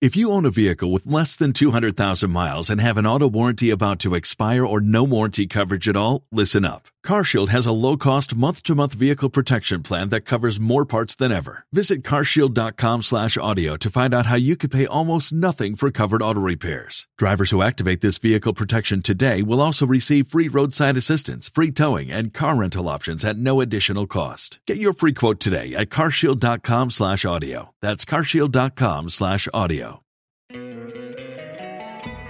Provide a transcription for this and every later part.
If you own a vehicle with less than 200,000 miles and have an auto warranty about to expire or no warranty coverage at all, listen up. CarShield has a low-cost month-to-month vehicle protection plan that covers more parts than ever. Visit carshield.com/audio to find out how you could pay almost nothing for covered auto repairs. Drivers who activate this vehicle protection today will also receive free roadside assistance, free towing, and car rental options at no additional cost. Get your free quote today at carshield.com/audio. That's carshield.com/audio.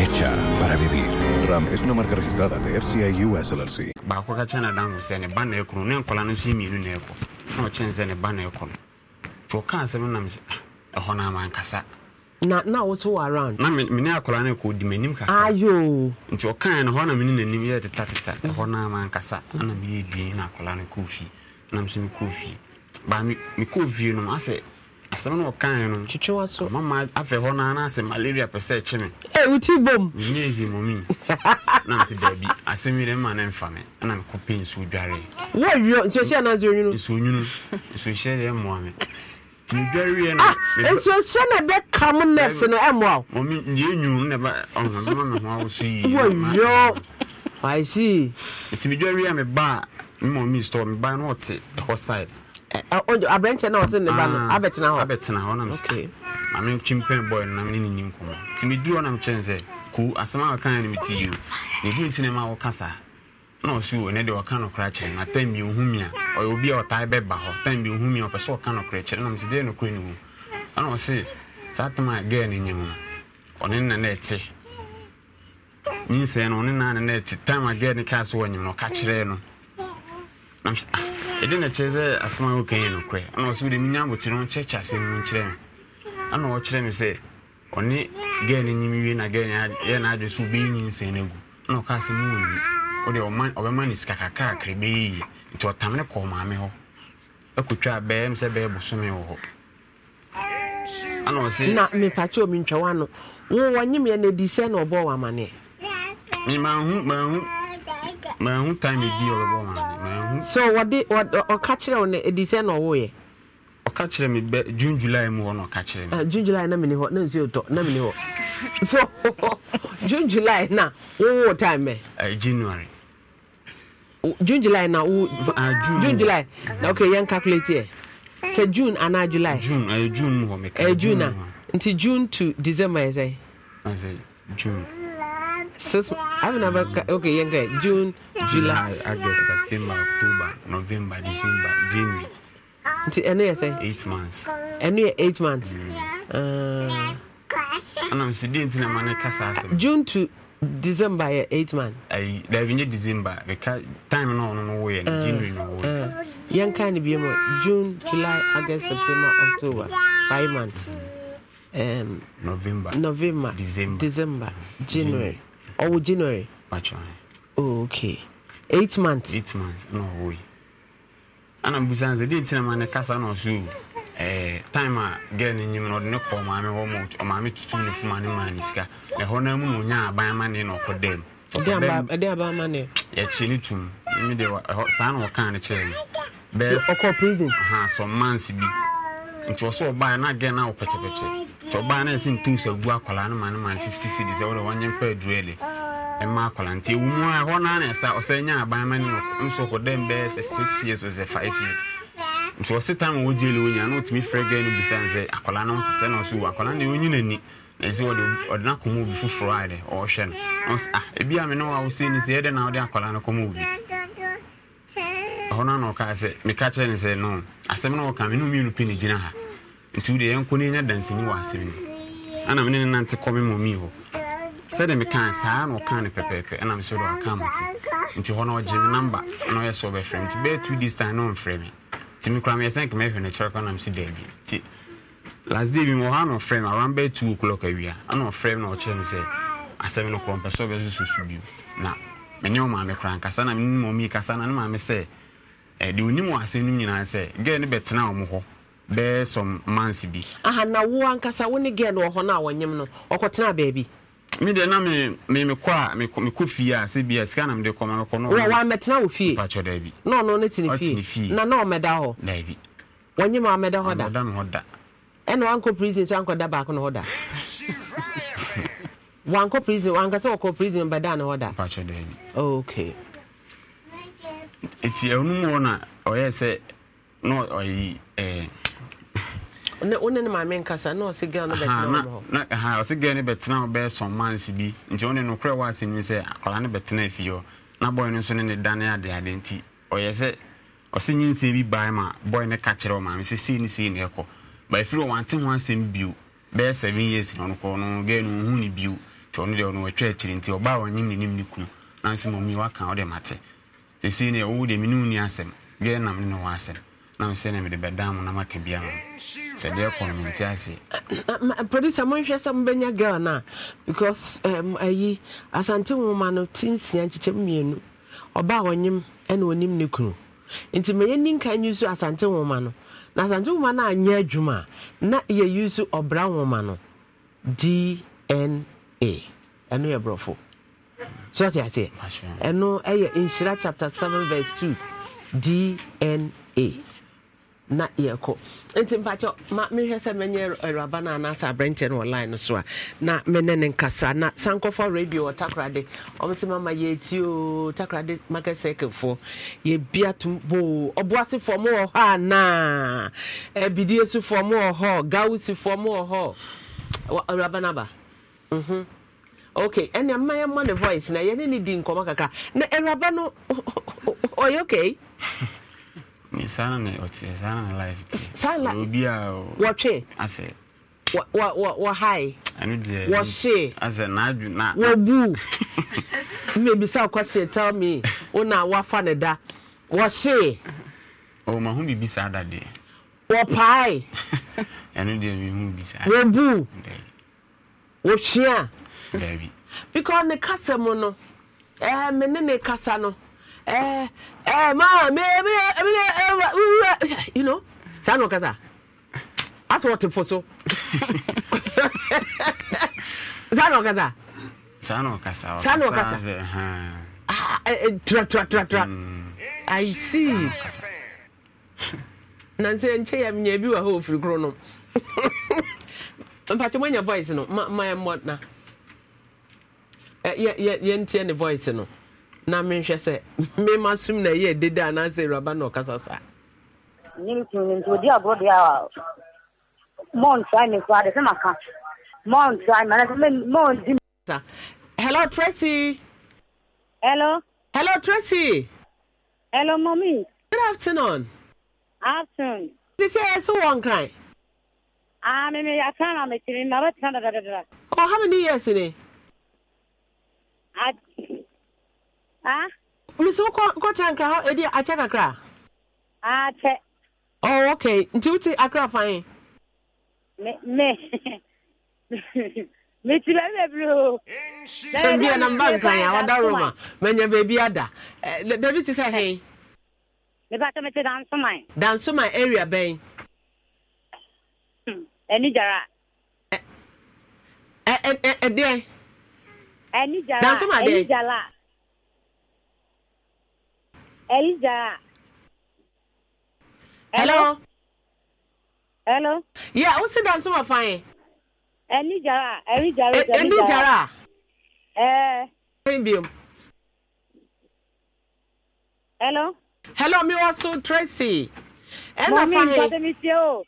hecha para vivir. Ram es una marca registrada de FCA US LLC. baako ka kyɛ nadamfo sɛ ne ba na ɛkunu ne nkɔla no so mmienu na ɛkɔ na ɔkyɛn sɛ ne ba na ɛkɔ no nti ɔkaa sɛm nam sɛ ɛhɔ no ah, ama nkasa na na woto wɔ around na mene akɔla no ɛkɔ di m'anim kakra ayo nti ɔkae no hɔ na mene n'anim yɛ tetateta ɛhɔ no ama nkasa ana meyɛ duen na akɔla no kɔɔ fie na mso mekɔɔ fie baa mekɔɔ fie no masɛ asɛm na ɔkae no twitwe wa so mama afei hɔ naa naasɛ malaria pɛ sɛ ɛkye me ɛ eh, woti bom nyɛ ɛzi mɔmi na mte baabi asɛm yi dɛ mma ne mfa me na mekɔpɛ nsuo dwaree wɔwio nsuohyɛ anaa nsuonwunu nsuonwunu nsuohyɛ deɛ mmoa me medwareɛ no ah, nsuohyɛ na ɛbɛka mo nɛs no ɛmmoa wo mɔmi nyɛ nwunu na ɛba ɔhɔ mema me ho awo so yie wɔwio I see. Nti medwareɛ a meba a store meba no ɔte ɛhɔ side Eh, eh, abrɛnkyɛ no ɔse ne ba no ah, abɛtena hɔ abɛtena hɔ nam sɛ mame kyimpɛn bɔy no name ne nenni nkɔmmɔ nti meduru hɔ nam kyɛn sɛ ku asɛm a wɔka ne meti yi o ne du nti ne ma woka saa na ɔso o ne deɛ ɔka nokora kyerɛ no atam bi ɔhu mi a ɔyɛ obi a ɔtae bɛba hɔ tam bi ɔhu mi a ɔpɛ sɛ ɔka nokora kyerɛ nam sɛ deɛ nokora ne wu ana ɔse saa tam a gɛɛ ne nyɛ mu no ɔne na na ɛte nyinsɛn no ɔne na ne na ɛte tam a gɛɛ ne kaa so wɔ nyim no ɔka kyerɛ no nam sɛ ɛde na kyerɛ sɛ asɛm a woka yɛ nokorɛ ana ɔsɛ wode menya abotire no kyɛkyɛ asɛm nkyerɛ me ana ɔkyerɛ me sɛ ɔne no nyim na gɛl yɛ naadwe so wobɛyɛ nyinsɛn no agu ana ɔka wode ɔbɛma ne sika kakrakra bɛyɛ yie nti kɔɔ maame hɔ akɔtwa a bɛɛm sɛ bosome wɔ hɔ ana ɔse na mepakyɛ omi ntwa wano adi sɛ na ɔbɔɔ wɔ amanneɛ memahu mahu na ho time di ɔbɛbɔ ma na ho. so wɔde ɔka kyerɛ wo eh, na edi sɛ na ɔwɔ yɛ. ɔka kyerɛ mi bɛ june july mu hɔ na ɔka kyerɛ mi. Eh, june july na mi ni hɔ na nsuo tɔ na mi ni hɔ so june july na wowo time bɛ. ɛɛ january. june july na wo. Eh, aa ah, june june july na okay yɛn calculate yɛ sɛ june anaa july. june ɛɛ june mu hɔ mi ka. ɛɛ june na nti june to december yɛ sɛ. june. Sasa hapo na baka okay, yanga June, July, August, September, October, November, December, January. Nti ɛno yɛ sɛ? Eight months. Ɛno yɛ eight months. Mm. Uh, Anam si di nti na ma kasa asɛm. June to December yɛ eight months. Ayi daabi nye December beka time no ɔno no wo yɛ uh, January no wo yɛ. Yɛnka ne bi June, July, August, September, October five months. Um, November, November, December, December January. January. ɔwɔ january bàtchọ oh okay eight months. eight months ɛna ɔwɔ yi ɛna busa nse deɛ ntina ma ne kasa na ɔso ɛɛ time a girl ne nyim na ɔde ne kɔ maame hɔ ma ɔmaame tutum ne fuma ne maa ne sika na ɛhɔ na mu na onya aban ma ne na ɔkɔ dɛm. ɛde aban ma ne. yɛkyi ne tum ɛmi de ɛhɔ saa na ɔka ne kyerɛ no. bɛɛ ɔkɔ prison. ha some months bi nti wɔ sɛ ɔbaa na agɛ no a wopɛkyɛpɛkyɛ nti ɔbaa no ɛsɛ ntos agu akwalaa no ma no ma 50 cedi sɛ wode wɔnyɛ mpa aduele ɛma akwalaa nti ɛwu mu a hɔ noa na ɛsa ɔsɛ nya aban ma no nso ɔkɔdɛm bɛyɛ sɛ 6 years ɔsɛ 5 years nti wɔse time wɔ gyele wɔ nyia na wotumi frɛ gaa no bisane sɛ akwalaa no wote sɛ na ɔso wu akwalaa no ɛwɔnyi n'ani na ɛsɛ wɔde ɔde no akɔma obi foforɔ a dɛ ɔɔhwɛ no ɔsɛ ah ebi a me ne wɔ a ni sɛ yɛdɛ na wode akwalaa no kɔma ɔno na ɔkaa sɛ meka kyerɛ ne sɛ no asɛm no wɔka me mmienu pɛ ne gyina ha nti wode yɛnkɔ ne nya dansani wɔ asɛm no ana mene ne nante kɔ me mɔmii hɔ sɛde mekaa saa na ɔkaa no pɛpɛɛpɛ ɛna mesɛ de ɔka mate nti hɔ na ɔgye me namba na ɔyɛ sɛ ɔbɛfrɛ nti bɛyɛ two days time na ɔmfrɛ me nti mekora meyɛ sɛ nka mɛhwɛ no kyerɛ kɔ na mese daabi nti last day bi wɔ hɔ na ɔfrɛ me around bɛyɛ two o'clock awia ana ɔfrɛ me na ɔkyerɛ me sɛ asɛm no korɔ mpɛ sɛ ɔbɛsoso bio na mene ɔmaame kora nkasa na mene mɔmii kasa na ne maame sɛ ɛde eh, onim asɛm no nyinaa sɛ girl no bɛtena wɔn hɔ bɛyɛ some months bi. ahanawo ankasa wo ne girl wɔ hɔ no a wɔnyim no ɔkɔtena baabi. mi deɛ na mi mi mi kɔ a mi kɔ fie a sɛ bi a sika na mi de kɔ ma mi kɔ. wɔ wɔ amɛtena wɔ fie. mpatsɔ daabi. na ɔno ne ti ne fie. ɔti ne fie. na na ɔmɛda hɔ. daabi. wɔnyim amɛda hɔ da. amɛda mi hɔ da. ɛna wankɔ prison so ankɔ da baako na hɔ da. wankɔ prison wankasa wɔkɔ prison bɛda ne hɔ da. okay. Eti ɛhonum eh, wɔ na ɔyɛ oh, sɛ na ɔyi oh, wone eh. ne maame nkasa na ɔse girl no bɛtena hɔ ɔse girl no bi nti bi sɛ akwadaa no na bɔy no nso ne ne dane adeade nti ɔyɛ sɛ bi bae ma bɔy no ka kyerɛ ɔmaame sɛ sei ne sei ne ɛkɔ ba na ɔnokɔ no girl no ɔhu ne bio ɔno deɛ ɔno wɔtwa sisi ne ɛwɔ deɛ mene woni asɛm deɛ nam ne wɔ asɛm na me sɛ ne mede bɛda na maka bia ma sɛ deɛ kɔ no mente ase producer monhwɛ sɛ mobɛnya girl no a because um, ayi asante nwoma no nkyekyɛ mmienu ɔba a ɔnyem ɛna ɔnim ne kunu nti mɛyɛ asante no na asante adwuma na yɛyi so ɔbra dna ɛno yɛ so te ase ɛno ɛyɛ nhyira chapter seven verse two dna na yɛkɔ nti mpakyɛ ma mehwɛ sɛ mɛnyɛ awuraba no anaasɛ aberɛnkyɛ no ɔline no so a na mene ne nkasa na sankɔfa radio wɔ takorade ɔm sɛ mama yɛti o takorade market circlefoɔ yɛbia tom boo ɔboasefoɔ mo wɔ hɔ anaa abidie sufoɔ mo wɔ hɔ gawusifoɔ mo wɔ hɔ awuraba no aba mm -hmm. okay ɛnna mma yɛn mma ne voice na yɛne ni di nkɔmɔ kaka na ɛwuraba no ɔyɛ okay. saa na ne ɔte saa na ne life te saa la obi a wɔtwe asɛ wɔhae wɔhye wɔbu mmebisa kɔhyee tell me O na woafa ne da wɔhyee ɔmaho biribi saa da deɛ wɔpae ɛno deɛ mehu bi saa wɔbu wɔhwe a daabi because ne kasa mu no ɛɛ eh, me ne ne kasa no ɛɛ ɛɛ maa me ebi yɛ ebi yɛ you know saa na ɔkasa asɔ ɔte po so saa na ɔkasa saa na ɔkasa saa na ɔkasa ah eh, eh, tra tra tra tra mm. i see na nsɛ nkyɛ yɛ bi wɔ hɔ ofiri koro no mpatɛ moanya voice no ma ma yɛ mmɔ na Eh, yɛntie ne voice no na menhwɛ sɛ mema som na ɛyɛ dede anaasɛ awuraba na ɔkasa saa hello tracy hello hello tracy hello mommy good afternoon afternoon ti sɛ ɛsɛ e one nkran Ah, me I can't me kiri na ba tana Oh, how many years it? mesi wokɔkyɛ nkra hɔ ɛdi akyɛ kakra akyɛ oh ok nti wote akra fan me meti baabi bebree o sɛ bia na mba nkran a wada roma manya baabi ada baabi te sɛ he mepɛsɛ mete dansoman dansoman area bɛn ani gyara ɛdeɛ ẹni jara ẹni jara ẹni jara. hello. hello. yẹ o si dansi ma fan ye. ẹni jara ẹni jara eh, ẹni jara. ẹẹ. ẹni eh. bi hello. hello mi wá so tracy. ẹna fan ye. mọ mi nkọ́ tẹ́mi tiẹ́ o.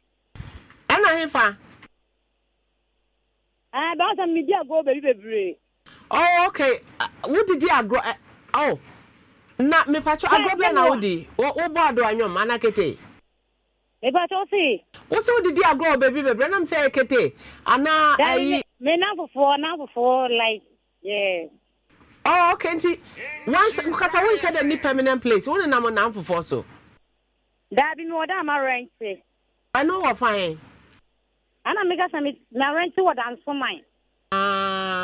ẹna hin fa. ẹ bá a sọ mi di àgọ́ bèbí bèbèrè. oh okay wodidi agorɔ ɛ oh na mipatso agorɔ bɛn na wodi wobɔ ado anyom ana kete. mipatso si. wosi wodidi agorɔ beebi beebi ɛnam sɛ kete ana ayi. Eh, mi nan fufuo nan fufuo like. Yeah. oh okay nti once kata wo nhyɛ dɛ ni permanent place wo nenam nan fufuo so. daabi mi wɔ dɛ ama rent. ɛnu wɔ fan. ana mi ka sɛ mi na rent wɔ dansoman. aa. Ah.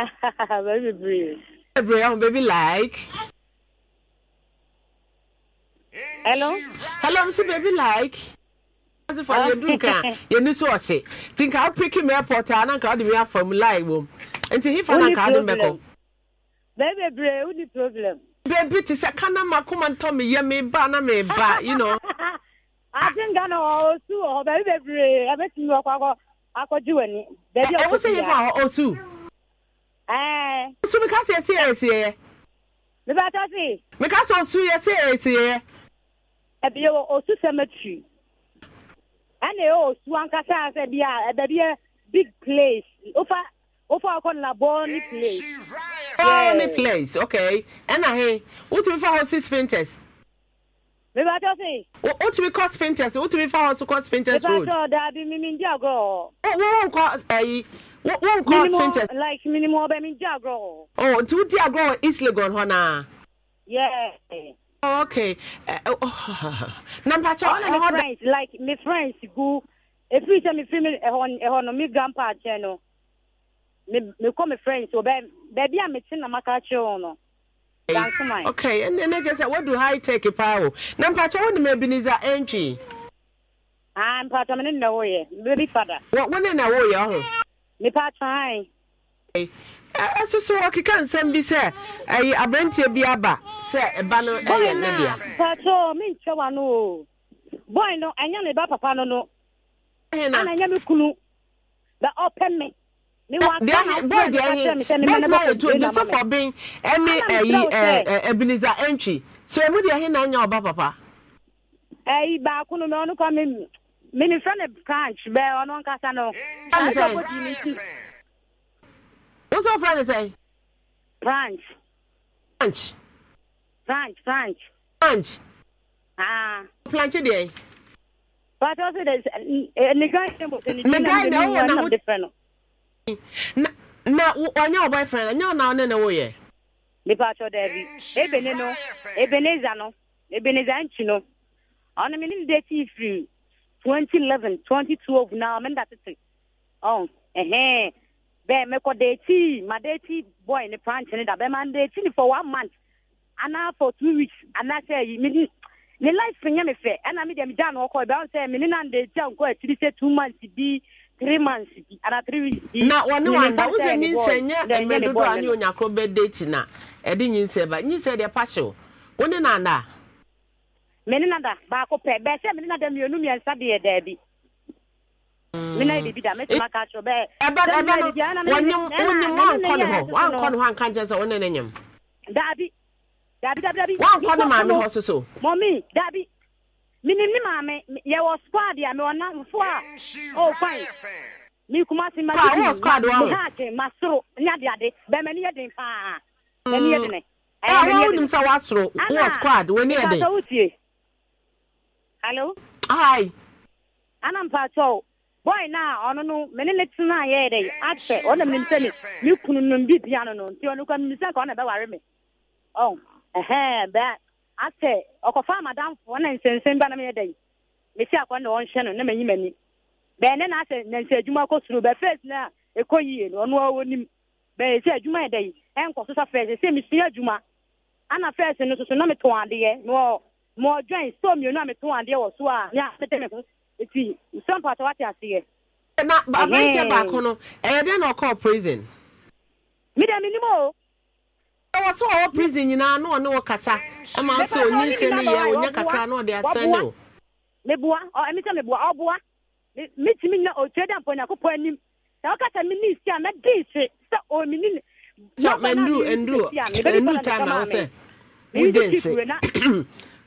Baby bebree. bebree ahun baby like. hello. hello mr baby like. ase fa yɛ duru kan yɛ ni so ɔhyɛ ti nka apiki mi airport a nanka ɔde mi afa mu line wom nti hifa nanka adi mɛkɔ. bɛɛ bebree o ni problem. beebi ti sɛ kana ma kuma ntɔ mi yɛ mi ba na mi ba you know. ati nka na ɔsu wɔ hɔ bɛɛ bebree ɛbɛ ti mi wɔ kɔ akɔ akɔji wɔ ni. ɛwɔ sɛ hifa ɔsu ɛɛ. nsu mi ka se esi esi yɛ. mi b'a tɔ si. mi ka se osu yɛ se esi yɛ. ɛbi yɛ osu cemetery ɛna yɛ osu ankasa sɛ bi a ɛbɛ bi yɛ big place ofa ofa ɔkɔ labɔ ni place. labɔ ni place okay ɛna he wotumi fa hɔ six painters. mi b'a tɔ si. wotumi kɔ painters wotumi fa hɔ so kɔ painters road. mi b'a tɔ daabi mi mi n di agorɔ. wo wo nkɔ ɛyi wọn kọ fintech. like minimu ọbẹ mi jẹ agorɔ. ọ oh, nti wọ́n ti agorɔ wɔ east legon hɔ naa. yeah. Oh, okay. Uh, oh, oh na mpacha ọ na ọ da. friends like my friends gu efiri sẹ mi fi mi ɛhɔ ɛhɔ no mi grandpa kyɛn no mi mi kɔ mi friends wɔ bɛɛ bɛɛbi a mi ti na ma ka kyerɛ wɔn no. Eh, okay ɛnna ɛnna kyerɛ sɛ wɔdu high tech paa o na mpacha wɔn de ma ebi ni za ɛntwi. aa ah, mpacha mi ne na wɔ yɛ bɛbi fada. wɔ wɔn ne na wɔ yɛ ɔho. nipa try ɛso eh, eh, so nsɛm bi sɛ ɛyɛ aberanteɛ bi aba sɛ ɛba no ɛyɛ ne dea pato menkyɛ wa no o boy no ɛnyɛ ne ba papa no no ana ɛnyɛ me kunu bɛ ɔpɛ me bɔdɛsɛfo ben ɛne ɛyi abiniza ɛntwi so ɛmu deɛ na nya ɔba papa ɛyi baako no mɛ ɔno minifrɛ no branch bɛ ɔno nkasa no asɔpɔdi ne ti wosɛ wofrɛ no sɛn branch branch branch branch branch ah planche deɛ pàtó sè de nìkan yìí mo sè nìkan yìí mo wà nà mo fẹ no. na na ɔnyɛ ɔbɔ efrɛ na nyɛ ɔna ɔne na wɔyɛ. nipa atɔ dɛbi ebene ne ebeneza no ebeneza nkyi no ɔno mi ni de ti firi 2011 2012 na menda tete oh ehe bẹẹ mẹkọ deeti ma deeti boy ni pranti ni da bẹẹ ma deeti ni for one month ana for two weeks ana sẹ yi mi ni ni life nyẹ mi fẹ ẹna mi dẹ mi dan ọkọ ibẹ ọsẹ mi ni na deeti a nkọ etiri sẹ two months bi three months bi ana three weeks bi. na wọn ni wọn da wọn sẹ nyinsẹ nyẹ ẹnyẹ dodo a ni onyakoro bẹ deeti na ẹdi nyinsẹ ba nyinsẹ deɛ paṣẹ o wọn ni na ada mene nada baako pɛ bɛɛ sɛ mene nada mmienu mmiɛnsa deɛ daabi mena biribi da mɛtumi aka kyerɛ bɛɛ wonkɔ ne hɔ anka nkyɛ sɛ wone ne nyam daabi daabi daabi daabi woankɔ ne maame hɔ so so mɔmi daabi menim ne maame yɛwɔ squad a mewɔ namfo a ɔwɔ kwan mi kuma si ma wɔ squad wɔ me haake masoro nyadeade bɛmani yɛ den paa mani yɛ mm. dene wonim sɛ woasoro wɔ squad w'ani yɛ den Hello. Hi. Ana pato. Boy na ọnụ nụ mene ne tina ya ede. Ache ọ na mene sene. Ni kunu nụ bi bia nụ nụ. Ti ka ọ na bɛware me. Oh. Eh eh ba. Ache fa madam fo na nsensen ba na me si akwa na ọ no na ne na asɛ adwuma na no nim. yi e e so sa adwuma. E Ana no na metɔn adeɛ na ma ọjọọ dwan so mmienu a metɔn adeɛ wɔ so a ne a mede me ho nti nsɛm pata wate aseɛ. na aberanteɛ baako no eh, e dɛ na ɔkɔɔ prison. mi dɛ mi o. ɛwɔ so ɔwɔ prison nyinaa na ama kakra na o. anim omi ni. time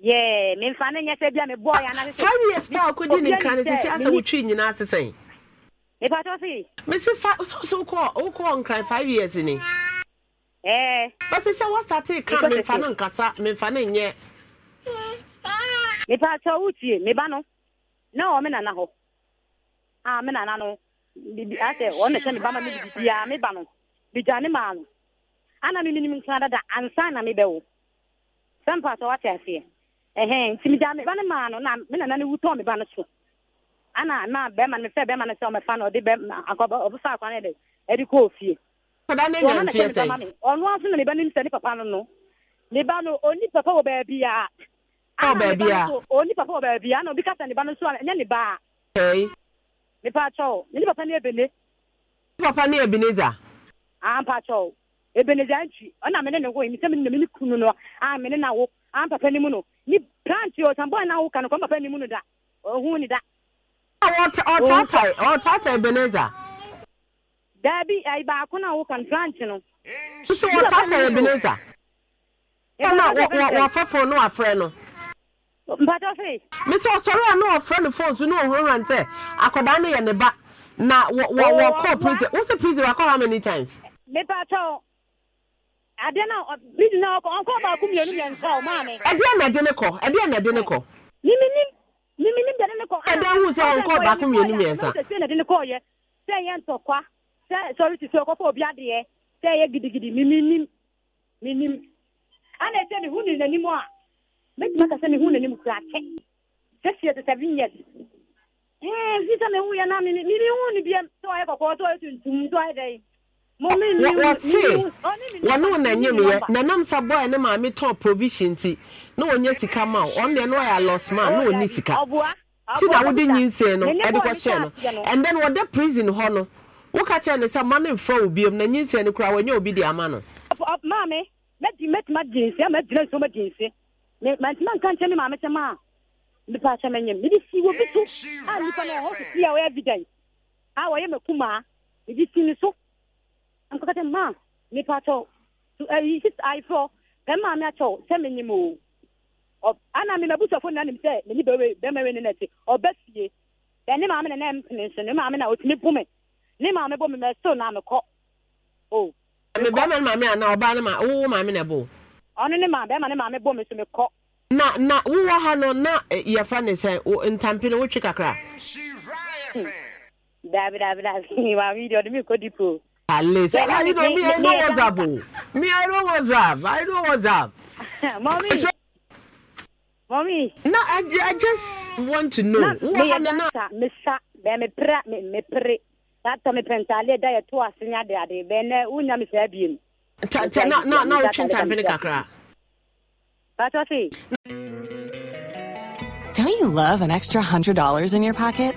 Yeah, me fa ne nyɛ sɛ bia me years pa ko di ne kan sɛ sɛ asɛ wotwi nyina so so ko o ko on years ni. Eh. But sɛ what start kan me fa no nkasa me fa ne nyɛ. Me pa to wutie no. Na o me nana ho. Ah me nana no. Bibi asɛ o ne sɛ ne ba me bibi ya no. Bi ne ma no. Ana me minim kan dada ansa na me bɛ wo. Sɛ mpa to wate aseɛ. ɛhɛn nti mi ba ne maa no na mi nana ne wu tɔn ba no so ana na bɛrima no fɛ bɛrima no sɛ ɔmɛ fa no ɔde bɛrima akɔba ɔbɛfa akwa ne de kɔ ofie. kɔda ne nya nfiɛ sɛ ɔno na ba ne papa no no ne ba no oni papa wɔ baabi a. a oni papa wɔ baabi a ana obi kasa ne ba so a ɛnyɛ ne ba a. ɛyi. ne papa ne ebene. ne papa ne a mpa ne ne ne na wo an papa mu no ni plant yɛ na awoka no kɔn papa ni mu no da ɔhun ni da. ɔtaatae oh. ɔtaatae beneza. daabi ayi baako na awoka no plant no. nso ɔtaatae beneza. ɛna wɔfɛfo no wafrɛ no. mpatɔ fe. mesɛ ɔsɔre a na ɔfrɛ no fone so na ɔhurahura nsɛ akwadaa no yɛ ne ba na wɔ prison wosi prison wakɔ how many times. mepatɔ adeɛ na bidi na ɔkɔ ɔnkɔ baako mmienu mmiɛnsa o maa mi. ɛdeɛ na ɛde ne kɔ ɛdeɛ na ɛde ne kɔ. mimi ni mimi ni bɛde ne kɔ. ɛdeɛ hu sɛ ɔnkɔ baako mmienu mmiɛnsa. sɛ na ɛde ne kɔ yɛ sɛ yɛ ntɔkwa sɛ sɔre ti sɛ ɔkɔfɔ obi adeɛ sɛ yɛ gidigidi mimi ni mimi ni. ana ɛsɛ ne hu ne n'anim a mɛtuma kasa ne hu n'anim kura kyɛ sɛ fiye te seven years. ɛɛ fi sɛ hu yɛ na mi ni mi hu ne bi sɛ ɔyɛ kɔkɔɔ sɛ ɔyɛ tuntum sɛ ɔyɛ dɛ wɔse wɔne wo nanyamyɛ nanam sa bɔɛ ne maame tɔn provision nti na wɔnyɛ sika ma wo ɔno deɛ no ɔyɛ alɔs ma na ɔnni sika ti na wode nyinsee no ɛde kɔhyɛɛ no and then wɔda prison hɔ no woka kyerɛ no sɛ ma no mfrɛ wo biom na nyinsee no koraa wɔnyɛ obi de ama no maame mɛtuma gye nse ama gyina nsuo ma gye nse mantuma nka me maame kyɛ ma a nipa akyɛ mɛnyam mede si wɔ bi so a no ɛhɔ sisi a ɔyɛ evidence a wɔyɛ makumaa mede si ne so nkɔkɛtɛ ma nipa tɔ ɛyi sisi ayifɔ pɛn maa mi atɔ sɛ mi ɔ ana mi ma busɔfo na nim sɛ mi bɛwe bɛma we ne na ti ɔbɛ fie ɛni maa mi na nan mpini so ne maa mi na otumi bu mi ne maa mi bu mi mɛ na mi kɔ o. ɛmi bɛrima ni maame ana ɔbaa ni maa wowo maame na bo. ɔno ne maa bɛrima ni maame bu mi so mi kɔ. na na wowɔ ha no na e, yɛfa ne sɛ ntampini wotwi kakra. Hmm. daabi daabi daabi maame yi de ɔde mi kɔ dipo. yeah, I, me, know, me, I know what's up. Oh. Me, I know what's up. I know what's up. Mommy. So, Mommy. No, I, I just want to know. me pra, me me pre. me pentale unya me Ta ta na na na ta kakra. Don't you love an extra $100 in your pocket?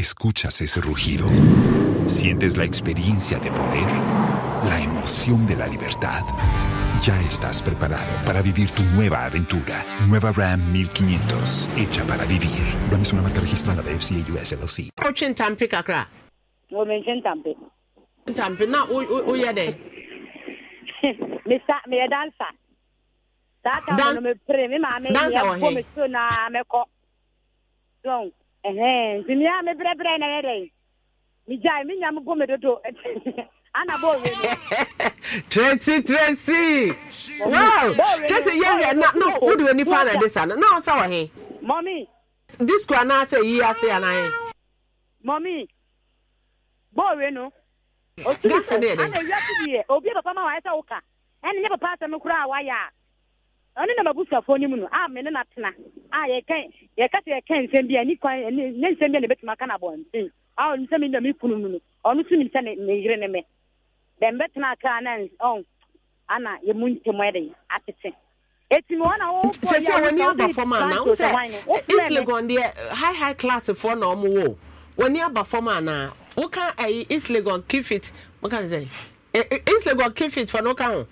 Escuchas ese rugido. Sientes la experiencia de poder, la emoción de la libertad. Ya estás preparado para vivir tu nueva aventura. Nueva Ram 1500, hecha para vivir. Ram es una marca registrada de FCA US LLC. tampi me nti nea mebrɛbrɛ na yɛdɛ megyae me nyame bɔ medodo tracy tracy wow tracy yɛ wiɛ na na wode wɔ nipa na de sa no na wo sɛ wɔ he mɔmi disco anaa sɛ yi ase anaa he mɔmi bɔɔwe no ɔsuri sɛ ana eh? wiase deɛ obi papa ma wayɛ sɛ woka ɛne nyɛ papa asɛm koraa a wayɛ a ɔno na mabusuafoɔ no mu no a me ne natena a yɛka yɛka sɛ yɛka nsɛm bi a ni kwan ne nsɛm bi a ne bɛtumi aka na abɔnten a ɔno sɛ mena me mu no ɔno so nim sɛ ne yere ne me dɛm bɛtena kaa na ana yɛmu ntɛm ɛde atete etimi wɔn a wɔwɔ deɛ high high class foɔ na wɔn wɔ wɔn ni aba fam ana wɔka ɛyi islegon kifit wɔka ne sɛ eh, eh, islegon kifit fɔ no ka ho.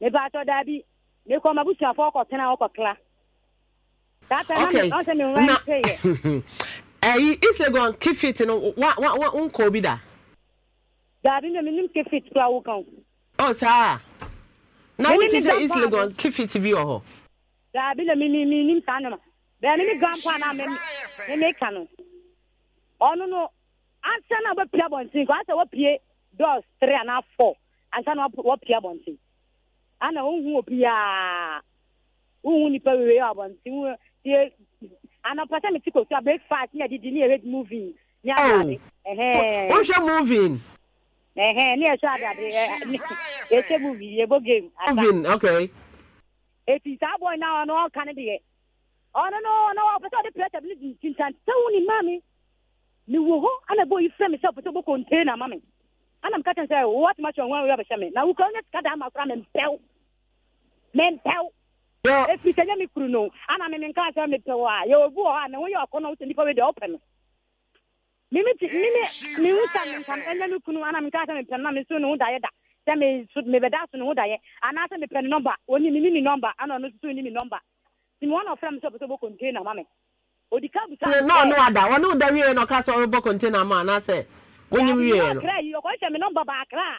nipa atɔ daabi mekɔ ma busuafoɔ kɔtena wɔkɔkla ɛyi isegon kifit no wa wa wa nkɔ bi da. daabi na menim kifit kura wo kan. ɔ saa na wo ti sɛ isegon kifit bi wɔ hɔ. daabi na mimi minim saa nama bɛn mi ni grandpa na mi mi mi ka no ɔno no ansa na wɔpie abɔnten kɔ ansa wɔpie dɔs three ana four ansa na wɔpie abɔnten ana wohu obiaa wohu nipa wewee abɔnten anɔpa sɛ mete kɔsu a breakfast ne adidi ne yɛhwɛ movin ne adade oh. wohwɛ movin ɛhɛ ne yɛhwɛ adade yɛhwɛ e, e movin yɛbɔ e game movin okay eti saa bɔn na ɔno ɔka ne deɛ ɔno no ɔno ɔpɛ sɛ ɔde pressure bi ne di ntintantan wo ni maa mi wo hɔ ana bɔ yi fɛ mi sɛ ɔpɛ sɛ ɔbɔ container ma ana mi ka kyɛn sɛ wɔtuma kyɛn wɔn wɔyɛ ɔbɛhyɛ mi na wukɔ ne sika da ama mi mpɛw mɛmpɛw ɛfiri sɛ nyɛ me no ana meme nka sɛ mepɛw a yɛwɔ bi wɔ hɔ a me ho yɛ ɔkɔ no wosɛ nnipa wei wopɛ no meme te meme mehu me kunu ana menka sɛ mepɛ no na meso ne ho daeɛ da sɛ mebɛda so ne ho daeɛ anaasɛ mepɛ no nɔmba ɔni mene ne nɔmba ana ɔno soso ni me nɔmba nti me wɔna ɔfrɛ me sɛ ɔpɛ sɛ ɔbɔ container ma me odi ada ɔne woda wieɛ na ɔka sɛ ɔbɛbɔ container ma anaasɛ wonyim wieɛ no ɔkɔhyɛ me nɔmba baakra a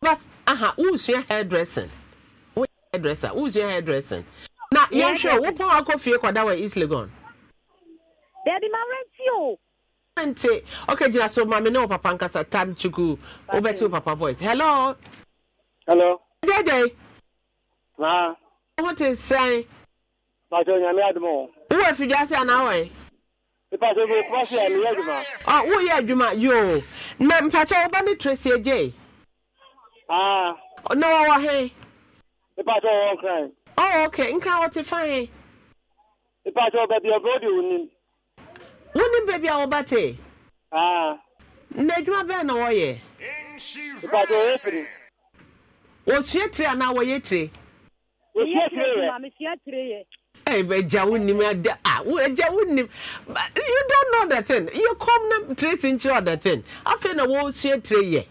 but aha wosua hairdressing woyɛ hairdresser wosua hairdressing na yɛhwɛ wopɔn akɔ fie kɔda wɔ east legon baabi ma renti o renti okay gyina so maame ne wo papa nkasa tam chuku wobɛte wo papa voice hello hello gyagyae ma wo te sɛn pàṣẹ onyàmí àdùmọ̀ wọn. wúwo ìfìjà sí àná wọ̀nyí. ìpàṣẹ gbogbo pàṣẹ àmì yẹ àdùmọ̀. ọ wúwo yẹ àdùmọ̀ yóò na mpàṣẹ ọba ní tracy ejay. Ah. Na wɔwɔ he? Nipa tɛ wɔwɔ nkran. Oh, okay. Nkran wɔte fa he? Nipa tɛ wɔba baby ɔbɛ odi wonim. Wonim baabi a wɔba te? Ah. Na adwuma bɛn na wɔyɛ? Nipa tɛ wɔyɛ tiri. Wɔsua tiri anaa wɔyɛ tiri? Wɔsua tiri yɛ. Maame sua tiri yɛ. Hey, but Jawu nim ada ah, Jawu nim. You don't know the thing. You come na trace into other thing. Afei na wo sie tre ye.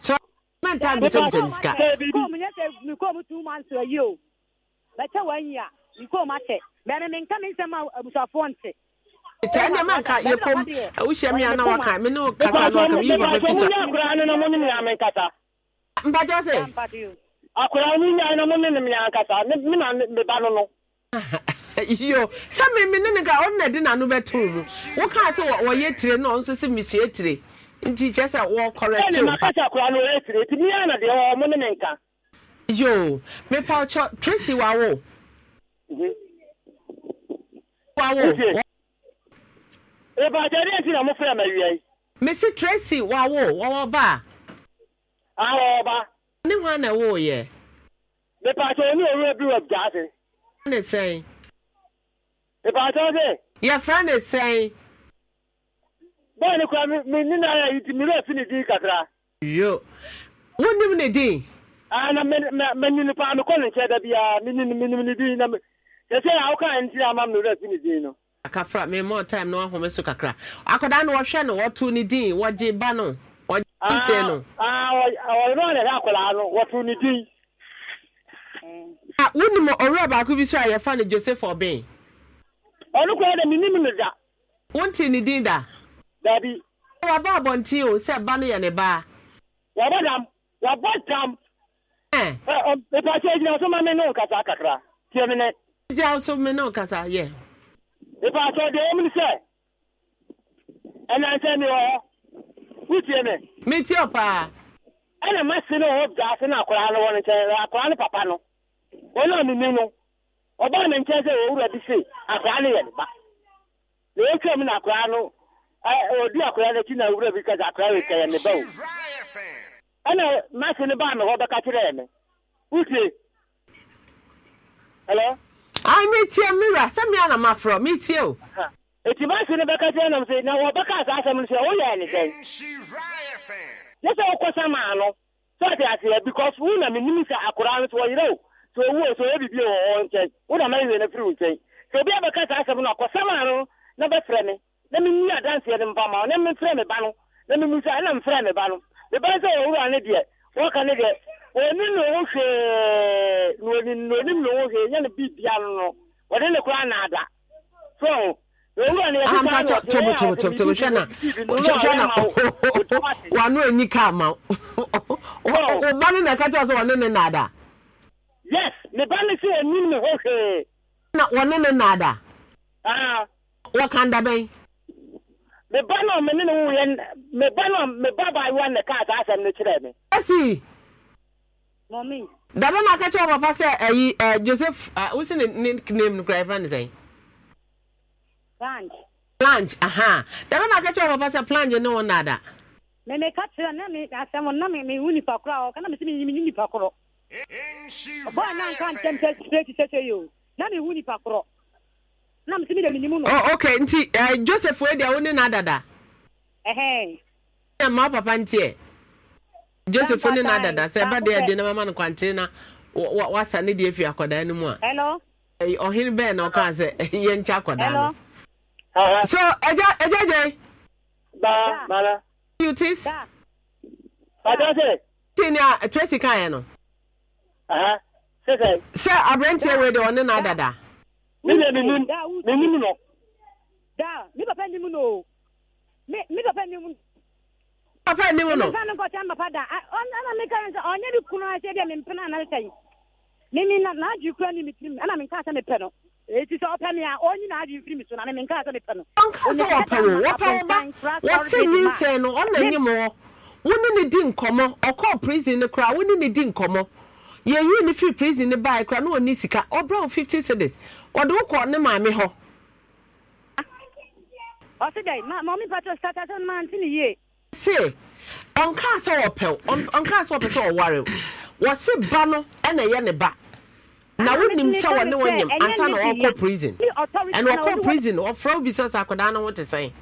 So man time bisa bisa sika ko mi o bɛtɛ wɔn yi a mi ko mu akyɛ bɛn mi nka mi nsɛm a abusuafoɔ nti. tẹ ẹnna máa ka yẹ mi mi ní kasa náà akura ni mi mi mi mi mi ba nínú. yo mi nìkan ọ̀nà tó o mu wọ́n kàn wọ́n náà ọ̀ nso nti kyɛ sɛ wɔkɔrɛte wo makasa kora no ɛsire nti mia na deɛ ɔmo ne me nka yo mepa ɔkyɛ tracy wawo mhm. wawo ɛbakyɛdeɛ nti na mofrɛ mawiai mesi tracy wawo wɔwɔ ba a awɔba ne hɔ na ɛwɔ yɛ mepakyɛ ne ɔwura bi wɔ gyaase ne sɛn mepakyɛ sɛ yɛfrɛ ne sɛn bọọlụ kura mi ni na ya iti mi lọ si ni kakra. yo wọn nim ni di. aa na mɛ mɛ mɛ nini paa mi kɔ ni dabi aa mi nini mi nini di na mi sɛsɛ awo kan n ti ama mi lọ na wɔn ahome so kakra akwadaa no wɔhwɛ no wɔtu ni di wɔgye ba no wɔgye nse no. aa wɔyɛ wɔn yɛrɛ akwadaa no wɔtu ni di. wonim ɔwura baako bi so a yɛfa no joseph ɔbɛn. ɔno kura dɛ mi nim no da. wonte ne din da. dabi. wàbá abọ̀ntín o sẹ́ ba ni yẹ ne ba. wàbá dam wàbá dam. ẹ ọ ìpàṣẹ ìjìnlẹ̀ ọ̀sán máa mi ní òkàtà kakra tiẹ̀ mi nẹ. ìjìnlẹ̀ ọ̀sán omi sẹ ẹ náà ẹ na ma wọn nkyɛn ni papa no wọn mi mi no ọba mi nkyɛn sɛ bi se ni yɛ ne ba na mi na obi akwadaa n'akyi na awura bi kasa akwadaa kɛyɛ ne ba o ɛna maasi ne baa mi hɔ bɛka kyerɛ mi utie hello. ayi mi tie mira sẹmi ana o. eti maasi ne bɛka kyerɛ nam sɛ na wɔ bɛka asɛm no sɛ ne sɛn sɛ maa no sɛ ɔte aseɛ because wo na menim sɛ no sɛ wɔyerɛ o sɛ sɛ ɔyɛ wɔ hɔ nkyɛn na no wo na menni adanseɛ no mpa ma wo na memfrɛ me ba no na memu sɛ ɛna mfrɛ me ba no meba sɛ wɔwura ne deɛ wɔka ne deɛ ɔni ne ho hwee na onim na onim ne ho hwee nyɛ ne biribia no no wɔde ne koraa na ada so wano ani ka ma woba no na ɛka kyɛw sɛ wɔne ne naada yes meba ne sɛ ɔnim ne ho hwee na wɔne ne naada ah. wɔka nda bɛn me ba na me ne ne wo yɛ me ba na me ba ba ayiwa ne kaa saa asɛm no kyerɛ me. ɛsi. mɔmi. dama na akɛkyɛ papa sɛ ɛyi ɛ joseph a wosi ne ne name no kura efra ne sɛn. planch. planch aha dama na akɛkyɛ papa sɛ planch ne wɔn nada. mɛ mɛ ka kyerɛ na mi asɛm na mi mi hu nipa korɔ a ɔka na mi si mi mi nipa korɔ. ɔbɔ a na nka ntɛm sɛ sɛ yi o na mi hu nipa korɔ oh okay nti uh, joseph wey dia wone na dada. ɛhɛn. na mmaa papa nteɛ. joseph ne na dada sɛ ɛba deɛ de ne mama no kwankyere na wasa ne deɛ fi akwadaa no mu a. hello. Eh, ɔhene bɛɛ na ɔkaa sɛ yɛnkyɛ akwadaa no. so ɛgya ɛgya gye. baa mara. you tis. bàtà sè. tí ni a tracy kan yɛ no. sɛ aberanteɛ wei de ɔne na dada. Yeah. mi yɛ na na e, n'a no ɔna wɔ wone ne di prison koraa wone ne na ɔni wɔde wo kɔɔ ne maame hɔ ɔse dɛ mɔmi patro sata sɛ noma nte ne yie se ɔnkaa sɛ wɔpɛw ɔnkaa sɛ wɔpɛ sɛ ɔware wɔse ba no ɛna ɛyɛ ne ba na wonim sɛ wɔne wɔ nyam ansa na wɔkɔ prison ɛna wɔkɔ prison wɔfrɛ wo bi sɛ sɛ akwadaa no ho te sɛn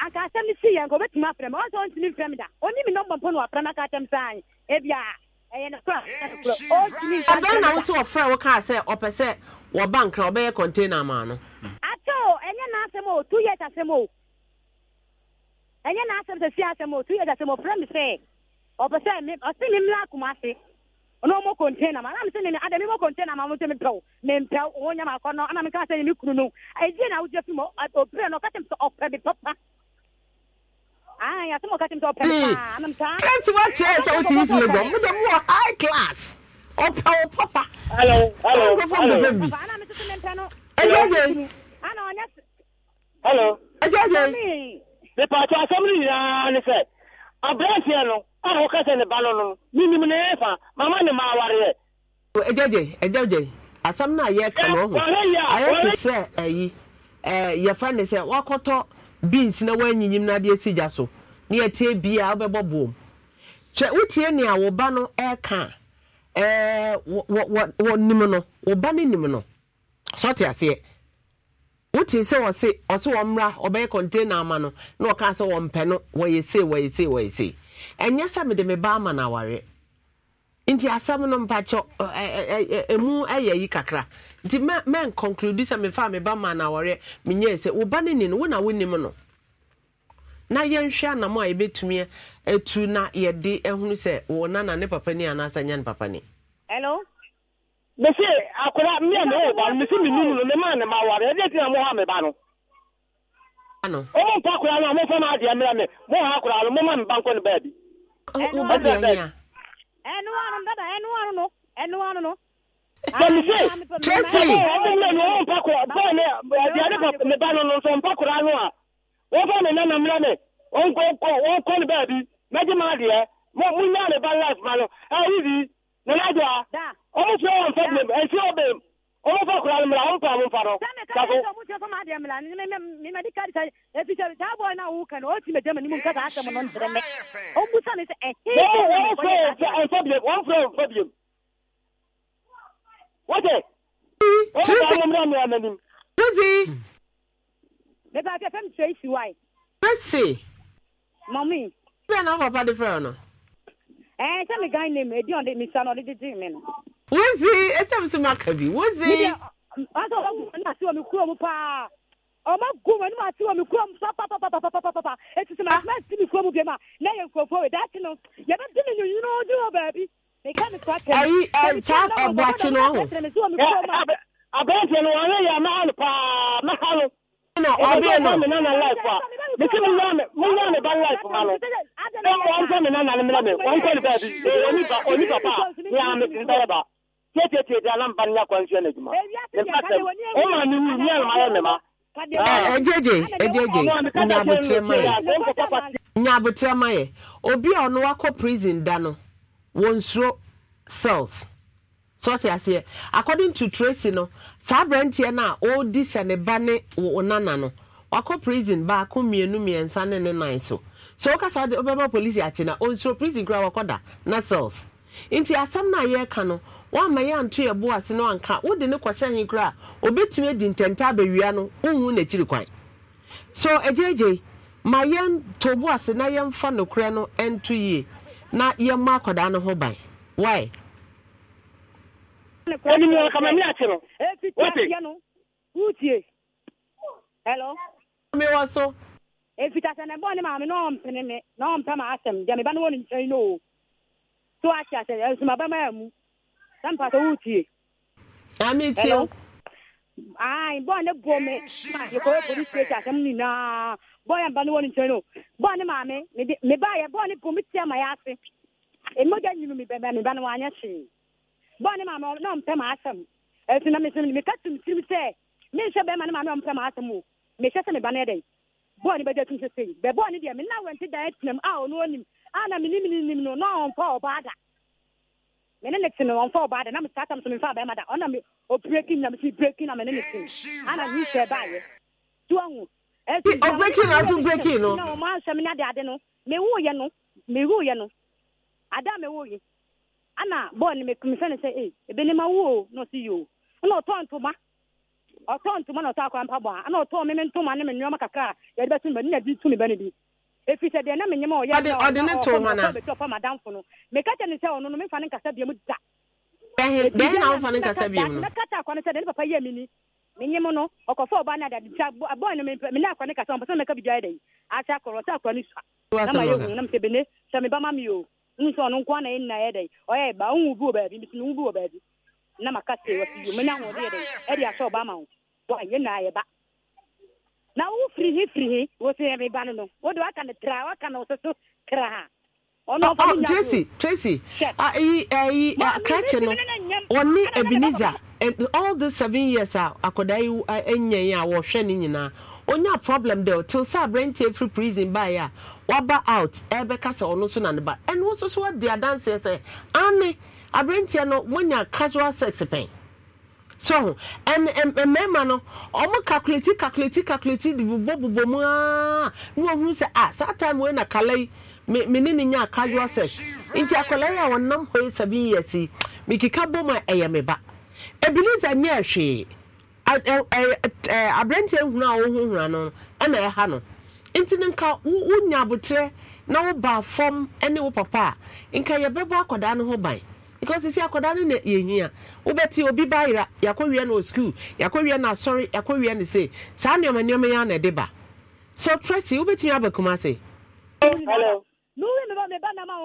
anka asɛm si yɛ nka obɛtumi afrɛ m ɔsɛ ɔntumi mfrɛ m da ɔni mi nɔmbɔ mpo na wapra no aka atɛm saa ebia ɛbɛn na nso ɔfrɛ wo kaa sɛ ɔpɛ sɛ wɔba nkra ɔbɛyɛ container maa no ato ɛnyɛ n'asɛm o two years asɛm o ɛnyɛ n'asɛm sɛ fie asɛm o two years asɛm o frɛ me sɛ ɔpɛ sɛ ɔsi me mmira akoma ase ɔno ɔmɔ container ma anam sɛ ne ada mi mɔ container ma ɔmo sɛ mi pɛw mi mpɛw wɔn nyɛ ma akɔ no anam kama sɛ ne kunu no ɛdie na awudie fi mu ɔpere no ɔka sɛ ɔpɛ mi papa Kasi wa kyerɛ sɛ wosi yi sinɛ dɔn, mo de mo wɔ high class, ɔpɛ o papa. Hello, hello, hello. Ɛjɛ jɛ. Hello. Ɛjɛ jɛ. Nipaatɔ asɛm no nyinaa ne sɛ, aberanteɛ no a wɔka sɛ ne ba no no, minim ne yɛ fa, mama ne ma awareɛ. Ɛjɛ jɛ, ɛjɛ jɛ, asɛm no a yɛreka no ayɛ te sɛ ɛyi, yɛfrɛ ne sɛ wakɔtɔ beans na wɔanyinyim no adeɛ si gya so. na yɛtie bia wobɛbɔ boom kyɛ wotie ụtie wo ụba no ɛka wɔ nim no wo ba no nim no sɔte aseɛ wotie sɛ ɔse ɔse wɔmmra ɔbɛyɛ container ama no na ɔka sɛ wɔmpɛ no wɔyɛ sei wɔyɛ sei wɔyɛ esi ɛnyɛ sɛ mede me ba ama na awari nti asɛm no mpakyɛ ɛmu ɛyɛ yi kakra nti mɛnconclude sɛ mefa me ba ma ama na awari sɛ wo ba no ni no wo na wonim nọ. na yɛnhwɛ a yɛbɛtumi na yɛde ahunu sɛ wɔ nana ne papa ni anaasɛ nyɛ ne papa ni. hello. akora na ɛwɔ ba mi numu no ne maa ne ma ɛdi na mo ha mi ba no. ano. ɔmo mpa akora no a mo fɛn adeɛ mmerɛ mi mo ha akora no mo ma mi ba nkɔ ne baabi. ɛnu ɛnu dada ɛnu no ɛnu no. Tracy. mpa wɔfa ne nana mmra me wɔnkɔ ne baabi mɛgye ma adeɛ munya ne ba life ma no ayibi ne nagye a ɔmo fie wɔ mfa bem ɛsi wɔ bem ɔmo fa kora no mmra ɔmo pa mo mfa no wɔmfrɛ mfa biem wɔte ɔmo fa mo mmra me ananim bẹbẹ àti ẹfẹ mi tẹ ìsì wáyé. mercy. mọ̀mí. bẹ́ẹ̀ náà papa de fẹ́ràn nọ. ẹ ẹ sẹ́mi gan ni èdè ọ̀dẹ mi sanu ọ̀dẹ dídì mi nù. wọ́n ti ẹ sẹ́mi sọ ma kàbí wọ́n ti. wọ́n sọ wọ́n gùn ní àti omi kúrò mu paa ọmọ gùn wọn ní wọn àti omi kúrò mu papapapapapapapa etí sọ ma ti mi kúrò mu bíi ma lẹ́yìn nkurọ̀fọ̀ wẹ̀ dáàtì nù yẹ dín mi yìnyín ní ojú wọn bẹ̀ẹ̀bi. ayi ẹ ta ẹ̀bù àti náà. abẹ́ẹ̀tì ni wọ́n yẹ yà máa lù paa máa lù. ọ bịa na mi nana life a mi si mi nana mi nana ba life ma no ẹ wọn kọ mi nana mi nana wọn bi oni ba oni papa a mi ti bẹrẹ ba tiẹ tiẹ tiẹ di anam ba ejeje ejeje obi a ɔno wakɔ prison da no cells sɔte aseɛ according to tracy no saa aberanteɛ no a ɔredi sɛ ne wo nana no wakɔ prison baako mmienu mmiɛnsa ne ne nan so so woka saa de wobɛma polisi akye na ɔnsuro prison koraa wakɔda na cells nti asɛm no a yɛreka no wama yɛ anto yɛ bo ase no anka wode ne kɔhyɛ he a obɛtumi adi ntɛnta abɛwia no wonhu n'akyiri kwan so ma bo ase na yɛmfa nokorɛ no ɛnto yie na yɛmmɔ akɔdaa no ho ban onim wɔ kama mi ate no wote hello me wɔ so ɛfita sɛ nɛbɔ ne maame na ɔmpene me na ɔmpɛ ma asɛm deɛ meba ne wɔ ne nkyɛn no o so akyɛ sɛ ɛsoma bɛma mu sɛ mpa sɛ wotie ametie ai bɔɔ ne bo me yɛkɔyɛ police station asɛm nyinaa bɔɔ yɛ mba ne wɔ ne nkyɛn no bɔɔ ne maame meba yɛ bɔɔ ne bo me tia ma yɛ ase ɛmɔgya nyinu mebɛmɛ meba no wanyɛ hwee bɔne maama na ɔmpɛ maasɛm ɛti na mesɛ meka tum tirim sɛ menhyɛ bɛrima no maame ɔmpɛ maasɛm o mehyɛ sɛ meba no ɛdɛn bɔɔne bɛgya tum sɛ sei bɛ bɔɔne deɛ mena wɛnte da atinam a ɔno ɔnim a na menim ne nim no na ɔmfa ɔbaa da mene ne te no ɔmfa ɔbaa da na mesaatam so memfa bɛrima da ɔna me ɔbreki na mesi breki na mene ne te ana mehyɛ baayɛ ti wahu ɔbreki no ato breki no na ɔma asɛm ne ade ade no mewuyɛ no mewuyɛ no ada mewuyɛ ana bɔɔl no mefɛ no sɛ e ebene ma wo o na ɔse yo na ɔtɔ ntoma ɔtɔ ntoma na ɔtɔ akora mpa bɔ a na ɔtɔ meme ntoma ne me nneɔma kakra a yɛde bɛto mebɛ ne na di tu mebɛ no bi ɛfiri sɛ deɛ na menyɛma ɔyɛɔde ne to ma nobɛtɔ ɔpa madamfo no meka kyɛ ne sɛ ɔno no memfa ne nkasa biam da bɛhe na wofa ne nkasa biam no mɛkata akɔ no sɛ deɛ ne papa yɛ me ni menye mu no ɔkɔfa ɔba no adade nti bɔɔ no mene akɔ ne kasa ɔmpɛ sɛ meka biribiara da yi asɛ akɔrɔ sɛ akɔrɔ no sua na ma yɛhu na mesɛ bene sɛ meba ma me o nso ɔno nko ana ɛnna yɛ dɛ ɔyɛ ba ɔnwu bi wɔ baabi misi nwu bi wɔ baabi na maka se wɔsi yo menya ahoɔden yɛ dɛ ɛde ahyɛ ɔba ma wo wa yɛ na ayɛ ba na wo firi hi firi hi wɔsi yɛ mi ba no no wɔde waka no tra waka no soso kra ha ɔno ɔfa mi nya tracy tracy ayi ayi krakye no wɔne ebenezer all the seven years a akwadaa yi anya a wɔhwɛ ne nyinaa onya problem dɛ till sɛ aberanteɛ firi prison ba ya, waba out ebe kasa ɔno nso na ne ba nso so wadi adanseɛ sɛ ane aberanteɛ no monya casual sex eh, pɛn so ɛn ɛn mmarima no ɔmo calculate calculate calculate de bubɔ bubɔ mu aa ne wɔn ho sɛ ah saa time wei na kala yi me me ne ne nya casual sex nti akwadaa yi a wɔnam hɔ yi seven years yi eh, me keka bɔ mu a ɛyɛ eh, me ba ebilis anyɛ hwee. aberantɛ hunu a wohohura no ɛna ɛha no nti no nka wonya abotrɛ na woba fam ne wo papa a nka yɛbɛbɔ akwadaa no ho ban because sisi akwadaa no na yɛhia wobɛte obi ba yera yɛakɔwie no wɔ sukuu yɛakɔwie no asɔre yɛakɔwie no se saa nneɔma nneɔma yɛ na ɛde ba so trɛsi wobɛtumi aba kuma se Hello. Hello.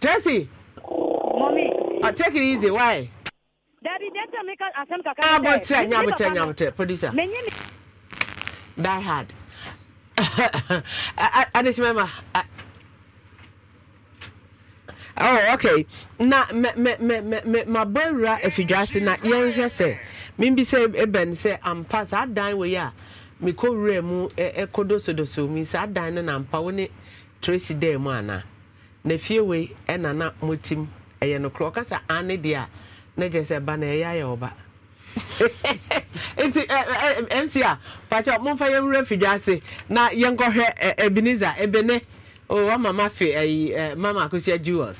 Tracy. Mommy. Uh, take it easy. Why? Daddy, that's a make us asem kaka. Ah, but che, nyam che, nyam che, producer. Menye ni. Die hard. Ah, Anish mama. Ah. Oh, okay. Na me me me me me my boy ra efidwase na yen hwese. Mimbi se eben e se ampa saa dan we ya. Mekɔ wura mu ɛkɔdosodoso e, e mi saa dan no na mpa wo ne Tracy dɛ mu ana na fie wei ɛna na motim ɛyɛ nokorɛ ɔkasa ane ah, deɛ a na sɛ ba na ɛyɛ ayɛ ɔba nti mc a pakyɛ momfa yɛmwerɛ fidwa ase na yɛnkɔhwɛ ebiniza ebene wama ma fe ayi mama akosia jewels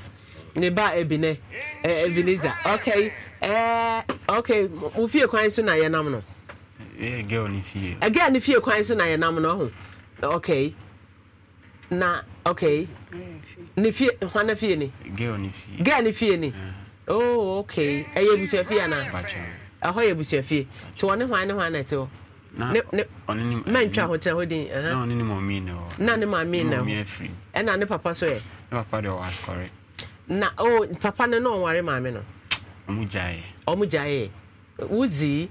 ne ba ebine ebiniza okay okay mo fie kwan so na yɛnam no ɛgɛl ne fie ɛgɛl ne fie kwan so na yɛnam no ɔho okay na okay mm. ne fie hwana fie ni girl ne fie ni mm. oh okay ɛyɛ abusua fie ana ɛhɔ yɛ abusua fie nti wɔne hwan ne hwan na ɛte hɔ mɛntwa ho tena hɔ din na ne maame na hɔ ɛna ne papa so yɛ na oh papa no na ɔware maame no ɔmo gyaeɛ ɔmo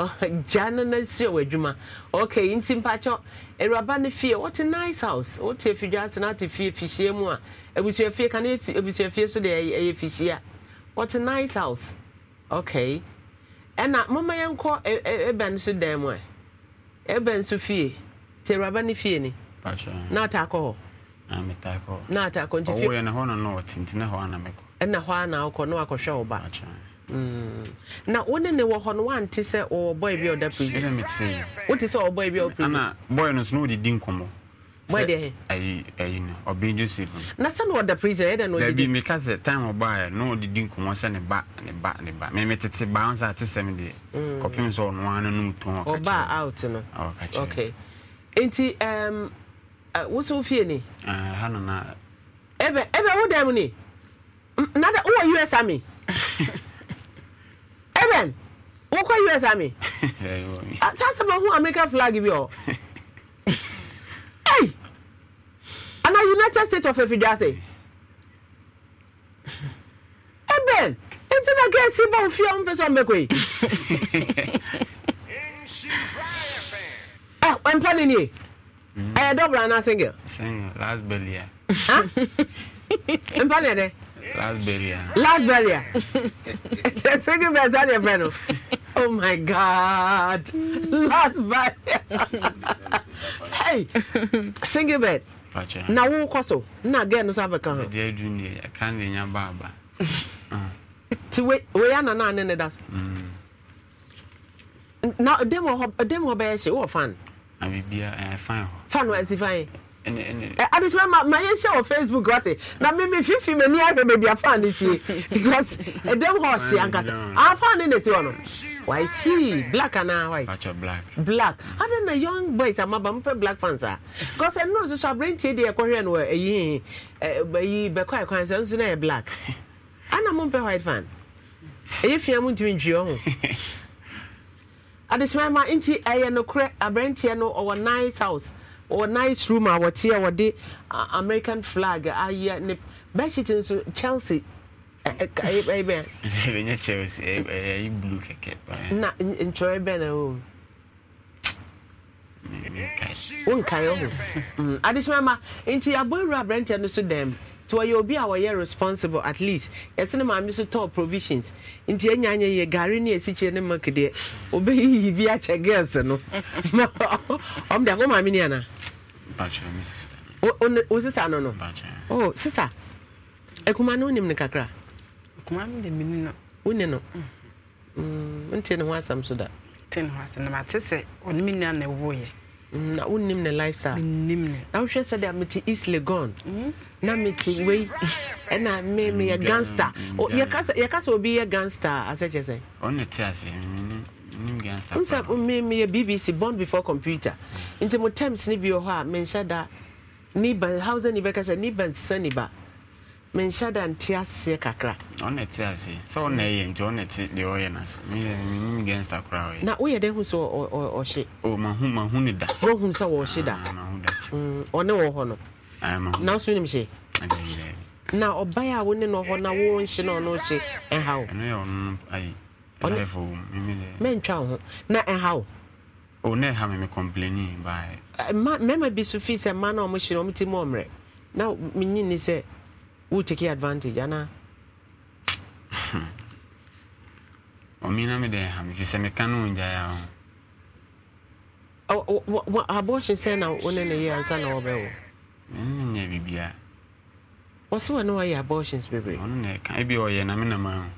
jana na nsi wɔ adwuma okay nti mpakyɛ awuraba ne fie wɔte nice house wɔte afidwa ase na ate fie fihyia mu a abusuafie ka ne abusuafie so deɛ ɛyɛ fihyia wɔte nice house okay ɛna mama yɛn kɔ ɛbɛn so dan mu a ɛbɛn so fie te awuraba ne fie ni na ata akɔ hɔ na ata akɔ nti fie ɛna hɔ ana na na wakɔhwɛ wo ba. na wo ne ne wɔ hɔ no woante sɛ ɔwɔ oh, bɔe bi a ɔda prison wote sɛ ɔwɔ oh, bɔe bi a ɔ prisona bɔe no so na wɔdedi nkɔmmɔ na sɛ na ɔda prison meka sɛ time ɔbaɛ na ɔdedi nkɔmmɔ sɛ ne ba ne ba ne ba memetete baa sɛ ate sɛm deɛ mm. kɔpem sɛ ɔnoa no nom tɔn out no okay nti um, uh, wo so wofie ni ah, na ɛbɛ ɛbɛ wo dɛm ni na wowɔ us army Eben, wokɔ US Army. Sasa bɛ hu American flag bi o. Hey! Ana United States of Efidiase. Eben, nti na kɛ si bɔn fia n pɛsɛ ɔmɛ koyi. Ɛ ɔmpa ni ni ye. Ɛyɛ dɔbɔra ana single. Single last belly ya. Mpa ni yɛ dɛ. Lasberia. The second best at your panel. Oh my God. Lasberia. hey, single bed. Na wo kɔ so na gɛɛ no so abɛka ho. Ɛdi adu ni ɛka ne nya baaba. Ti we we ya na na ne ne da so. Mm. Na dem wɔ hɔ dem wɔ bɛyɛ hye wɔ fan. Na bibia ɛɛ fan hɔ. Fan wɔ ɛsi fan yi. Eh, adesima ma my yɛn hyɛ wɔ facebook wate na mímí fífi mi ní ẹgbẹ bèbí afaan ni tie because ẹdẹm hɔ ɔhyɛ ankasa afaan ni neti wɔ no wàá si black ana uh, white black black adi na young boys are amaba mpɛ black fans a because ɛnu nso so abirantie deɛ ɛkɔhwɛ no ɛyi ɛyi bɛkɔ ɛkwan quite nso So yɛ black ana mo a white fan ɛyɛ fia mu ntumi ntwi ɔmo adesima ma nti ɛyɛ nokorɛ abirantie eh, no ɔwɔ eh, night house or nice room a wɔte a wɔde american flag ayɛ ne bedsheet nso chelsea ɛyɛ bɛn. ɛyɛ chelsea ɛyɛ blue kɛkɛ. na ntwerɛ bɛn na o. wonkae ho adesoma ma nti aboawura aberɛnteɛ no so dɛm nti wɔyɛ obi a wɔyɛ responsible at least yɛse ne maame so tɔɔ provisions nti ɛnya nyɛ yɛ gare ne asikyire ne mak deɛ wobɛyiyi bi akyɛ girls no ɔm de akɔ maame ne anaa wo sisa no no o sisa akuma no wonim no kakra wone no wontie mm. mm, ne ho asɛm so da mm, na wonnim ne lifestyle na wohwɛ sɛdeɛ mete east legon na mete wei ɛna meyɛ gangster yɛka sɛ obi yɛ gangster asɛkyɛ kyɛ sɛ msa meyɛ bbc born before computer nti mo times no bi wɔ hɔ ah, a menhyɛ da niba hausa ni bɛka sɛ niba nsesa niba menhyɛ da nte aseɛ ah, kakra ɔna sɛ ɔna ɛyɛ na woyɛ dɛ hu sɛ ɔhye mahu mahu sɛ da ɔne wɔ hɔ no na nim hye na ɔbae a wo ne no hɔ na wo na ɔno hye ɛha Oh, mentwa wo ho na ɛha e oh, eh, wo o na complaini baɛ mmarima bi so fii sɛ mma na ɔmohyere ɔmti mu ɔmmerɛ na menyini sɛ wotake advantage anaa ɔmena mede ɛha me firi sɛ meka ne ɔngyaeɛ ho abɔhye sɛ na wo ne no yɛ ansa na wɔbɛwo menyɛ biribiaa wɔse wɔ ne wayɛ abɔhyens bebree ɔno na ɛka ebi ɔyɛ na menama ho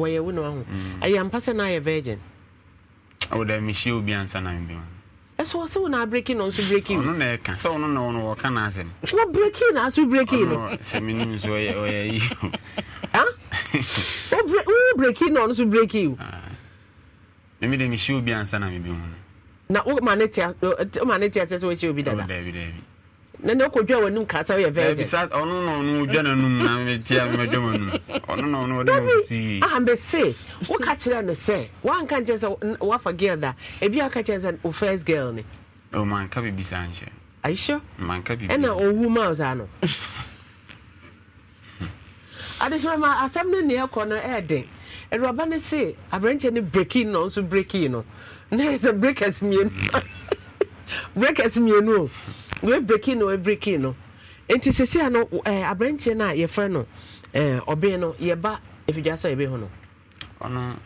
wɔyɛ mm. wo na wahu ɛyɛ sɛ na ayɛ virgin wodɛ mehyia obi ansa na mebima ɛsɛ wɔ sɛ wo na abreki no nso breki ɔno na ɛka sɛ ɔno na ɔno wɔka no asɛm wɔ breki na aso breki so ɔyɛ yi wo na ɔno so breki wo mimi de mehyia oh, obi ansa na mebima no na woma ne tia sɛ sɛ wɔhyia obi dada na na kɔdwa w'anum ka sɛ woyɛ virginbisa ɔno na ɔno ɔdwa n'anum na metia mɛdwa w'anum ɔno na ɔno ɔde mɔtui ambese woka kyerɛ no sɛ woanka nkyɛ sɛ woafa girl da ebi aka kyerɛ sɛ wo first girl ne ɔmanka biribi saa nhyɛ aisho manka biribi ɛna ɔwu ma saa no adehyerɛ eh, ma asɛm no neɛ kɔ no ɛɛden awuraba no se aberɛnkyɛ no breki no nso breki no na ɛsɛ breakers mmienu breakers mmienu o wee breki no wee breki no nti sisi ano ɛɛ eh, aberanteɛ no a yɛfrɛ no ɛɛ eh, ɔbɛn no yɛba efidie asɔ yɛbɛ ho no. ɔno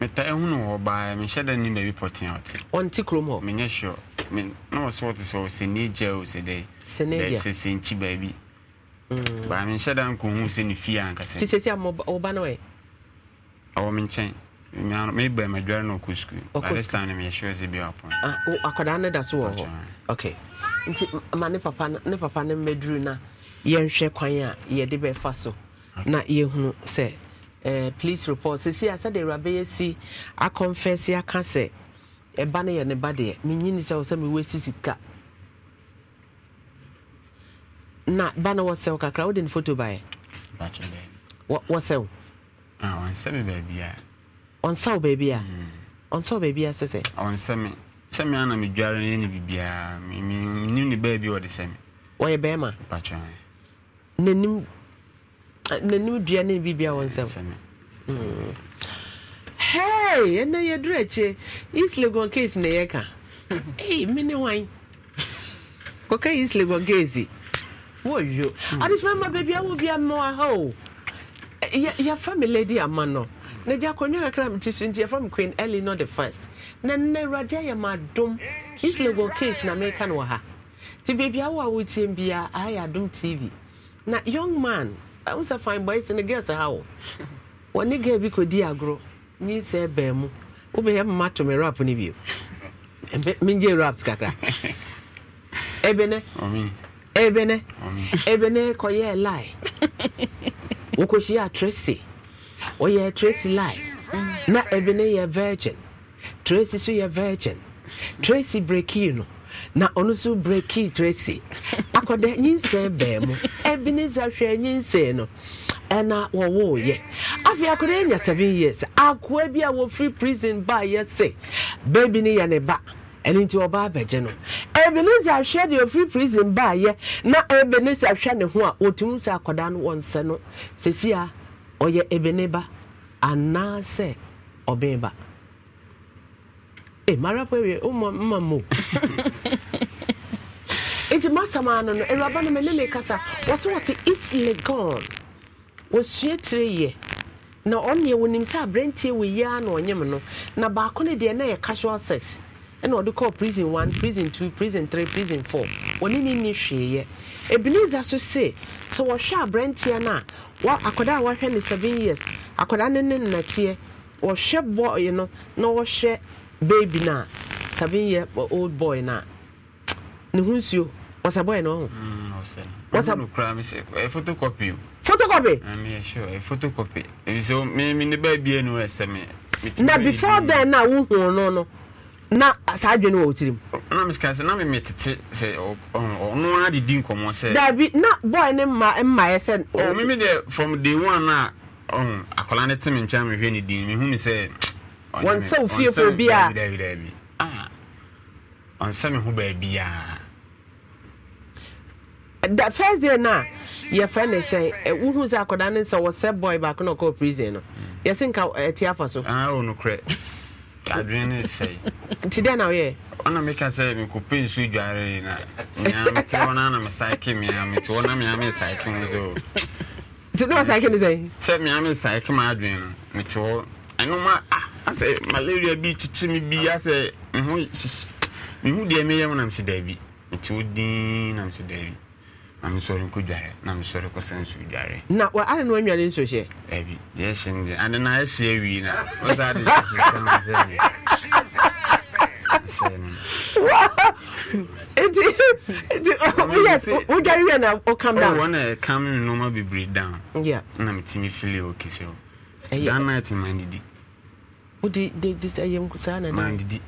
meta ehunu wɔ baa mehyɛ dɛ ne baabi pɔtena ɔte. ɔnte kurom hɔ. menyɛ sure me na wɔ so ɔte so ɔsɛ ne gya ɔsɛ dɛ. sɛ ne gya sɛ sɛ nkyi baabi. Mm. baa mehyɛ dɛ nkohu sɛ ne fie ankasa. ti sisi ama ɔba no yɛ. ɔwɔ me nkyɛn meba madware no ɔkɔ sukuu. ɔkɔ ah, okay nti ma ne papa ne papa ne mmɛduru na yɛnhwɛ kwan a yɛde bɛfa so na yɛhunu sɛ eh, police report sisi a awuraba yɛ si akɔnfɛsi aka sɛ ɛba no yɛ ne ba deɛ menyini sɛ ni sɛ mewɔ si sika na ba no wɔsɛw kakra wode ne photo baɛ wɔsɛw ah, ɔnsɛ wo baabia ɔnsɛ wo baabia hmm. sɛ sɛ ɔnsɛ me sɛme ana medware no ne biribiaa menim ne baa bi wɔde sɛme wɔyɛ bɛrima patwa nanim dua ne biribia wɔ nsɛm hei ɛnɛ yɛduru akyire east legon case na yɛka mene wan kɔka east legon case wɔyo hmm. adesoma ma baabia wɔ bia mmoa ha yɛfa me lady ama no na gya akɔnnwa kakra mete so nti yɛfa me queen early not the first na nnɛ awurade ayɛ ma adom islable case na mereka no wɔ ha nti baabi awo a wotie bia ayɛ adom tv na young man ɛwo sɛ fine boys no girls ha wo wɔne girl bi kɔdi agorɔ ne sɛ bɛn mu wobɛyɛ mma to me rap no bio mengye raps kakra ebene ebene ebene kɔyɛɛ lie wokɔhyia tracy ɔyɛ tracy lie na ebene yɛ virgin tracy nso yɛ virgin tracy breki no na ɔno nso breki tracy akɔda nyinsɛn bɛn mu ebenezer hwɛ nyinsɛn no ɛna wɔwɔɔyɛ afei akɔda anya seven years akoa bi a wɔfiri prison ba yɛ se baabi ne yɛ ne ba ɛno nti ɔba abɛgye no ebenezer ahwɛ deɛ ofiri prison baayɛ na ebenezer ahwɛ ne ho a wɔtumi sɛ akwadaa no wɔn nsɛ no sɛsi a ɔyɛ ebene ba anaasɛ ɔbɛn ba e mara pere ụmụ mma m nti masam ano no awuraba na mene me kasa wɔse wɔte east legon wɔsua tire yɛ na ɔneɛ wɔnim sɛ aberantie wɔ yi ara na ɔnyem no na baako no deɛ na yɛ casual sex ɛna ɔde kɔɔ prison one prison two prison three prison four wɔne ne nni hweeɛ ebenezer so se sɛ wɔhwɛ aberanteɛ no a wa akwadaa a wɔahwɛ ne seven years akwadaa ne ne nnateɛ wɔhwɛ bɔɔye no na wɔhwɛ baby na seven year old boy na ne ho nsuo wɔsɛ boy na ɔho mm, photocopy photocopy mm, photocopy so mene baabia no ɛsɛ me na before then na wohuu no no na saa adwene wɔ wotirim na mesika sɛ na memetete sɛ ɔno adedi nkɔmmɔ sɛ daabi na boy ne mma mmaeɛ sɛ meme deɛ from day one na, akɔla ne teme nkyɛn mehwɛ ne din mehu ne sɛ wɔn nsa wo fie fo bi a ɔnsa me ho baabi a da first day no a yɛfrɛ ne sɛ wohu sɛ akɔda ne sɛ wɔsɛ boy baako na ɔkɔɔ prison no hmm. yɛse nka ɛte afa so ah, nokorɛ adwene ne sɛe nti dɛn na woyɛ ɔna meka sɛ mekɔpɛ nsu dwaree na mea mete hɔ na na mesaeke mea mete hɔ na mea mesaeke ho sɛ nti ne wasaeke ne sɛ sɛ mea mesaeke ma adwene no mete hɔ ɛno ma a ah, asɛ malaria bi kyekye me bi asɛ ho mehu deɛ meyɛ mu nam sɛ daabi nti wodin nam sɛ daabi na mesɔre nkɔ dware na mesɔre kɔsɛ nso dware na ade no anware nso hyɛ daabi deɛ ɛhyɛ no deɛ ade no ɛhyɛ awie na ɔsɛ ade nti wodware wie na wokam down wɔna ɛkam me nnoɔma bebree down na metumi fili ɔkɛsɛ o that night mandidi wode ɛyɛ saa na mandidi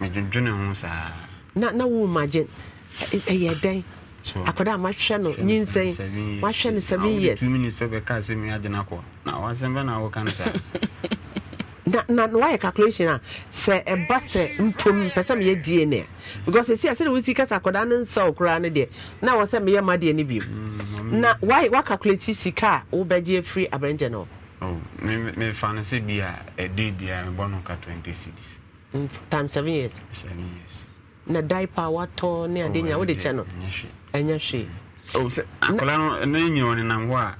medwedwene ho saa na na wo magye ɛyɛ dɛn akwadaa mahwɛ no nyinsɛn mahwɛ no seven years two minutes pɛ bɛka sɛ meagye no akɔ na wasɛm bɛ na woka no saa na na wayɛ calculation a sɛ ɛba sɛ mpom pɛ sɛ meyɛ dna a because ɛsi a sɛde wosi ka sɛ akwadaa no nsɛw koraa no deɛ na wɔ sɛ meyɛ madeɛ no bio mm, na w'a wacalculate sika a wobɛgye afiri aberɛnkyɛ no mefa no sɛ bi a ɛde biara eh, mebɔ no ka 20 cities mm, time seven years seven years na diaper watɔ ne ade oh, nyina wode oh, kyɛ no ɛnyɛ hwee akwadaa no ne nyina ɔnenam hɔ a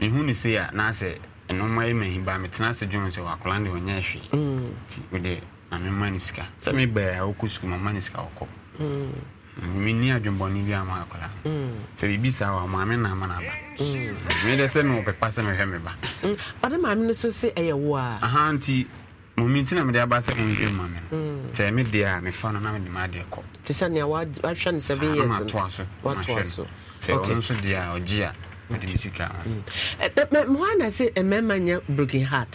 mehu ne sei a naasɛ ɛnoma yɛ mahi baa metena ase dwom sɛ wakwadaa no deɛ ɔnyɛ hwee nti wode na mema sika sɛ mebaa a wokɔ sukuu mama no sika wɔkɔ mm menni adwemmɔne bi ama akwadaa mm. sɛ biribi saa wɔ maame na ama no aba medɛ mm. sɛ mewɔpɛpa sɛ mehwɛ me ba ɔde mm. maame no so sɛ ɛyɛ wo a aha nti momenti na mede aba sɛ monhwɛ ma me no sɛ me deɛ a mefa no na eh, mede maadeɛ kɔ te sɛ nea wahwɛ no sɛbe yɛmatoa so mahwɛ no sɛ ɔno nso deɛ a ɔgye a mede sɛ mmarima nyɛ broken heart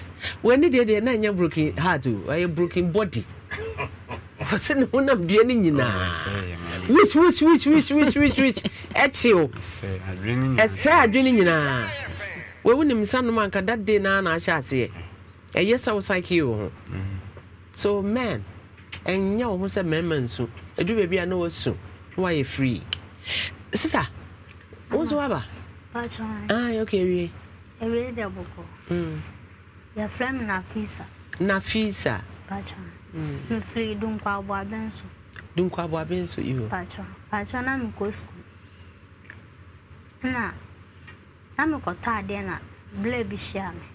w'ani deɛ deɛ na ɛnyɛ broken heart o eh, ɛyɛ broken body ɔwɔ sɛ ne honam dua no nyinaa wiswiswiswiswiswis ɛkyew ɛsɛ adwene nyinaa wawu nim nsa nom anka that day naa na ahyɛ aseɛ ɛyɛ sɛ wo sakee wo ho mm. so man ɛnyɛ wo ho sɛ mmarima nsu ɛduru baabi a na wasu na wayɛ free sisa wo nso waba ah, okay wie ɛwie dɛ bɔkɔ mm. yɛfrɛ me nafisa nafisa mfiri dunkwa abuabe nso dunkwa abuabe nso iho patro patro na mekɔ sukuu na na mekɔtɔ adeɛ na blɛ bi hyia me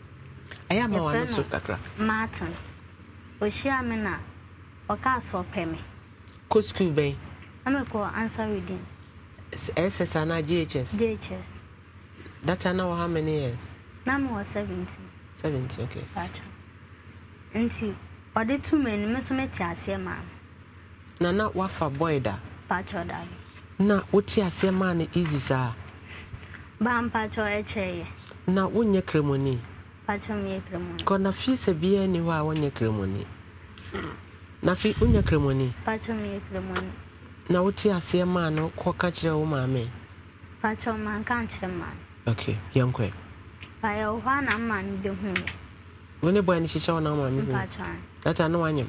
ɛyɛ ama wɔn so kakra martin ohyia me na ɔkaa so ɔpɛ me kɔ sukuu bɛn na mekɔ answer reading SS and GHS? GHS. That time now how many years? Now I was 17. 17, okay. Gotcha. nti ɔde tu mmienu mi nso te aseɛ maa na na wafa boy da da na wote aseɛ maa no easy saa baa mpatro ɛkyɛɛ yɛ na wonyɛ kremoni patro meyɛ kremoni kɔ na sɛ biara ni hɔ a wonyɛ kremoni na fii wonyɛ kremoni patro meyɛ kremoni na wote aseɛ maa no ka kyerɛ wo maame patro manka nkyerɛ maa no okay yɛnkɔɛ baayɛ wɔ hɔ a na mmaa no bɛhu yɛ wo ne boy no hyehyɛ wo na ma me data ne wanyam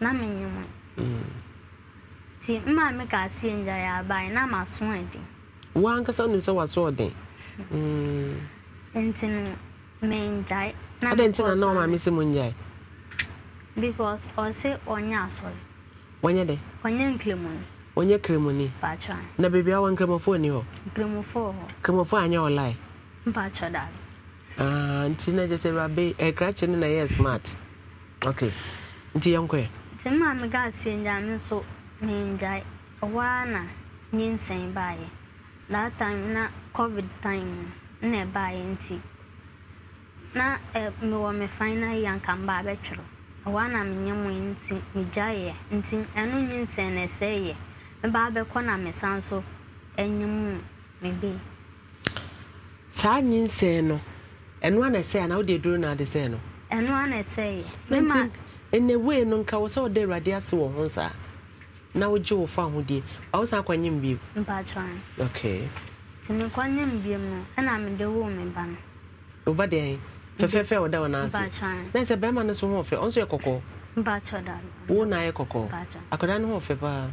na menyim mm. nti mma me ka aseɛ ngya yɛ aban na maso adi woankasa wonim sɛ waso mm. ɔden nti no mengyae adɛn nti na na ɔma me sɛ mu ngyae because ɔse ɔnyɛ asɔre wɔnyɛ dɛ ɔnyɛ nkremoni ɔnyɛ kremoni na baabi a wɔ nkremɔfoɔ ni hɔ nkremɔfoɔ hɔ nkremɔfoɔ anyɛ ɔlae mpatwɔ dare Ah, nti na gyesɛ awurade eh, ɛkrakye no na ɛyɛ smart ok nti yɛnkɔɛ nti maa me gaa sie ngyaa me nso mengyae ɛhɔ ara na nyinsɛn baeɛ that time na covid time no na ɛbaeɛ nti na eh, mewɔ me final year nka mbaa bɛtwerɛ ɛhɔ ara na menyɛ mu nti megyaeɛ nti ɛno nyinsɛn na ɛsɛeɛ mebaa bɛkɔ na mesan so anyɛ mu mebe saa nyinsɛn no ɛno ana ɛsɛe anaa wode aduro no ade sɛe no ɛno ana ɛsɛe nti ɛnɛ wei no nka wo sɛ wode awurade ase wɔ ho saa na wogye wo fa hodie ba wo san kɔnyem biom mpakyɛn okay nti mekɔnyem biom no ɛna mede woo me ba no wo ba deɛ fɛfɛɛfɛ wɔda wo naa na sɛ bɛrima no so ho ɔfɛ ɔnso yɛ kɔkɔɔ mpakyɛ da wo na ayɛ kɔkɔɔ akwadaa no ho ɔfɛ paa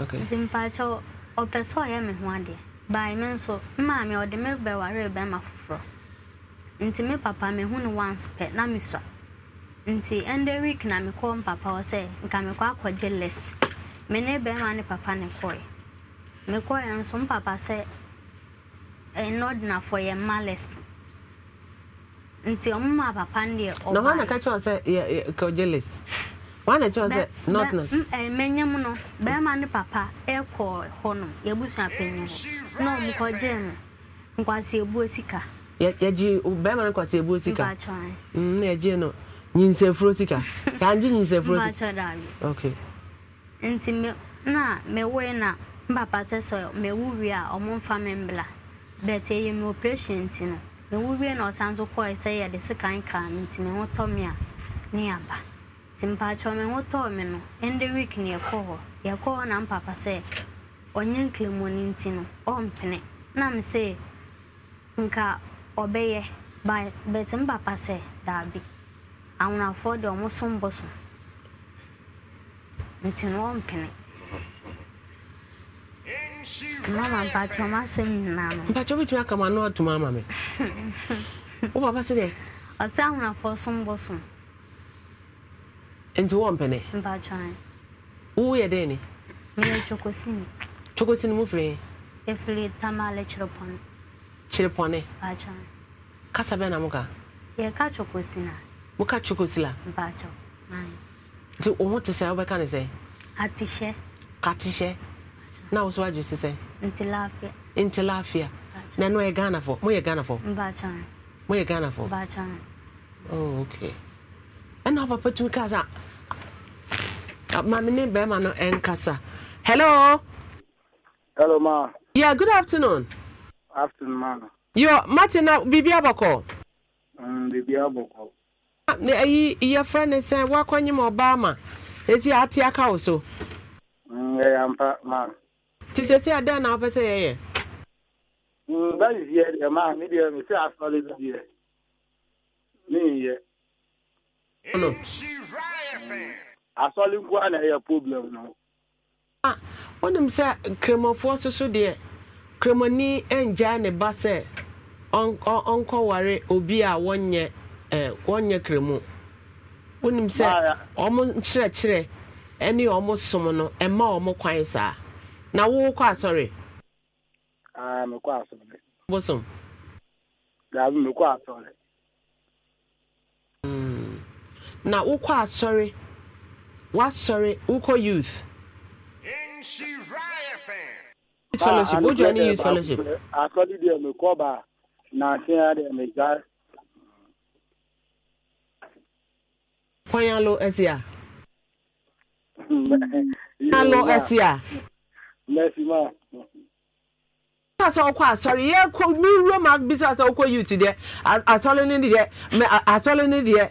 okay nti mpakyɛ ɔpɛ sɛ ɔyɛ me ho adeɛ bae me nso maame ɔde me bɛware bɛrima foforɔ nti me papa me hu no once pɛ na me sua nti ɛnde week na mekɔ mpapa hɔ sɛ nka mekɔ akɔgye list me ne bɛrima ne papa ne kɔe mekɔe nso mpapa sɛ ɛnɔdinafoɔ eh, yɛ mma list nti ɔmoma papa no deɛ ɔba na hɔ na ka kyerɛ sɛ kɔgye list wane kyerɛ sɛ north north. mmɛnyɛ mu no bɛrima ne papa ɛkɔ hɔnom yɛbusua panyin hɔ na ɔmo kɔgye no nkwasi ebuo mm, sika. bɛrima nkwasi ebuo sika na yɛgye no nyinsafuro sika yɛangye nyinsafuro sika. ok. nti me na mewoe na mpapa sɛ sɛ mewu wie a ɔmo nfa me mbla bɛt ɛyɛ me operation nti no wie na ɔsan so kɔɛ sɛ yɛde nti ho tɔ a ne yaba. nti mpakyɛ ho tɔɔ me no ɛnde week ne yɛkɔ hɔ yɛkɔ hɔ na mpapa sɛ ɔnyɛ nklemoni nti no ɔmpene na me sɛ nka ɔbɛyɛ but mpapa sɛ daabi awonafoɔ deɛ ɔmo so mbɔ so nti no ɔmpene mama ɔmo asɛm nyinaa no ama wo papa sɛ awonafoɔ so mbɔ nti wɔ mpɛnɛ. mpatsɔn. wo yɛ dɛ ni. ne yɛ chokosin. chokosin mu fili. efili tamale kyerepɔne. kyerepɔne. mpatsɔn. kasa bɛ na mu ka. yɛ ka chokosin na. mo ka chokosin la. mpatsɔn naayi. nti o ho ti sɛ aw bɛ ka ne sɛ. atihyɛ. katihyɛ. na wosow adu sisɛ. nti laafia. nti laafia. na no yɛ ghana fɔ mo yɛ ghana fɔ. mpatsɔn. mo yɛ ghana fɔ. mpatsɔn. oh okay ɛna papa tumi kaa maame ne bɛrima no ɛnkasa hello hello ma yeah good afternoon afternoon ma yo martin na biribi abɔkɔ mm, biribi abɔkɔ ah, na ayi yɛfrɛ ne sɛ woakɔnyem ɔbaa ma ɛsi ate aka wo so mm, ɛyɛ ampa ma nti sɛ sɛ adɛn na wopɛ sɛ yɛyɛ mm, bɛyɛ deɛ ma me deɛ mesɛ asɔre bi deɛ meyɛ asɔle nko a na ɛyɛ problem no ah, wonim sɛ kramanfoɔ so so deɛ kramani ngyaa ne ba sɛ ɔnkɔware obi a wɔnyɛ eh, wɔnyɛ kramu wonim sɛ ah, ɔmo nkyerɛkyerɛ ɛne ɔmo som no ɛma ɔmo kwan saa na wowokɔ asɔre ah, mekɔ asɔre bosom dabi mekɔ asɔre hmm. na wokɔ asɔre wasɔre wokɔ youth ah, youth fellowship wojoa ne hmm. youth fellowship asɔre deɛ mekɔ ba na asea deɛ megya kwan alo asi a alo asi a mɛsi ma sɛ wokɔ asɔre yɛkɔ mewuram abisa sɛ wokɔ youth deɛ asɔre no deɛ asɔre no deɛ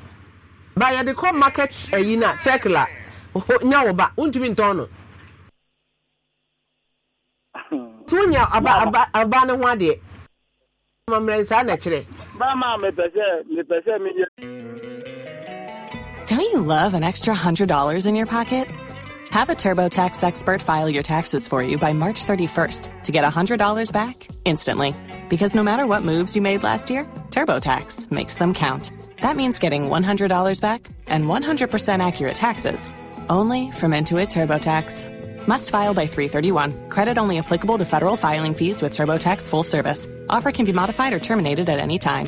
by the kɔ market ayi na circular now wo ba Don't you love an extra $100 in your pocket? Have a TurboTax expert file your taxes for you by March 31st to get $100 back instantly. Because no matter what moves you made last year, TurboTax makes them count. That means getting $100 back and 100% accurate taxes only from Intuit TurboTax. Must file by 331. Credit only applicable to federal filing fees with TurboTax full service. Offer can be modified or terminated at any time.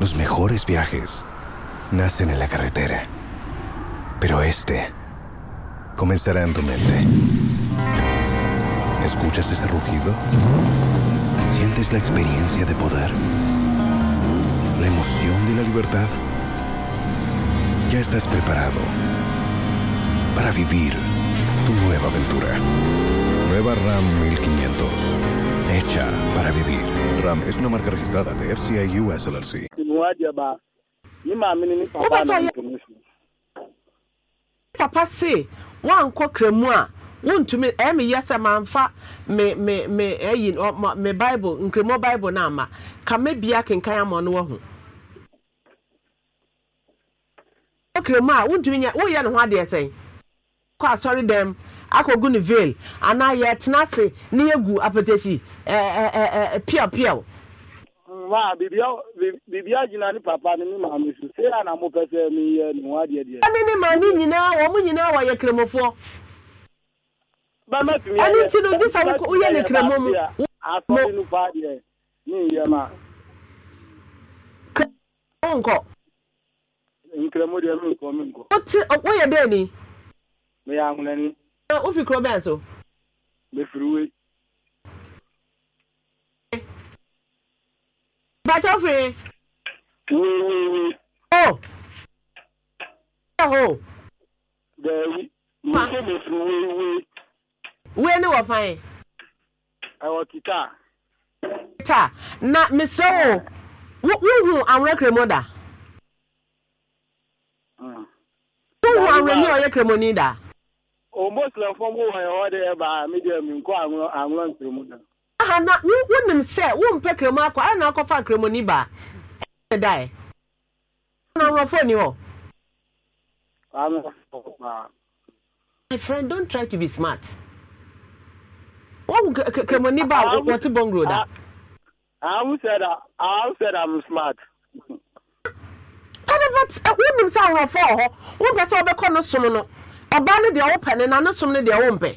Los mejores viajes nacen en la carretera, pero este comenzará en tu mente. ¿Escuchas ese rugido? ¿Sientes la experiencia de poder? ¿La emoción de la libertad? Ya estás preparado para vivir tu nueva aventura. Nueva RAM 1500. Hecha para vivir. RAM es una marca registrada de FCI US LLC. wadeɛ ba ne maame ne ne papa na information papa se wankɔ kramu a wontumi ɛyɛ eh, me yɛ sɛ eh, mamfa me me me ɛyi eh, ɔ me bible nkremɔ bible na ama kame bia kenkan ama no wɔ kramu a wontumi nyɛ woyɛ ne ho adeɛ sɛn kɔ asɔre dɛm akɔgu ne veil anaa yɛtena ase ne yɛgu apɛtɛhyi ɛɛ ɛɛ ɛɛ piaw ma bibia bibia gyina ne papa ne ne maame so sei a na mopɛ sɛ meyɛ ne ho adeɛ deɛ ɛne ne maame nyinaa wɔ mo nyinaa wɔyɛ kremofoɔ ɛne nti no gye sɛ woyɛ ne kremo mu asɔre no paa deɛ ne nyɛ ma nkɔ nkremo deɛ menkɔ menkɔ woyɛ dɛ ni meyɛ ahonani wofi kuro bɛn so mefiri wei bàtọ́fì. wíwíwí. ó. ó. bẹẹni mo ṣe lè fi wíwí. wíwí ni wọ́n fan yẹn. ẹ̀wọ̀n títà. títà na mr o wúhùn àwọn ẹ̀kẹ́rẹ́ mọ́ dà. wúhùn àwọn ẹ̀kẹ́rẹ́ kẹ́rẹ́ mọ́ ní dà. òun bó tilẹ̀ fọ́n bó wọ̀nyẹn wọ́n dẹ̀ ẹ̀ bá mídíà mi nkọ́ àwọn àwọn ẹ̀kẹ́rẹ́ mọ́ dà. aha na wonim sɛ wompɛ kremo akɔ ara na akɔfa kremo ni ba ɛnɛ dae na nkurɔfoɔ ni my friend don try to be smart wɔn kremo ni ba wɔte bɔngro da. ahu sɛ da ahu sɛ da i'm smart. ɛnɛ but wonim sɛ ahorɔfoɔ wɔ hɔ wompɛ sɛ wɔbɛkɔ no som no ɔbaa no deɛ wopɛ na ne som no deɛ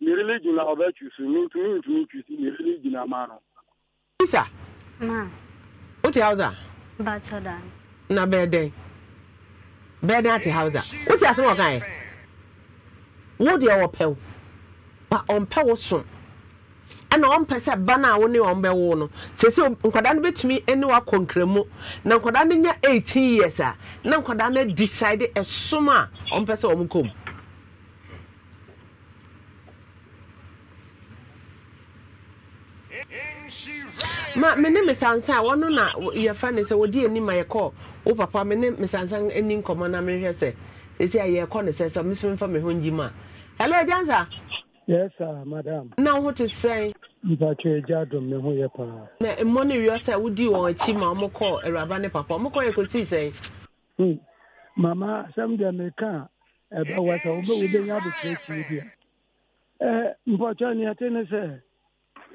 merili gyina ɔbɛtwi so mentumi ntumi twi si merili gyina ma no isa wote hausa na bɛɛdɛn bɛɛdɛn ati hausa wote asɛm ɔkaɛ wo deɛ wɔpɛ wo ba ɔmpɛ wo so ɛna ɔmpɛ sɛ ba no a wo ne ɔn bɛwo no sɛsɛ nkwadaa no bɛtumi ne wakɔ na nkwadaa no nya 18 years a na nkwadaa no decide ɛsom a ɔmpɛ sɛ ɔm kɔ mu ma me ne mesansa a wɔno na yɛfa ne sɛ wɔde anim a yɛkɔ wo papa me ne mesansa ani nkɔmmɔ na mehwɛ sɛ ɛsi a yɛkɔ ne sɛ sɛ mesom mfa me ho ngyi ma hello agyansa yes sir madam na wo ho te sɛn mpatwe agya dom me ho yɛ paa na mmɔ no wiɔ sɛ wodii wɔn akyi ma ɔmokɔ awuraba ne papa ɔmokɔ yɛ kɔsii sɛn hmm. mama asɛm deɛ meka a ɛbɛwɔ sɛ wobɛnya abokyerɛ kyiri bi a mpɔtwɛ neɛte ne sɛ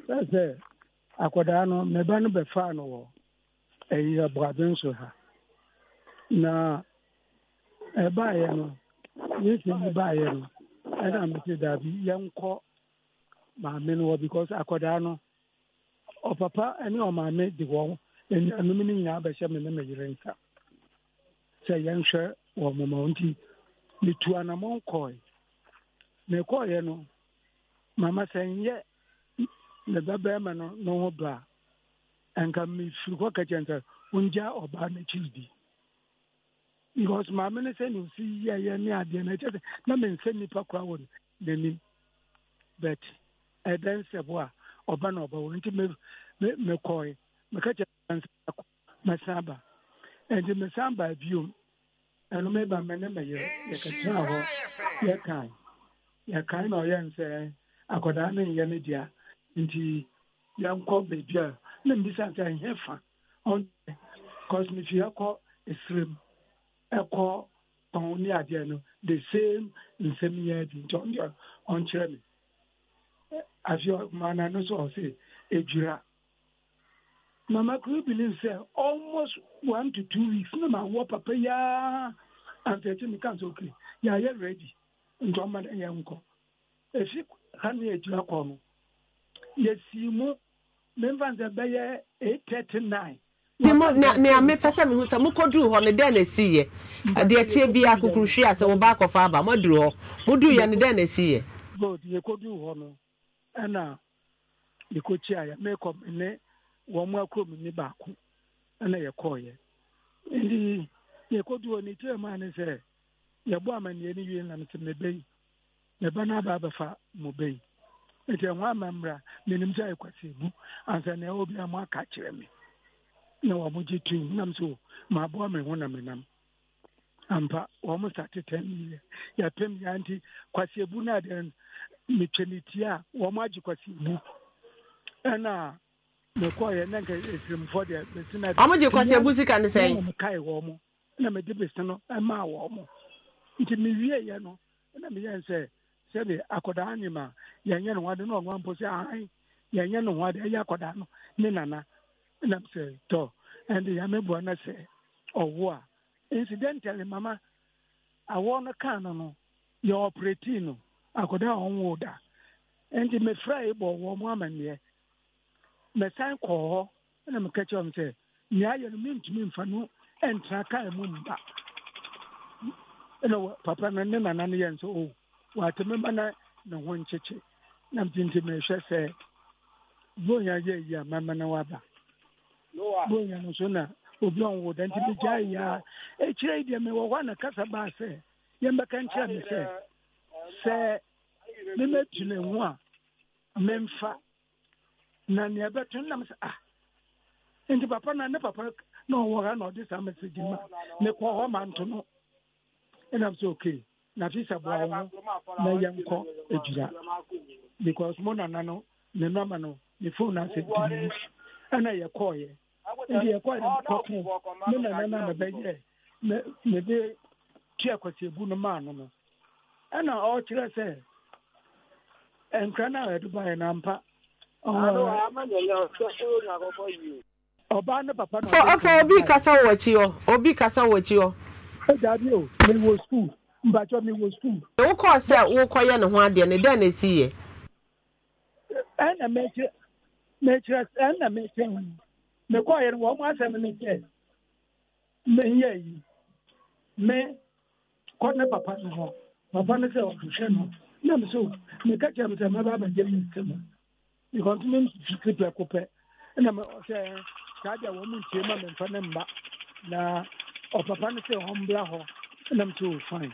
sɛ sɛ akwadaa no ne ba no bɛfaa no wɔ ɛyi aboaden so ha na ɛbaeɛ no yesu yi baeɛ no ɛna mete daabi yɛnkɔ maame no wɔ because akwadaa no ɔpapa ne ɔmaame de wɔn anuanom no nyinaa bɛhyɛ me ne me yere nsa sɛ yɛnhwɛ wɔ moma nti metu anammɔn kɔe na ɛkɔɔeɛ no mama sɛ nyɛ ne babarima no ne ho bra ɛnka mefiri hɔ ka kyɛn sɛ wongya ɔbaa no akyiri di because maame no sɛ ne osi yɛyɛ ne adeɛ no ɛkyɛ sɛ na mensa nnipa koraa wɔ n'anim but ɛdɛ nsɛbo a ɔba na ɔbɛwo nti mekɔe meka kyɛ mɛsan ba ɛnti mesan baa biom ɛno meba me ne mɛyɛ yɛkɛtena hɔ yɛkae yɛkae na ɔyɛ nsɛ akɔdaa ne nyɛ ne dea nti yɛnkɔ baabi a na mbisa sɛ ɛnyɛ fa cause mefi ɛkɔ ɛsrem ɛkɔ pɔn ne adeɛ no the same nsɛm yɛ di nti ɔndeɛ ɔnkyerɛ me afei maana no so ɔse edwira mama kuro believe sɛ almost one to two weeks na ma wɔ papa yaa antɛti mi kan so kiri yɛayɛ ready nti ɔma yɛn nkɔ efi ha ne edwira kɔ no yɛsii mu memfa bɛyɛ eight thirty nine nea mepɛ sɛ mehu sɛ mokɔduru hɔ no dɛn na ɛsiiɛ deɛ e tie bia kokuruhwie a sɛ woba akɔfa aba moaduru hɔ moduruiɛ no dɛn na ɛsiiɛ good yɛkɔduru hɔ no ɛna yɛkɔkyiaeɛ mekɔ ne wɔn mu akuromni baako ɛna yɛkɔɔyɛ nti yɛkɔduru hɔ no kyerɛ maa ne sɛ yɛbɔ amanneɛ no wie nam sɛ mebɛyi meba no aba abɛfa mo bɛyi nti ɛho ama mmra menim sɛ ɛkwasi mu ansa na ɛwɔ mo aka kyerɛ me na wɔ mo nam so maaboa me ho na menam ampa wɔ sa sate yɛpem ya nti kwasi e e no adeɛ metwa ne ti a wɔ agye kwasi ɛna e na nka deɛ na sika ne na mede bɛsi no ɛmaa wɔ mo nti mewieɛ no na sɛde akwadaa nyima yɛnyɛ no wade na ɔnoa mpo sɛ ahan yɛnyɛ no wade ɛyɛ akwadaa no ne nana nam sɛ tɔ ɛnde yameboa no sɛ ɔwo a incidentally mama awɔ no kaa no no yɛ ɔpreti no akwadaa a ɔnwo da ɛnti mefrɛ bɔ wɔ mo amanneɛ mesan kɔɔ hɔ ɛna meka kyerɛ m sɛ nea ayɛ no mentumi mfa no ɛntena kaa mu mba ɛna papa no ne nana no yɛ nso o oh, wɔatɛmɛma na ne ho nkyekye na mtinti mehwɛ sɛ bonya yɛ yi a mama na waba bonya no so na obi ɔnwo da nti megyaa yi a ɛkyirɛ yi deɛ mewɔ hɔ a na kasa baa sɛ yɛmbɛka nkyerɛ me sɛ sɛ memɛtu ne ho a memfa na nea ɛbɛto nam sɛ ah nti papa na ne papa na ɔwɔ ha na ɔde saa mɛsɛgye ma mekɔ hɔ ma nto ɛnam sɛ okay na sisa bua ho e e. na yɛnkɔ agyira because mo nana no ne nɔma no ne fon e no asɛ dii ɛna yɛkɔɔyɛ nti yɛkɔɔyɛ no kɔto me nana no a mɛbɛyɛ mede tua kwasiabu no maa no no ɛna ɔkyerɛ sɛ nkra na a yɛde baeɛ no ampa ɔbaa ne papa no ɔfa obi kasa wɔ akyi hɔ obi kasa wɔ akyi hɔ ɛdaabi o mewɔ skuul mbatwa mi wɔ sukuu. wokɔɔ sɛ wokɔyɛ ne ho adeɛ no dɛn na ɛsi yɛ. ɛna mɛkyerɛ mɛkyerɛ ɛna mɛkyerɛ ho mekɔɔyɛ no wɔn mo asɛm ne kyɛ menyɛ yi me kɔ ne papa no hɔ papa no sɛ ɔhwehwɛ no na me so meka kyerɛ me sɛ mɛba abɛgye me nsɛm because me mfifiri pɛ ko pɛ ɛna me sɛ saa deɛ wɔn mo ntie ma memfa ne mma na ɔpapa no sɛ ɔmbra hɔ ɛna me so fine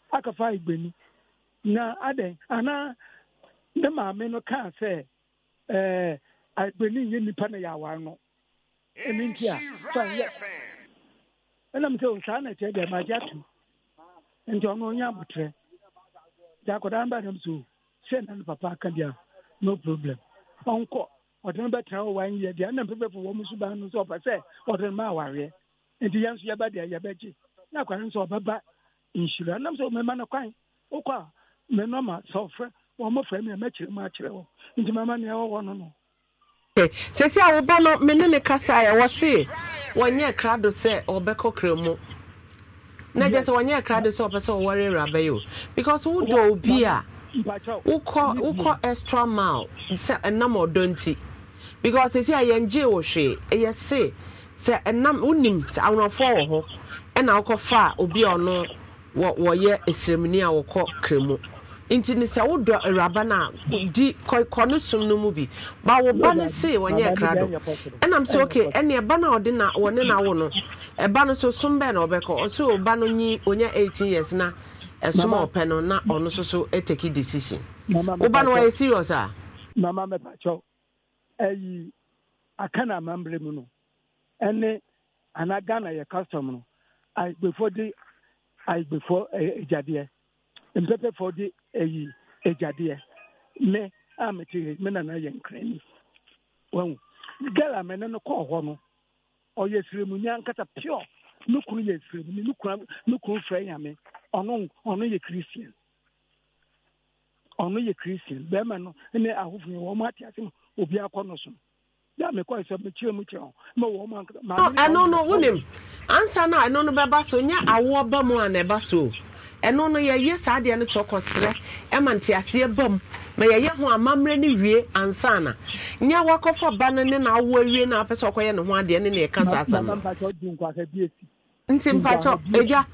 aka fa igbeni na adɛn ana ne maame no kaa sɛ ɛɛ agbeni nye nipa na yɛ awar no ɛni nti a fa yɛ ɛnam sɛ osaa na kyerɛ deɛ adi atu tu nti ɔno onye abotire gya akwadaa mba nam so sɛ na ne papa aka bia no problem ɔnkɔ ɔde no bɛtena hɔ wan yɛ deɛ ɛnam pɛpɛfo wɔn nso ban no sɛ ɔpɛ sɛ ɔde no ma awareɛ nti yɛn nso yɛba deɛ gye na akwara nso ɔbɛba nhyira nam sɛ mɛma no kwan wokɔ a menɔma sɛ ɔfrɛ wɔmmɔfrɛ me a mɛkyerɛ mu akyerɛ wɔ nti mɛma nea ɛwɔwɔ no no eh, sɛsi a woba no me ne ne se wɔnyɛ sɛ ɔbɛkɔ kra mu na gye sɛ wɔnyɛ kra sɛ ɔpɛ sɛ ɔwɔre awuraba yi o because wodɔ obi a wokɔ wokɔ extra wɔyɛ ɛsrɛmni a wɔkɔ Kremu nti ne sɛ wodɔ awuraba no a di kɔ ne som no mu bi ba wo ba no se wɔnyɛ kra do ɛnam sɛ oke ɛne ɛba no a ɔde na wɔne na wo no ɛba no so som bɛɛ na ɔbɛkɔ ɔsɛ ɔba no nyi ɔnya 18 years na ɛsom a ɔpɛ no na ɔno so so ɛtaki decision woba no wɔyɛ serious a mama mɛpakyɛw ayi aka na amammerɛ mu no ɛne anaa ghana yɛ custom no before de agbefoɔ agyadeɛ mpɛpɛfoɔ de ayi agyadeɛ mɛ a mete he me nana yɛ nkrani wahu gal a mɛne no kɔɔ hɔ no ɔyɛ siremuni ankasa pure ne kunu yɛ siremuni ne kunu ne kunu fira nyame ɔno ɔno yɛ christian ɔno yɛ christian bɛrima no ne ahofo yɛ wɔn ate ase no obi akɔ no so no. ya mekwa sɛ mekyerɛ mu kyerɛ ho ma wɔ ɛno no wonim ansa no a ɛno no bɛba so nyɛ awoɔ ba mu a na ɛba so ɛno no yɛyɛ saa deɛ no kyɔkɔ serɛ ɛma nteaseɛ ba mu ma yɛyɛ ho amammerɛ no wie ansa na nyɛ wakɔfa ba no ne na awoɔ na apɛ sɛ ɔkɔyɛ ne ho adeɛ ne na ɛka saa asɛm nti mpakyɛ agya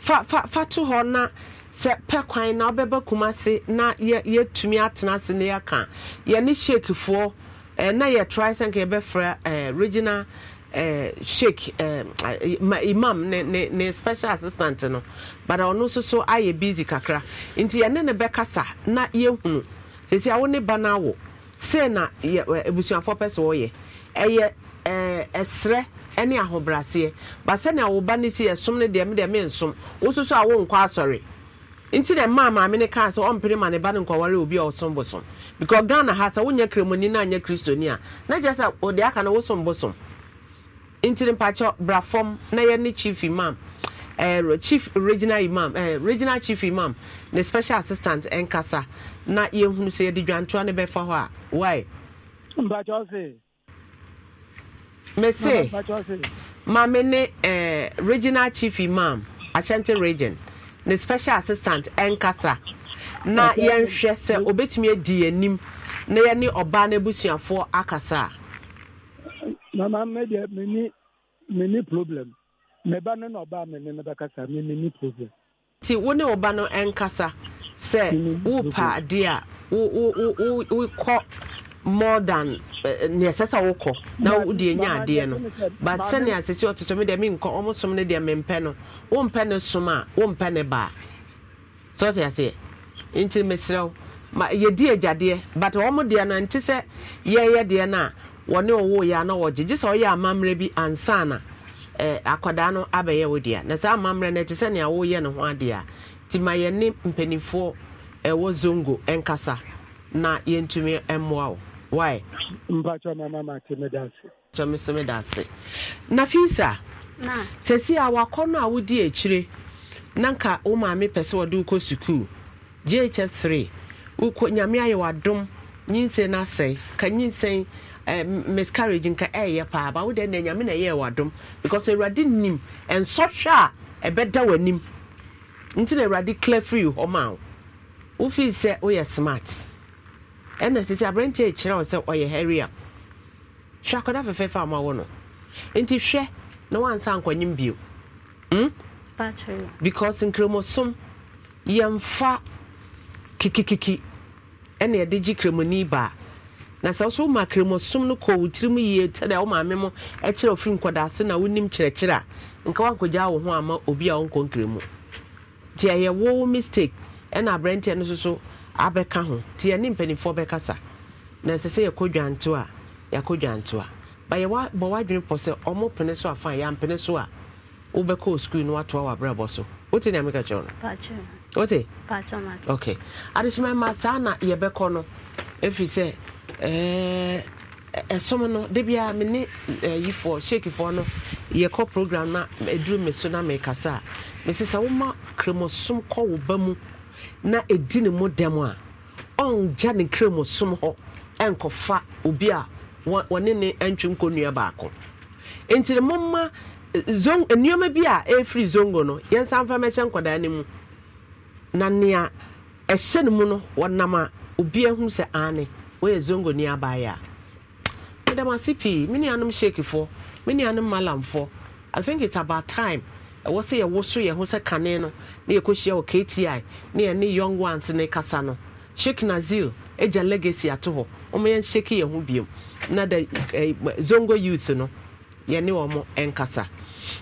fa fa to hɔ na sɛ pɛ kwan na wobɛba kuma na yɛtumi atena ase ne yɛka yɛne hyekifoɔ Eh, na yɛ try sɛ nka yɛbɛfrɛ eh, regional eh, sheik imam ne ne ne special assistant no but ɔno nso so ayɛ busy kakra nti yɛne ne bɛkasa na yɛhunu sisi a ne ba no awo sei na abusuafoɔ pɛ sɛ wɔyɛ ɛyɛ ɛsrɛ ɛne ahobraseɛ ba sɛ na awo ba no si ɛsom no deɛ medeɛ mensom wo so so a wonkɔ asɔre nti na mmaa maame ne kaa sɛ ɔmpere ma ne ba ne nkɔware obi a ɔsom bosom because ghana ha sɛ wonyɛ kremoni na anyɛ kristoni a na kyerɛ sɛ ɔde aka na wosom bosom nti ne mpakyɛ bra fam na yɛ ne chief imam eh, chief regional imam eh, regional chief imam ne special assistant nkasa na yɛhunu sɛ yɛde dwantoa no bɛfa hɔ a why mpakyɛ ɔse mese maame ne eh, regional chief imam akyɛnte region ne special assistant ɛnkasa na yɛnhwɛ sɛ obetumi adi yɛnim na yɛne ɔbaa n'abusuafoɔ akasa. mama mmedi mini mini problem mmeba no na ɔbaa mi ne ne bɛkasa mi mini problem. ti wo ne ɔba no ɛnkasa sɛ wopa adeɛ a wo wo wo wo kɔ. more than eh, nea ɛsɛ sɛ wokɔ na wode nya adeɛ no but sɛnea asɛsi ɔte so medeɛ menkɔ ɔmosom no deɛ mpe no wompɛ mpe som a mpe ne baa sɛ wote aseɛ nti meserɛ wo ma yɛdi agyadeɛ but ɔmo deɛ no nte sɛ yɛyɛ deɛ no a wɔne ɔwo yɛ a na wɔgye gye sɛ ɔyɛ amammerɛ bi ansa na eh, akwadaa no abɛyɛ wo deɛ na saa amammerɛ no ɛte sɛ nea woyɛ ne ho adeɛ a nti ma yɛne mpanimfoɔ ɛwɔ zongo ɛnkasa na yɛntumi mmoa why mpatsɔ mama ma ti mi da se. Na. mi si mi da se nafisa a wakɔ no a wodi akyire na nka wo maame pɛ sɛ wɔde wokɔ sukuu ghs 3 wokɔ nyame ayɛ wadom nyinsɛn no asɛe ka nyinsɛn eh, nka ɛyɛ paa ba wode nɛ nyame na ɛyɛ wadom because awurade nim ɛnsɔhwɛ a ɛbɛda w'anim nti na awurade clear free hɔ ma wo wofii sɛ woyɛ smart ɛna sisi aberanteɛ ekyirɛ wɔn sɛ ɔyɛ hɛria hwɛ akɔda fɛfɛɛfɛ a ɔmo no nti hwɛ na wansa nkɔnyim bio mm? because nkremosom yɛmfa kikikiki ɛna yɛde gye kremoni baa na sɛ wosɛ woma kremosom no kɔ wo tirim yie sɛdeɛ wo maame mo ɛkyerɛ ɔfiri nkɔdaase na wonim kyerɛkyerɛ a nka woankɔgyaa wo ho ama obi a wonkɔ nkremu nti ɛyɛ mistake ɛna aberɛnteɛ no soso abɛka ho nti yɛne mpanimfoɔ bɛkasa na ɛsɛ sɛ yɛkɔ dwanto a yɛakɔ dwanto a bayɛwa bɔ w'adwene pɔ sɛ ɔmo pene so afa yɛampene so a wobɛkɔɔ sukuu no watoa w'abrɛbɔ so wote nea meka kyerɛ no wote ok adesoma ma saa na yɛbɛkɔ no ɛfiri sɛ ɛɛ ɛsom no de bia me ne yifoɔ shekifoɔ no yɛkɔ program na ɛduru me so na mekasa a mese woma kremosom kɔ wo ba mu na ɛdi ne mu dɛm a ɔngya ne kram som hɔ ɛnkɔfa obi a wɔne ne ntwe nkɔnnua baako nti ne momma eh, eh, eh, nneɛma bi a efiri zongo no yɛnsa mfa mɛkyɛ nkwadaa no mu na nea ɛhyɛ no mu no wɔnam a obiara hu sɛ aane wɔyɛ zongo ni abaayɛ a medam ase pii me nuanom shekifoɔ me nuanom malamfoɔ i think it's about time ɛwɔ sɛ yɛwo so yɛn ho sɛ kane no na yɛkɔhyia wɔ kti na yɛne young ones ne kasa no sheki nazil agya legacy ato hɔ ɔma yɛnhyɛke yɛn ho biom na da eh, zongo youth no yɛne wɔ mo ɛnkasa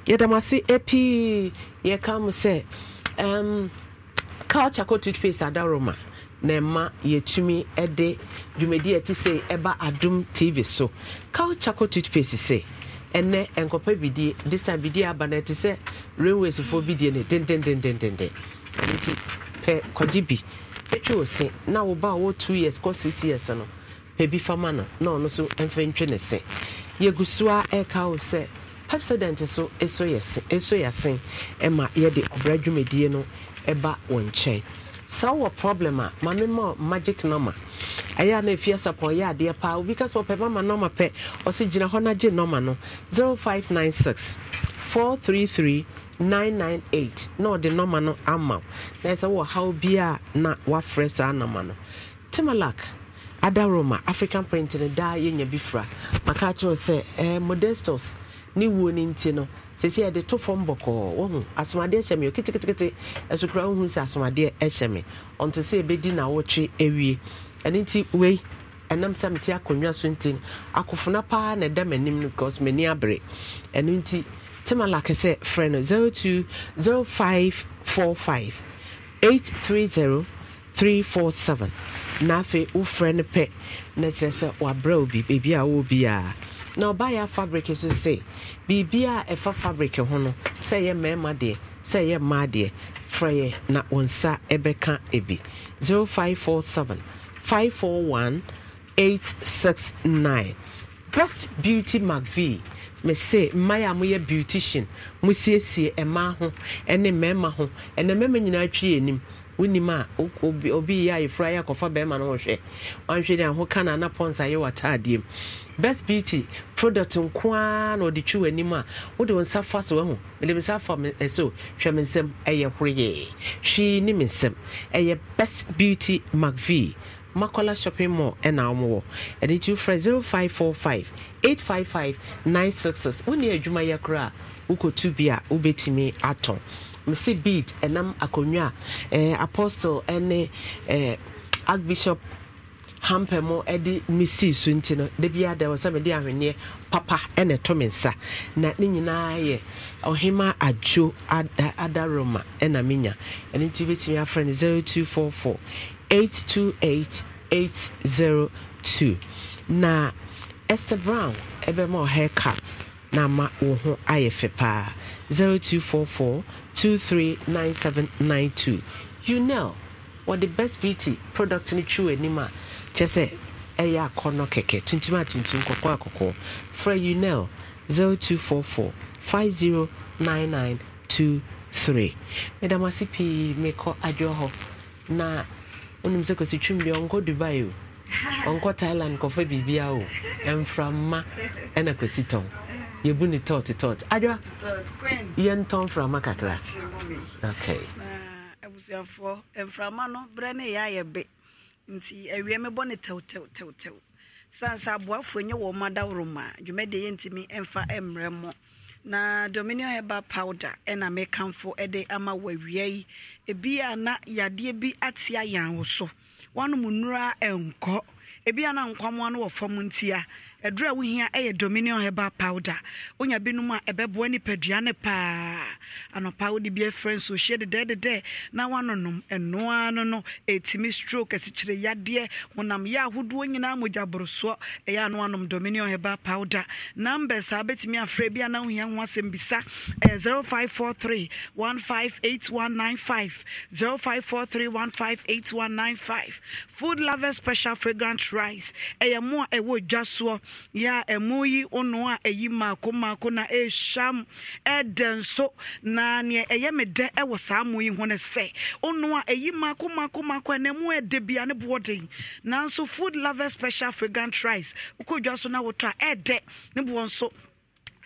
yɛdam ase ɛpii eh, yɛka mo sɛ um, culture kɔ toothpaste adaroma na ɛma yɛtumi de dwumadi ɛte sɛ ɛba adom tv so culture kɔ toothpaste sɛ ɛnɛ nkɔpɛ bidie disa bidie aba na ɛte sɛ railways fo bidie ne dendendendendende nti pɛ kɔgye bi ɛtwe o na wo ba a two years kɔ six years no pɛ bi fama no na ɔno nso mfa ntwe ne se yɛgu e so e e a ɛka wo sɛ pepsodent so ɛso yɛ se ɛso yɛ se ɛma yɛde ɔbra dwumadie no ɛba wɔn nkyɛn saa wɔ problem a ma magic nɔma ɛyɛ a na ɛfie sapɔ ɔyɛ adeɛ paa obi ka sɛ ɔpɛ mama nɔma pɛ ɔse gyina hɔ na gye nɔma no 0596 433 998 na ɔde nɔma no ama na ɛsɛ wɔ haw bia na wafrɛ saa nɔma no timalak Roma, african print no daa yɛnya bi fra maka kyerɛw sɛ eh, modestos ne wuo no nti no sɛsi yɛde to fam bɔkɔɔ wohu asomadeɛ hyɛ me o ketekete ɛso kora wohu asomadeɛ hyɛ me ɔnto sɛ ɛbɛdi na wotwe awie ɛno nti wei ɛnam sɛ mete akonnwa so nti akofona paa na ɛda m'anim no because m'ani abere ɛno nti timalake sɛ frɛ no 020545 three 347 na afei wofrɛ no pɛ na kyerɛ sɛ wabrɛ wo baabi a wɔ bi a na ɔbaayɛ fabric nso se biribi a ɛfa fabric ho no sɛ ɛyɛ mmarima deɛ sɛ ɛyɛ mmaa deɛ frɛ yɛ na wɔn nsa ɛbɛka ebi 0547 541 869 best beauty mcvie mese mmaayi a moyɛ beautician mosiesie mmaa ho ne mmarima ho ɛnna mmarima nyinaa twi anim wonim a obi yɛ ayefra yɛ akɔfa bɛrima no wɔhwɛ ɔnhwɛ ne aho ka nana pɔnsa yɛ w'ataadeɛ mu best beauty product nko ara na ɔde twi w'anim a wode wo nsa fa so ahu mede me nsa fa ɛso eh, hwɛ me nsɛm ɛyɛ horoyɛɛ hwee ne me nsɛm ɛyɛ best beauty macv makola shopping mall ɛna wɔn wɔ ɛde nti wofrɛ zero five four five eight five five nine six six wɔn ni adwuma yɛ koraa wokɔtu bi a wobɛtumi atɔn. mese beat ɛnam akonnwa eh, eh, a apostle ne archbishop hampe mu de mesi so nti no da biara da wɔ sɛ mede ahwenneɛ papa ɛna ɛto me nsa na ne nyinaa yɛ ɔhema adwo adaroma ɛna menya ɛno nti wobɛtumi afrɛ no 0244 828 802 na esther brown ɛbɛma ɔ haircut na ama wo ho ayɛ fɛ paa 0244 239792 what the best beauty product no twiw anim a kyɛ sɛ ɛyɛ akɔnnɔ kɛkɛ tuntum a tuntum kɔkɔɔ a kɔkɔɔ frɛ unel 0244 509923 medam ase pii mekɔ adwɔ hɔ na wonim sɛ kɔsi twum deɛ ɔnkɔ dubai o ɔnkɔ thailand kɔfa biribia o ɛmframma ɛna kɔsi tɔn yɛbu ne tot tot adwa yɛntɔn mframa kakra okay abusuafoɔ mframa no berɛ ne yɛ ayɛ be nti awie mebɔ ne tɛwtɛwtɛwtɛw sane sɛ aboafoɔ nyɛ wɔ ma daworoma a dwumadeɛ yɛntimi ɛmfa mmerɛ mmɔ na dominion herbal powder ɛna mekamfo de ama wawia yi ebi a na yadeɛ bi ate ayɛn wo so wanom nnura ɛnkɔ ebi a na nkwamoa no wɔ fam ntia ɛduru a wohia ɛyɛ dominion herbal powder wonya binom a ɛbɛboa nipadua ne paa anɔpa wode bi afrɛ nso hyie dedɛdedɛ na woanonom ɛnoa no no ɛtumi stroke asikyire yadeɛ honam yɛ ahodoɔ nyinaa mogya ɛyɛ ano anom dominion herbal powder number saa bɛtumi afrɛ bi ana wohia ho asɛm bisa ɛyɛ 0543 158195 0543 158195 food lover special fragrant rice ɛyɛ mo a ɛwɔ dwa soɔ ya ɛmo yi ono a ɛyi maako maako na ɛhyam ɛdɛ nso na neɛ ɛyɛ me dɛ ɛwɔ saa mo yi ho no sɛ ono a ɛyi maako maako maako ɛna mu ɛdɛ bia ne boɔ den nanso food lover special fragrant rice wokɔ dwa so na wotɔ a ɛdɛ ne boɔ nso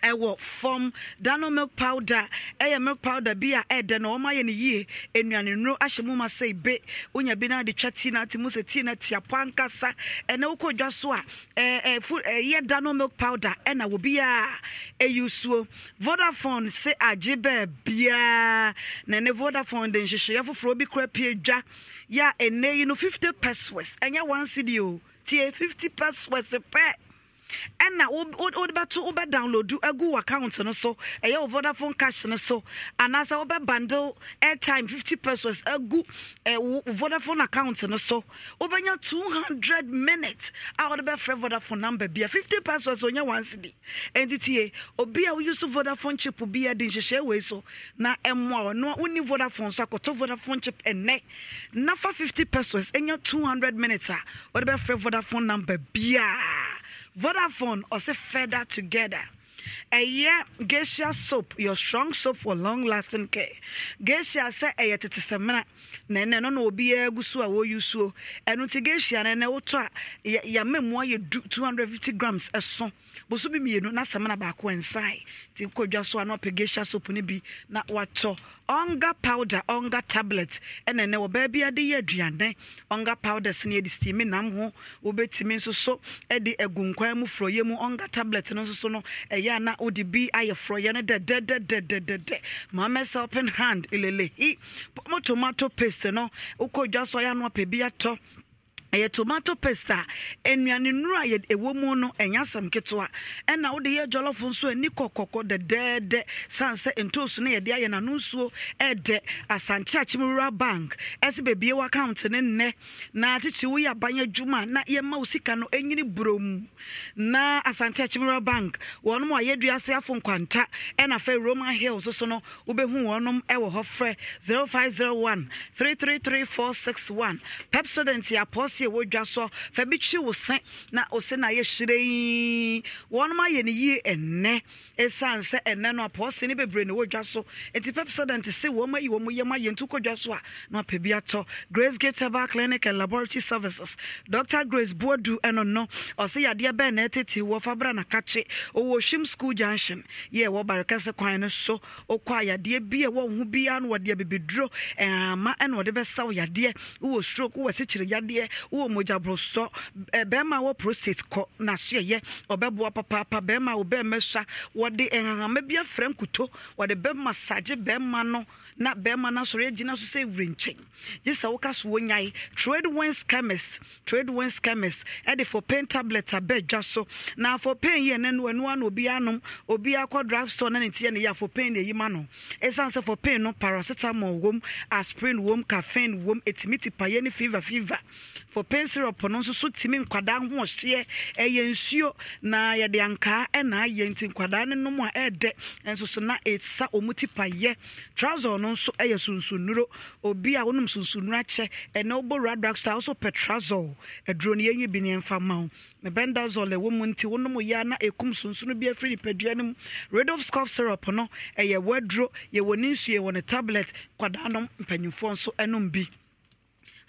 ɛwɔ fam dano milk powder ɛyɛ milk powder bi a ɛdɛ na wɔn ayɛ no yie nnuane nuro ahyɛ mu ma sɛ ebe wonya bi na de twa tea na ate mu sɛ tea na tea po ankasa ɛna wokɔ dwa so a ɛɛ fu ɛyɛ dano milk powder ɛna wɔ bi a ɛyi suo vodafone se agye bɛɛ biara na ne vodafone de nhyehyɛ foforɔ bi kura pie dwa yɛ a ɛnɛ yi no fifty pesos ɛnyɛ one cd o tie fifty pesos pɛ ɛna wode bɛto wobɛ download agu w account no so ɛyɛ wo vodafone cash no so anaasɛ wobɛ bundle airtime 50 pesos agu vodafone account no so wobɛnya 200 minutes a wode bɛfrɛ vodafone number bia 50 pesos onyɛ one cd ɛnti tie obi a woyuso vodafone chip bi a de nhyehyɛ wei so na ɛmmoa ɔno wonni vodafone so akɔtɔ vodafone chip ɛnnɛ na fa 50 pesos ɛnya 200 minutes a wode bɛfrɛ vodafone number biaa Vodafone ɔsɛ Feather together. ɛyɛ geisha soap your strong soap for long lasting care geisha sɛ ɛyɛ tete sɛmina na ɛnɛ no na obiara gu so a wɔyi suo ɛno ti geisha no ɛnɛ wotɔ a yɛmɛmua yɛ du two hundred fifty grams ɛso bosome mmienu na asɛm na baako nsae nti kɔdwa so a na soap no bi na watɔ ɔnga powder ɔnga tablet ɛna ɛnɛ wɔ baabi ade yɛ aduane ɔnga powder so no yɛde steam nam ho wobɛtumi nso so de nkwan mu frɔyɛ mu ɔnga tablet no nso so no ɛyɛ a na wode bi ayɛ frɔyɛ no dɛdɛdɛdɛdɛdɛ mamɛsɛ open hand elelehi mo tomato paste no wokɔdwa so ɔyɛ a na ɔpɛ ɛyɛ tomato paste a nnuane nnuro a ɛwɔ mu no ɛnyɛ asɛm ketewa ɛna wode yɛ jɔlɔfo nso ani kɔkɔkɔ dɛdɛɛdɛ san sɛ ntoosu no yɛde ayɛ n'ano nsuo ɛdɛ asante akyem rural bank ɛsɛ beebie wɔ account nnɛ na tete woyɛ aban adwuma na yɛma wo sika no ɛnyini burom na asante akyem rural bank wɔnom a yɛdua ase afo nkwanta ɛna fɛ roman hill nso so no wobɛhu wɔnom ɛwɔ hɔ frɛ 0501 333461 pepsodent apɔs akɛseɛ ɛwɔ dwa so fa kyi wo se na wo na ayɛ hyerɛn wɔnom ayɛ no yie ɛnnɛ ɛsiane sɛ ɛnnɛ no apɔɔse ne bebree na ɛwɔ dwa so nti pepsodent se wɔm ayi wɔm yɛm ayɛ nti wokɔdwa so a na apɛ bi atɔ grace gatebar clinic and laboratory services Doctor grace boadu ɛno no ɔse yadeɛ bɛɛ na ɛtete wɔ fa bra nakakye ɔwɔ hwim school junction yɛ ɛwɔ barekɛse kwan no so wokɔ a yadeɛ bi a ɛwɔ ho biara no wɔde abɛbɛduro ɛama ɛna wɔde bɛsaw yadeɛ wowɔ stroke wowɔ wowɔ mogya borɔsɔ bɛrima wɔ prostate kɔ n'aso ɛyɛ ɔbɛboa papaapa bɛrima wo bɛrima sua wɔde nhahama bi afrɛ nkuto wɔde bɛrima sagye bɛrima no na bɛrima no asɔre agyina so sɛ wura nkyɛn gye sɛ woka so wɔnyae trade wen scammers trade wen scammers ɛde for pain tablet abɛ dwa so na for pain yɛ no ɛno ana obi anom obi akɔ drug store na ne tiɛ ne yɛ for pain ne ɛyima no ɛsiane sɛ for pain no paracetamol wom aspirin wom caffeine wom ɛtumi ti payɛ ne fever fever for pain syrup no nso so tumi nkwadaa ho ɔhyeɛ ɛyɛ nsuo na yɛde ankaa ɛna ayɛ nti nkwadaa ne nom a ɛɛdɛ nso so na ɛsa ɔmu ti payɛ trouser no no nso yɛ sunsonnuro obi a wonom sunsonnuro akyɛ ɛnɛ wobɔ wura drugstore wosɔ petrazol aduro no yɛnwi bi ne ɛmfa ma wo mebendazol ɛwɔ mu nti wonom yɛ na ɛkum sunsono bi afiri nipadua no mu radof scof syrup no ɛyɛ waduro ne ne tablet kwadaa nso nom bi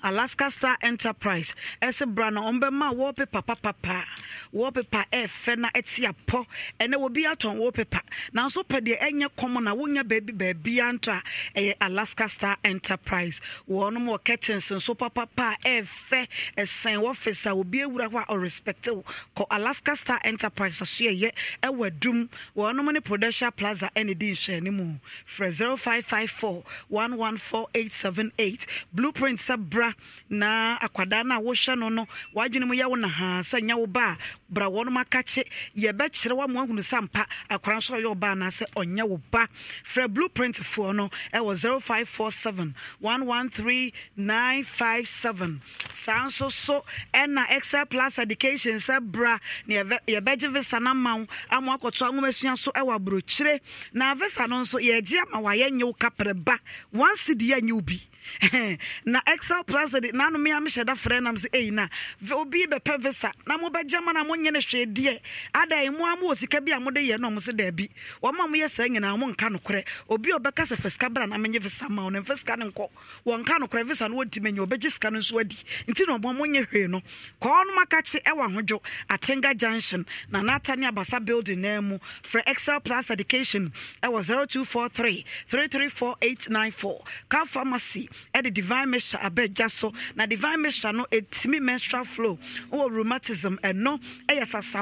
alaska star enterprise ɛsɛ bra no ɔmbɛma wallpaper papapa wallpaper ɛfɛ e na ɛte e apɔ ɛnɛ wɔbi atɔn wallpaper nanso pɛ deɛ ɛnyɛ kɔmɔ na wonya baabi baabia nto a ɛyɛ alaska star enterprise wɔnom wɔ curtains nso papapa ɛfɛ e ɛsɛn wɔfis a obi awura hɔ a ɔrespect wo kɔ alaska star enterprise so ɛyɛ ɛwɔ adum wɔnom ne prudential plaza ɛne di nhyɛne mu frɛ 0554 114878 blueprint sɛ bra na akwadaa no a wohwɛ no no w'adwene mu yɛ wo na haa sɛ nyɛ wo ba a bra wɔnom aka kye yɛbɛkyerɛ wo ama woahunu sɛ mpa akwara nso ɔyɛ wo ba anaasɛ ɔnyɛ wo ba frɛ blueprint foɔ no ɛwɔ 0547 113957 saa nso so ɛna excel plus education sɛ bra na yɛbɛgye visa no ama wo ama akɔto awomasua so ɛwɔ aburokyire na visa no nso yɛgye ama wayɛ nyɛ wo kaprɛ ba wansi de yɛ nyɛ wo bi na excel plus de nano me amhyɛ da frɛ nam sɛ ei na obi bɛpɛ visa na mobɛgya ma na monyɛ no hwɛ deɛ ada mu a mowɔ sika bi a mode yɛ no ɔmo sɛ daabi wɔma moyɛ saa nyinaa monka nokorɛ obi a ɔbɛka sɛ fa sika bra na menyɛ visa ma wo no mfa sika no nkɔ wɔnka nokorɛ visa no wɔnti manya ɔbɛgye sika no nso adi nti na ɔbɔ monyɛ hwee no kɔɔ no maka ɛwɔ ahodwo atenga junction na nata ne abasa building naa mu frɛ excel plus education ɛwɔ 0243 334894 car pharmacy the divine measure abɛgya so na divine measure no ɛtumi menstrual flow or rheumatism ɛno eh, no eh, sasaborɔ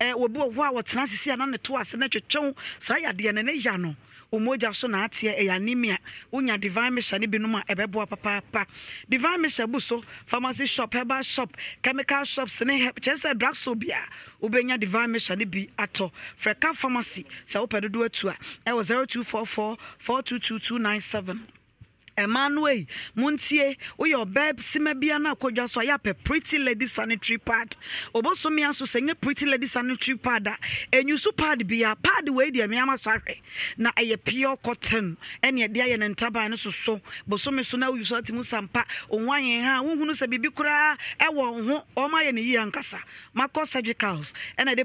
wɔbi wɔ bro eh, a we sisi a na ne to ase na twetwew saa yadeɛ no ne ya no omogya so na ateɛ ɛyɛ anemia wonya divine mission no binom a papa papaapa divine mission bu so pharmacy shop herbal shop chemical shops ne kyerɛ sɛ drugstore bi a wobɛnya divine mission ni bi ato frɛka pharmacy sɛ wopɛ dodo atu a ɛwɔ 0244 422297 ɛma no ei montie babe, ɔbaa sima bia no akɔdwa pretty lady sanitary pad ɔbɔsome a so sɛ pretty lady sanitary pad a ɛnyusu pad bia pad wei deɛ na ɛyɛ pure cotton ɛne ɛde ayɛ ne ntaban so soso bosome so na woyusu ate mu sampa ɔho ayɛ ha wohunu sɛ biribi koraa ɛwɔ ho ɔma ayɛ ne yie ankasa makɔ surgicals ɛna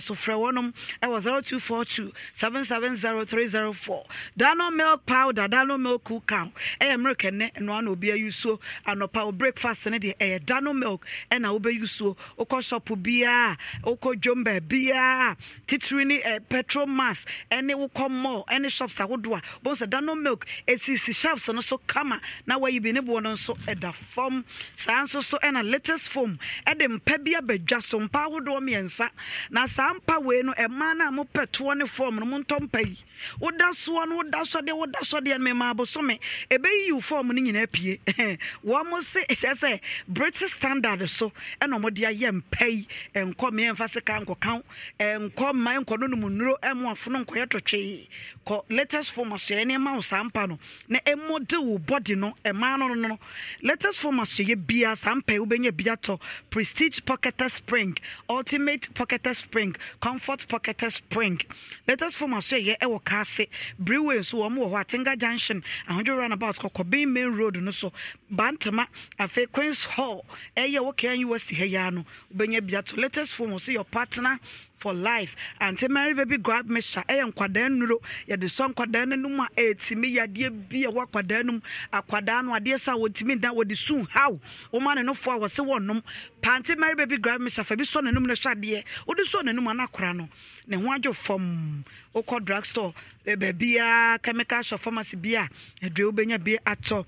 so 0242 770304 dano milk powder dano milk cool ho ɛyɛ milk ɛnɛ ɛnoa na obi ayusuo anɔpa o breakfast ne deɛ ɛyɛ dano milk ɛna wobɛyusuo wokɔ shop biaa wokɔ dwom baabiaa titiri ne eh, petrol mass ɛne wokɔ mall ɛne shops ahodoɔ a bohu sɛ dano milk ɛsisi shelves no so kama na wayi bi ne boɔ no nso ɛda fam saa nso so ɛna latest foam ɛde mpa bi abadwa so mpa ahodoɔ mmiɛnsa na saa mpa wei no ɛmaa no a mopɛ toɔ ne fam no montɔ mpa yi woda soɔ no woda sɔdeɛ woda sɔdeɛ no mema abosome ɛbɛyi yiw fɔm no nyinaa pie wɔn mo se ɛhyɛ sɛ british standard so ɛna wɔn de ayɛ mpɛ yi nkɔ mmea mfa sika nkɔkan nkɔ mmaa nkɔ no nom nnuro ɛmo afono nkɔyɛ tɔtwe kɔ latest form asɔɛ nneɛma wɔ saa mpa no na ɛmo de wo body no ɛmaa no no no latest form asɔɛ bia saa mpa yi wobɛnya bi atɔ prestige pocketer spring ultimate pocketer spring comfort pocketer spring latest form asɔɛ yɛ ɛwɔ kaase brewery nso wɔn wɔ hɔ atenga junction ahodwora roundabout kɔkɔ bin main road no so bantama afei queens hall ɛyɛ wɔ kan us ha yia no wobɛnya bia to latest phone wɔ sɛ your partner for life ante mary baby grab me sha ɛyɛ nkwadaa nnuro yɛde sɔ nkwadaa no nom a ɛtumi yadeɛ bi ɛwɔ akwadaa no mu akwadaa no adeɛ sɛ wɔtumi da wɔde su haw woma ne nofoɔ a wɔse wɔnom pante mary baby grab me sha fa bi sɔ n'anom no hyɛ adeɛ wode sɔ n'anom a no no ne ho adwo fam wokɔ drug store eh, baabiaa chemical shop pharmacy bi a adua wobɛnya bi atɔ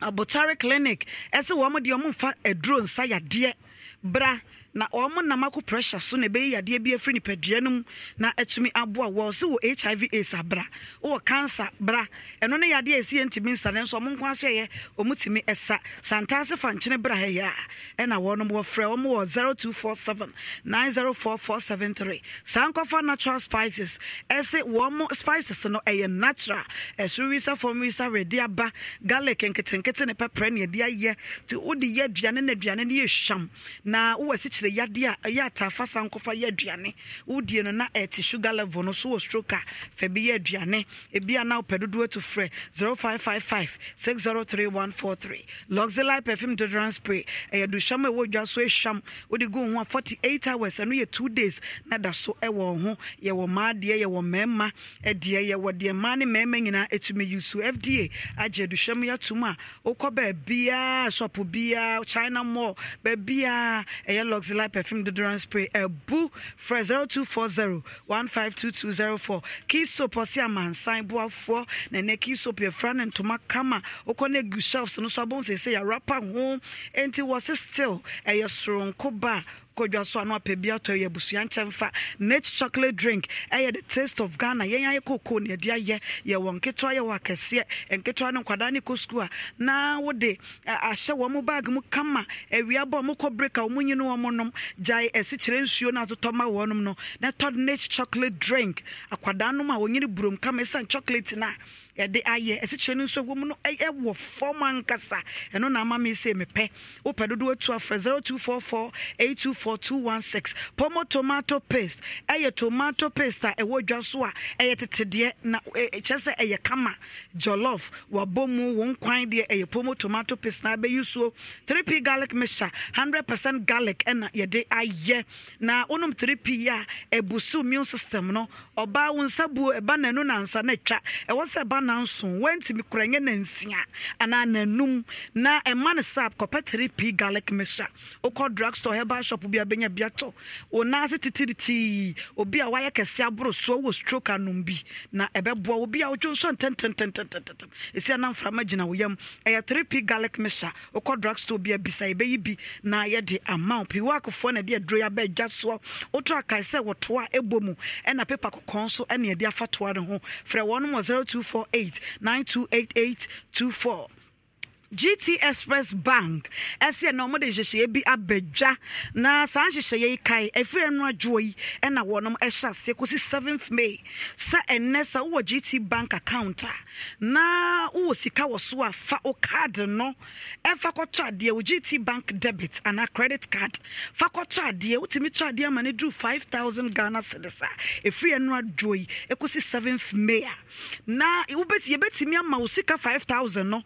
abotare clinic ɛsɛ wɔn deɛ wɔmfa aduro nsa yadeɛ bra na ɔmo nam akɔ pressure so na ɛbɛyi yadeɛ bi afiri nipadua no mu na atumi aboa wɔ sɛ wɔ hiv aids abra wɔ cancer bra ɛno ne yadeɛ ɛsi yɛ ntumi nsa ne nso ɔmo nko aso yɛ ɔmo tumi ɛsa santaase fankyene bra ha yɛ a ɛna wɔnom wɔfrɛ ɔmo wɔ seven three saa nkɔfa natural spices ɛse wɔmo spices no ɛyɛ natural ɛsoro wisa fam wisa redi aba garlic nketenkete ne pɛprɛ ne yɛde ayɛ nti wode yɛ aduane na aduane no yɛ hwam na wowɔ asikyire kyerɛ yadeɛ a ɛyɛ ataafa sa nkɔfa yɛ aduane wodie no na ɛte sugar level no so wɔ stroke a fa bi yɛ aduane ebi a na wopɛ dodoɔ to frɛ 0555 603143 luxely perfume deodorant spray ɛyɛ duhyam a ɛwɔ dwa so ahyam wode gu wo ho a 48 hours ɛno yɛ 2 days na da so ɛwɔ wo ho yɛwɔ mmaa deɛ yɛwɔ mmarima deɛ yɛwɔ deɛ mmaa ne mmarima nyinaa ɛtumi yi so fda agye aduhyam yɛ atom a wokɔ baabiaa shop biaa china mall baabiaa ɛyɛ luxely Priscilla perfume deodorant spray ɛbu frɛ zero two four zero one five two two zero four kii soap ɔsi amansan buafoɔ na ɛnɛ kii soap efra ne ntoma kama okɔ ne gu shelves no so abom sese yɛ rapa ho nti wɔsi still ɛyɛ soronko kodwa so ano apɛ bi atɔ yɛ abusua nkyɛn fa mate chocolate drink ɛyɛ the taste of ghana yɛn ayɛ koko ne ɛde ayɛ yɛwɔ nketewa yɛwɔ akɛseɛ nketewa no nkwadaa ne kɔ sukuu a na wode ahyɛ wɔn mo baage mu kama awia bɔ mo kɔ break a wɔn nyine wɔn nom gyae asikyerɛ nsuo no atotɔ ma wɔn nom no na tɔ mate chocolate drink akwadaa nom a wɔnyine burom kama esan chocolate na yɛde ayɛ ɛsikyerɛ no nso ɛwɔ mu no ɛwɔ fam ankasa ɛno na ama mi sɛ mepɛ wopɛ dodoɔ tu afrɛ zero two four four eight two four two one six pomo tomato paste ɛyɛ tomato paste a ɛwɔ dwa so a ɛyɛ tetedeɛ na ɛkyɛ sɛ ɛyɛ kama jollof wabɔ mu wɔn kwan deɛ ɛyɛ pomo tomato paste na abɛyi suo three p garlic mixture hundred percent garlic ɛna yɛde ayɛ na wɔnom three p yɛ a ɛbusu immune system no ɔbaa wɔn nsa buo ɛba n'anu nansa n'atwa ɛwɔ sɛ ɛba na. nanson wantumi kora nyɛ nansia anaa nanum na ɛma no sap kɔpɛ 3p garlic mixture wokɔ drug store herbal shop bi a bɛnya biatɔ wo nan ase titiritii obi a wayɛ kɛse aboro soɔ wɔ stroke anom bi na ɛbɛboa obi a wodwo nso ntɛntɛntɛntɛntɛm ɛsi ana mframa gyina wo yam ɛyɛ 3p garlic mixture wokɔ drug store bi a bisa bi na yɛde ama wo pii na ɛde aduro yi abɛadwa soɔ wotɔ akae sɛ wɔtoa ɛbɔ ɛna pepa kɔkɔɔ nso ɛne ɛde ne ho frɛ 024 Eight nine two eight eight two four gt express bank ɛsɛ na ɔmode nhyehyɛeɛ ebi abadwa na saa nhyehyɛeɛ yi kae ɛfiri ɛno adwoɔ yi ɛna wɔnom ɛhyɛ aseɛ kɔsi 7th may Sa ɛnɛ sɛ wowɔ gt bank account a na wowɔ sika wɔ so a fa wo card no ɛfa kɔtɔ adeɛ wo gt bank debit ana credit card fa kɔtɔ adeɛ wotumi tɔ adeɛ ama no duru 5000 ghana cedis a ɛfiri ɛno adwoɔ yi ɛkɔsi 7th may a na wobɛti yɛbɛtumi ama wo sika 5000 no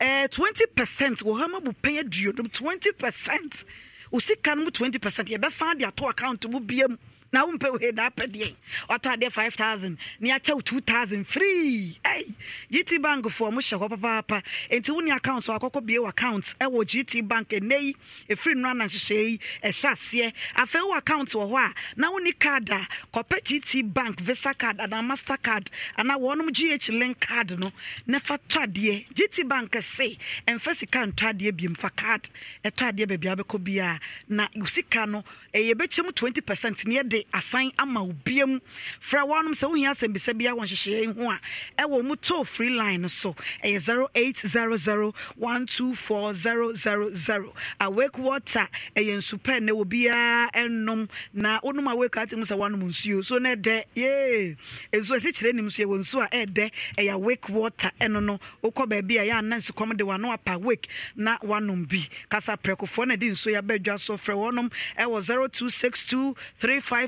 Eh, twenty percent wɔ ha ma bu pɛn aduonum twenty percent Usi kanu twenty percent yɛbɛsan di ato account mu bia na wompɛ wei na apɛ deɛ ɔtɔ adeɛ 5000 ne akyɛ wo 2000 free ei gt bank foɔ mo hyɛ hɔ papaapa enti wo ne account so akɔkɔ bie wɔ account ɛwɔ gt bank ɛnɛ yi ɛfiri no ananhyehyɛ yi ɛhyɛ aseɛ afei wo account wɔ hɔ a na wo ne card a kɔpɛ gt bank visa card anaa master card anaa wɔnom gh link card no ne fa tɔ adeɛ gt bank se ɛmfa sika ntɔ adeɛ biem fa card ɛtɔ adeɛ baabi abɛkɔ biara na sika no ɛyɛ bɛkyɛ mu 20 percent ne yɛde de asan ama obia mu fra wɔnom sɛ wohia asɛmbisa bia wɔ nhyehyɛeɛ ho a ɛwɔ mu toll free line so ɛyɛ zero eight zero zero one two four zero zero zero awake water ɛyɛ nsupɛ na obiara ɛnom na wonom awake ati mu sɛ woanom nsuo so no ɛdɛ yee nsuo ɛsi kyerɛ nim nsuo ɛwɔ nsuo a ɛdɛ ɛyɛ awake water ɛno no wokɔ baabi a yɛ ana nsukɔm de wano apa awake na woanom bi kasa prɛkofoɔ na ɛde nsuo yɛabɛdwa so frɛ wɔnom ɛwɔ zero two six two three five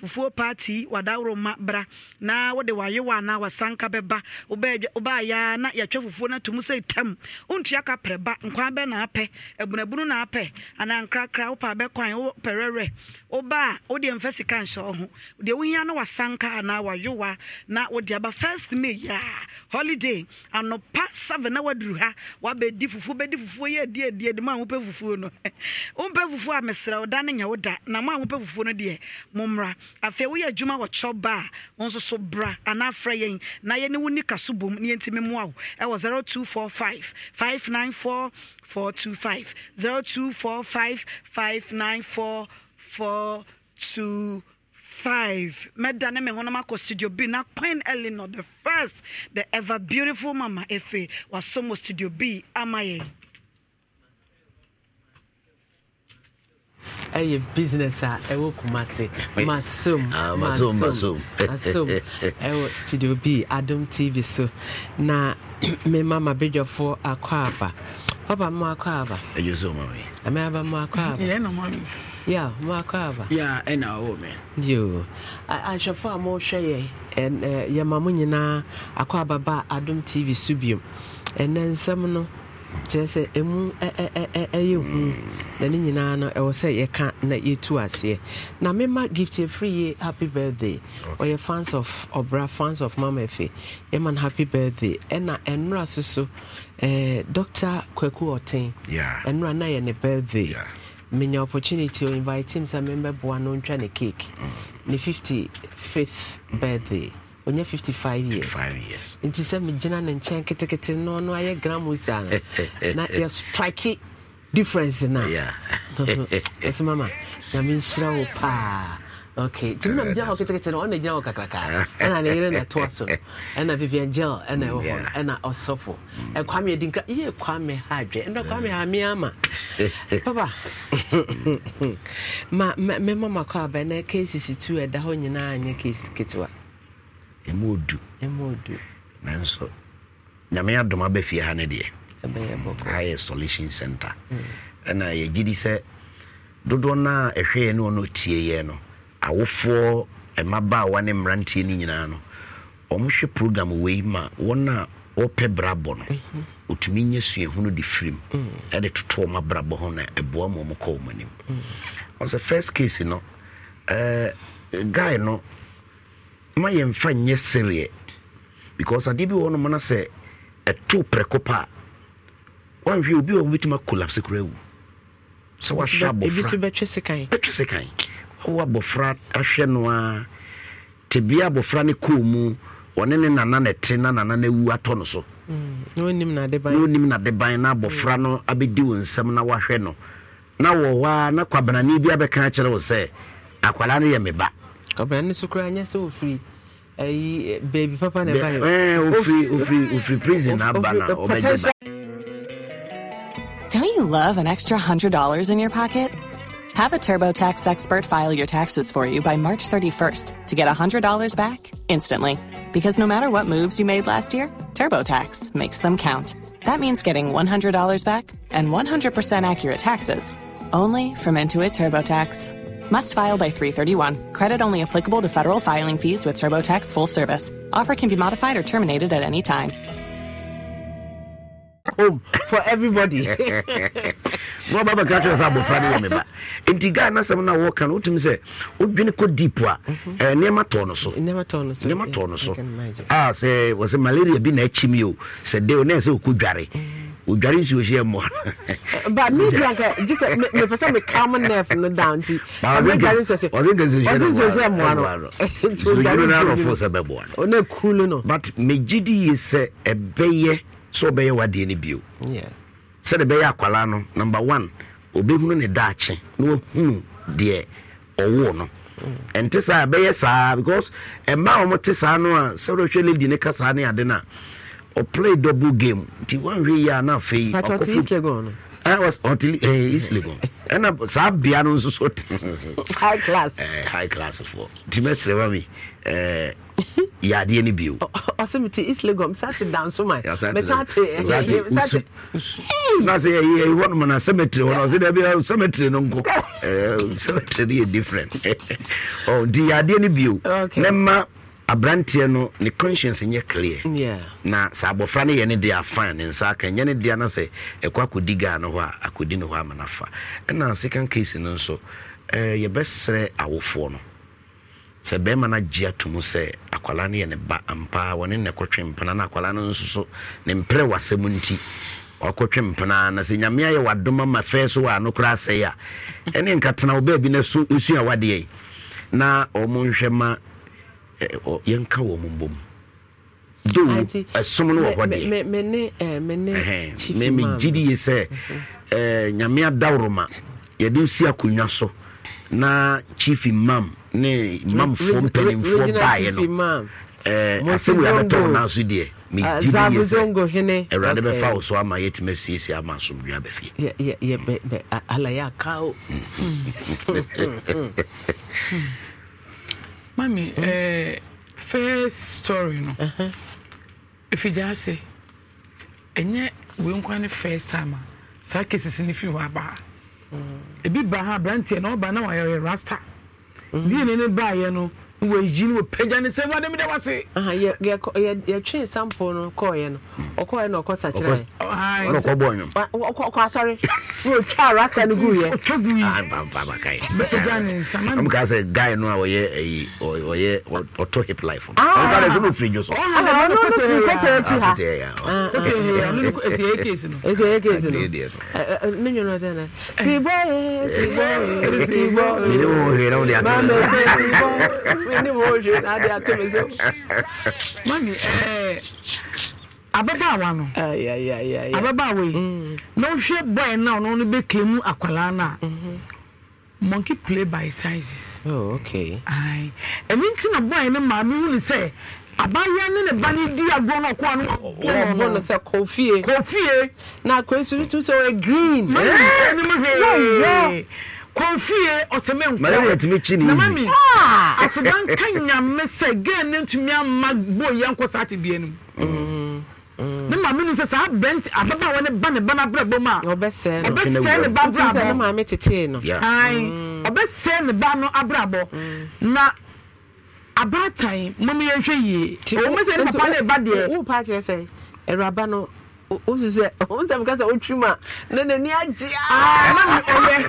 fufuo paati w'adaworo wadaworoma bra na wode wayewa anaa wasanka bɛba wobaayɛa na yɛtwa fufuo no atom sɛ tam wontua ka prɛ ba nkwan bɛ na apɛ abunabunu na apɛ anaa nkrakra wopɛ bɛkwan wopɛrɛrɛ woba a wodeɛ mfa sika nhyɛ wo ho deɛ wohia no wasanka anaa wayowa na wode aba first may yɛa holiday anɔpa 7 na waduru ha wabɛdi fufuo bɛdi fufuo yɛ adi adi adi mu a wopɛ fufuo no wompɛ fufuo a mesrɛ wo da no nyɛ wo da na mo a wopɛ fufuo no deɛ mommra afei woyɛ adwuma wɔ kyɛw ba wo nso so bra anaa frɛ yɛn na yɛne wo nika so bom ne yɛntimi mmoa wo ɛwɔ 0245 594 me honoma ko studio B. Na Queen Eleanor, the first, the ever beautiful Mama Efe was somo studio B. Amaye. ɛyɛ business a ɛwɔ kumase masom masom ɛwɔ studio b adom tv so na me mama bedwafoɔ akɔ aba papa mo akɔ aba ɛyɛ mo akɔ aba ya mo akɔ aba ɛna ɔwɔ mɛ yo ahwɛfoɔ a mohwɛ yɛ yɛma mo nyinaa akɔ aba ba adom tv so biom ɛnɛ nsɛm no kyerɛ sɛ ɛmu ɛyɛ hu mm. na ne nyinaa no ɛwɔ sɛ yɛka na yɛtu aseɛ na mema gift ɛfiri yie happy birthday ɔyɛ fans of ɔbra fans of mama efe yɛma no happy birthday ɛna ɛnora so so dr kwaku ɔten ɛnora na yɛ ne birthday menya opportunity o invite him sɛ membɛboa no ntwa ne cake mm. ne 55th birthday ɔnyɛ 55 years years nti sɛ megyina ne nkyɛn ketekete no ɔno ayɛ gramos a na strike difference no ɛsɛ mama nyame nhyira wo paa okay do you know how to get ɔna the hɔ kakrakaa And I yere na ɛtoa so no ɛna vivian gel ɛna ɛwɔ hɔ ɛna ɔsɔfo and mm. Kwame Dinka, yɛ kwame ha and kwame Hamiama. papa my mamma called aba na ksisi tu ɛda hɔ nyinaa nyɛ kesi ɛmu odu nanso nyame adom abɛfie ha no deɛ ha solution center mm. ɛna yɛgye di sɛ dodoɔ no a ɛhwɛeɛ ne ɔno tieeɛ no awofoɔ ba a wane mmeranteɛ no nyinaa no ɔmohwɛ program wei ma wɔn a wɔpɛ brabɔ no mhm. ɔtumi nyɛ suahunu de firim mm. ɛde toto ɔma brabɔ ho na ɛboa ma ɔmokɔ ɔm anim mm. sɛ first case no uh, guy no ma yɛmfa nyɛ sereɛ because adeɛ bi wɔ nom no sɛ ɛto prɛko pa a wanhwɛ obi wɔ mobɛtumi akolapse kora awu sɛ wahwɛ abɔfra bɛtwe sekan wowɔ abɔfra ahwɛ no a tebea abɔfra no kɔɔ mu ɔne ne nana na ɛte na nana no awu atɔ no so mm, na onim nade ban na abɔfra no abɛdi wo nsɛm na wahwɛ no na wɔ hɔ a na kwabanane bi abɛka kyerɛ wo sɛ akwalaa no yɛ me ba so nyɛ sɛ ayi baabi papa na ɛba prison aba na ɔbɛgye Don't you love an extra $100 in your pocket? Have a TurboTax expert file your taxes for you by March 31st to get $100 back instantly. Because no matter what moves you made last year, TurboTax makes them count. That means getting $100 back and 100% accurate taxes only from Intuit TurboTax. Must file by 331. Credit only applicable to federal filing fees with TurboTax full service. Offer can be modified or terminated at any time. Home oh, for everybody. Mo baba ka kyerɛ sɛ abɔfra no yɛ me ba nti ghana na asɛm no a wɔka no wotumi deep a nneɛma mhm. eh, tɔɔ no so nneɛma tɔɔ no so a sɛ wɔ sɛ malaria bi na akyi mi o sɛ de o na ɛsɛ odware nsuo hyɛ mmoa ba me dua nka gye sɛ mepɛ sɛ mekam nerf no down ɔdware nsuo hyɛ mmoa no nsuodware no arɔfo sɛ bɛboa no but megye di yie sɛ ɛbɛyɛ sɛ ɔbɛyɛ wadeɛ no bio sɛde bɛyɛ akwalaa no number one obɛhunu ne daakye na wahunu deɛ ɔwoo no mm. ɛnte saa ɛbɛyɛ saa because ɛma a wɔte saa no a sɛ wodɛhwɛ lady ne ka saa ne ade no a ɔplay double game nti wanhwɛ yi a na afei ɔtili east legon ɛna eh, eh, saa bea no nso so high class eh, high class foɔ nti mɛsrɛ ma mi yadeɛ no bio ɔsɛ mete east legon mesate danso ma mesate na sɛ yɛyɛhɔ nom na cemetery hɔ no ɔsɛ da bia cemetery no nkɔ cemetery no yɛ different nti yadeɛ no bio ne ma aberanteɛ no ne conscience nyɛ clear na sɛ abɔfra no yɛ ne deɛ afa ne nsa aka nyɛ ne deɛ no sɛ ɛkɔ akɔdi gaa no hɔ a akɔdi no hɔ ama no ɛna second case no nso eh, yɛbɛsrɛ awofoɔ no sɛ bɛrima no agye ato sɛ akwala no yɛ ne ba ampa, wɔne ne kɔtwe mpena na akwala no nso so ne mprɛ wasɛm nti ɔkɔtwe mpena na sɛ nyame ayɛ wadoma ma fɛ so wɔ ano koraa asɛe a ɛne nkatena wo baabi no so nsua na ɔmo nhwɛ ma yɛnka wɔ mu do ɛsom no wɔ hɔ deɛ megyidi ye sɛ mhm. nyame ma yɛde nsi akonnwa so na chief mam ne mamfoɔ mpanimfoɔ baeɛ no asɛm yɛabɛtɔ wo naso deɛ ah, bɛfa wo so ama yɛtumi asiesie ama bɛfie mami mm. eh, first story no ɛfigya uh-huh. ase ɛnyɛ wenkwa ne first time a saa cases no firi hɔ abaa hmm. ebi ba ha aberanteɛ na ɔba na wayɛ rasta hmm. deɛ ne ne baayɛ no wɔyi no wɔpagya ne sɛ wade meda wase yɛtwee sample no kɔɔyɛ no ɔkɔɔyɛ na ɔkɔ sakyerɛɔkɔ asɔre na ɔtwa rasta no guyɛmka sɛ guy no a ɔyɛ ɔyɛ ɔtɔ hip life nso no ɔfiri dwo soɛsɛyɛkɛsnonwonodɛnɛ sibɔyɛ sibɔyɛ sibɔyɛ ni mo eh, eh, hwɛ mm. na adi ato mm-hmm. mi so mami ɛɛ ababaawa no ababaawa yi na ohwɛ bɔyɛ na ɔno no bɛ kile mu akwalaa na monkey play by sizes. oh okay. ayi e ɛni ti na bɔyɛ ne maame wuli sɛ abaayewa ne ne ba ne di agorɔ na ɔkɔ oh, oh, oh, na ɔbɔ no sɛ kɔfie. kɔfie. na akɔnsu tuntun sɛ ɔyɛ green. mami ɛɛ ɛni mo hwɛ. yɛ kɔnfie ɔsɛmɛ nkɔ malaria tumi kyi ne yi asedan ka nyame sɛ gɛn ne ntumi ama bo yɛn nkɔ saa te bie no ne maame no sɛ saa bɛnti ababaawa ne ba ne ba n'abrɛ bɔ mu a ɔbɛsɛɛ no ɔbɛsɛɛ ne ba abrɛ abɔ ne maame tete no ayi ɔbɛsɛɛ ne ba no abrɛ abɔ na abaatan mɔmu yɛn hwɛ yie mi sɛ ne papa ne ba deɛ wo pa akyerɛ sɛ ɛwuraba no wosu sɛ ɔmo sɛ mo kasa otwi mu a na n'ani agye aa ɛyɛ.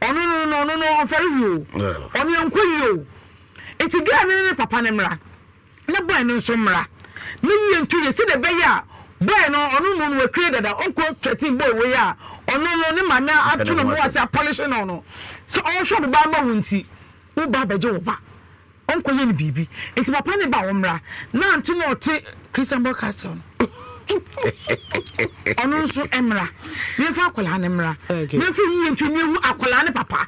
ɔno no no ɔno no ɔmfɛre yio ɔno yɛnkɔ yio nti gaa ne ne papa ne mra ne bɔɛ no nso mra ne yie ntu yɛ sɛ de bɛyɛ a bɔɛ no ɔno no no wakire dada ɔnkɔ twɛtin bɔɔ wei a ɔno no ne ma ato no mu ase apɔlehye no no sɛ ɔhwɛ ɔde baa ma nti abɛgye wo ba ɔnkɔ yɛ no biribi eti papa ne ba wɔ na na ɔte christian castle ɔno nso mmra mefa akwaraa no mmra mefa nwuwɛtwe ne ɛhu akwaraa ne papa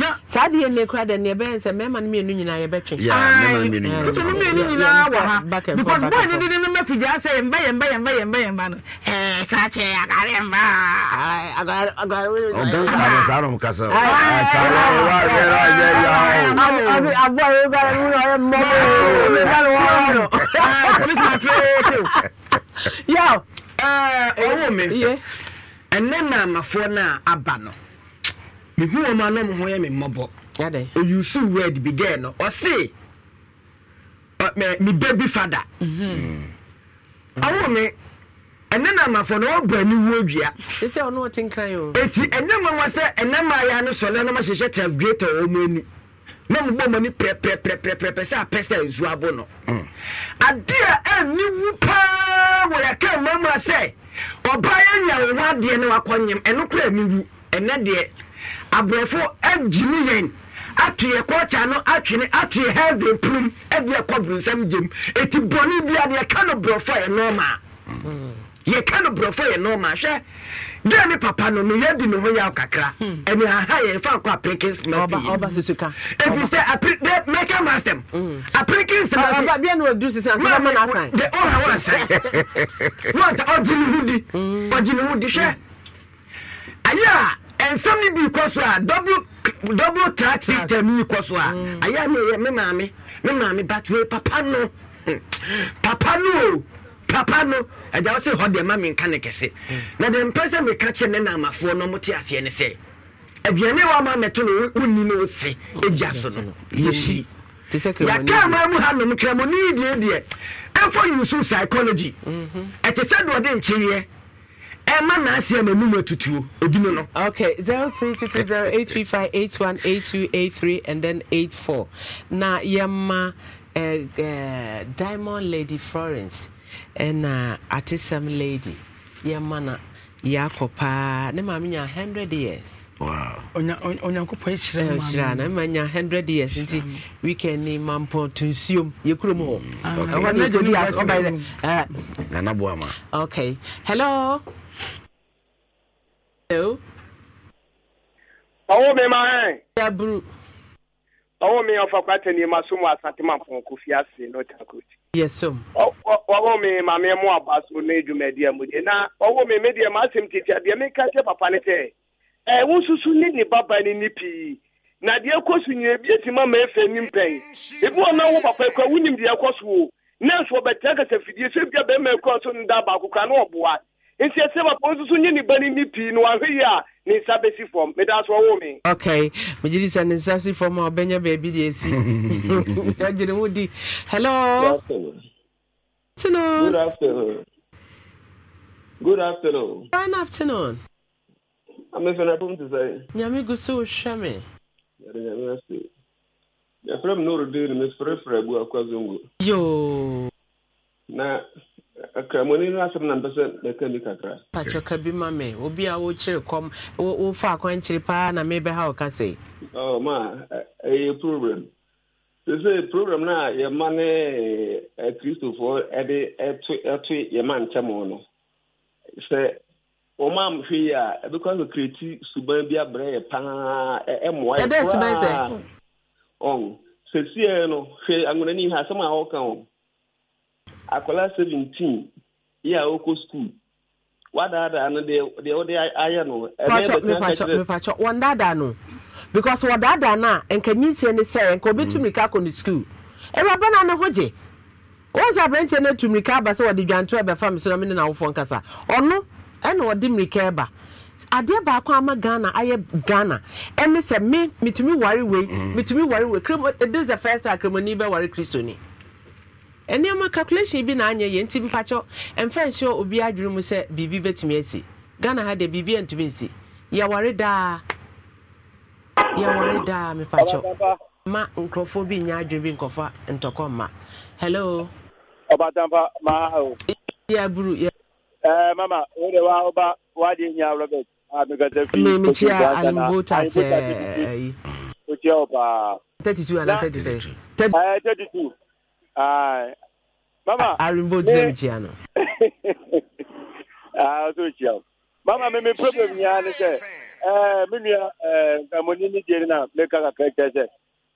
na saa deɛ nne kora dɛ ne ɛbɛyɛ sɛ mmarima no mmienu nyinaa yɛbɛtwe sɛ no mmienu nyinaa wɔ ha because bɔɔ ne dede no mafigyaa sɛ yɛmba yɛmba yɛmba yɛmba yɛmba no kra kyɛ agare mba Aboa yi ba ni mo yɛ mɔ mo yɛ mɔ mo yɛ mɔ. Polisi ma tiri o yaw ɔwɔ mi ɛnɛ na amafoɔ na aba no mihu wɔn a nam ho yɛ mi mmɔbɔ oyusu word bi gɛɛ no ɔsi uh, mi baby father ɔwɔ mi ɛnɛ na amafoɔ na ɔbɔ ani wuo dua eti ɔno ɔte nkran yi o eti ɛnɛ mɔ wɔn sɛ ɛnɛ mmaa yɛ ano sɔlɛ na ɔmo ahyehyɛ tabueta wɔn mu ani na mo bɔ mo ani pɛrɛpɛrɛpɛrɛpɛ sɛ apɛ sɛ nsu abo no mm. adeɛ ɛni wu paa. wɔ yɛka mmamra sɛ ɔbaa yɛ nya wo ho adeɛ ne wakɔnyem ɛno kora ne wu ɛnɛ deɛ aborɔfo agyini yɛn ato yɛ kɔɔkya no atwene ato yɛ heaven prim ɛde ɛkɔ burusam gyem eti bɔne bi adeɛ mm. yɛka no borɔfo yɛ nɔɔma yɛka no borɔfo yɛ nɔɔma hwɛ deɛ ne papa no no yɛdi ne ho yaw kakra ɛne hmm. aha yɛfa kɔ aprikin smafiyi ɛfiri sɛ mɛka ma asɛm aprikin smafiɔha wansɛ wansa ɔgye ne ho di hmm. ɔgye ne ho di hwɛ ayɛ a ɛnsɛm no bi kɔ so a double track system yi kɔ so a hmm. ayɛ a meyɛ me maame me maame batwee papa no papa no o papa no agya wo sɛ hɔ deɛ ma menka ne kɛse hmm. na deɛ mpɛ sɛ meka kyerɛ ne naamafoɔ no mote aseɛ ne sɛ aduane wa ma mɛto no wonni no wo ɛgya so no yɛsi yɛkaa ma mu ha nom kramɔne deɛ deɛ ɛfɔ yusu psychology mhm. ɛte sɛ deɛ ɔde nkyereɛ ɛma n'aseɛ ma mu atutuo ebi mu no. okay zero three two two zero eight three five eight one eight two eight three and then eight four na yɛma ma, eh, eh, diamond lady florence ɛna atesɛm lady yɛma na yɛakɔ paa ne maame nya 100 years onyankopɔn hyira na ma nya 100 years nti weekend eh, ni mampɔ to nsuom yɛkurom hɔ ɛhɔ nanaboa ma okay hello hello ɔwo me ma ɛ yaburu ɔwo me ɔfa kwatani ma so mu asante mampɔn kofi ase no Yes, sir. Ọwọ́ mi maame mu abaso ne dwumadie mu de na ọwọ́ mi mi deɛ m'asɛm tete a deɛ mi ka kyɛ papa ne sɛ ɛwo nsusu ne ne baba ne ne pii na deɛ ɛkɔ so nyina ebi eti ma ma efe ne mpɛn ebi wɔn na wo papa ekura wunim deɛ ɛkɔ so o nɛɛso ɔbɛtɛ kasa fidie so ebi a bɛrima ekura so ne baako kura ne ɔboa nti ɛsɛ bapɔ nso so nyɛ ni ba ni pii no wahwɛ yi a ne nsa bɛsi fam meda so ɔwo me ok megye di sɛ ne nsa si fam a ɔbɛnya baabi de asi agyere wo di hello tino good afternoon good afternoon fine afternoon amefɛna pom te sɛ nyame gu so wohwɛ me yɛde nyame ase yɛfrɛ m norode ne mesfrɛfrɛ abu akwa zongo yo na ka mo ni asɛm na mpɛ sɛ mɛka ni kakra pakyɛka bi ma me obi a wokyere kɔm wofa akwankyere paa na mebɛha oh, eh, eh, eh, wo ka sɛ ma ɛyɛ problem sɛ program no a yɛma ne akristofoɔ de ɛto yɛma ntɛm no sɛ wɔma hwee a ɛbɛkɔ sɛ kreti suban bi abrɛ yɛ paa ɛmmoa yɛ koraa ɔn sɛsiɛ no hwɛ anwonani ha asɛm a wɔka ho akwara 17 ya oko skuul wadaadaa no deɛ wode ayɛ no mepakyɛ wɔndaadaa no because wɔdaadaa no a nka nyinsie ne sɛ nka obɛtu mmirika akɔ ne skuul ɛwuraba no a ne ho gye wɔn sɛ aberanteɛ no atu mmirika aba sɛ wɔde dwanto ɛbɛfa me sɛ me ne n'awofoɔ nkasa ɔno ɛna wɔde mmirika ɛba adeɛ baako ama ghana ayɛ ghana ɛne sɛ me metumi ware wei metumi mm. ware wei e, this is the first time kremoni bɛware ni. nneɛma calculation bi na anya ya nti mpakyɛw mfa nhyɛ obi adwene mu sị, biribi betumi esi' ghana ha deɛ biribi antumi nsi yɛware daa yɛware daa mepakyɛw ma nkurɔfoɔ bi nyɛ adwene bi nkɔfa ntɔkɔ mma hello ɔbatampa maa o yɛaburu ya. ɛɛ mama wo de wa woba wade nya robert a mekasa fi memekyia alimbotat ɛyi wokyia wo paa 32 ana 33 32 mama arimbo di m jia no ah so jia mama me me problem nya ne sɛ eh me nua eh amoni ni jeri na me ka ka kɛ sɛ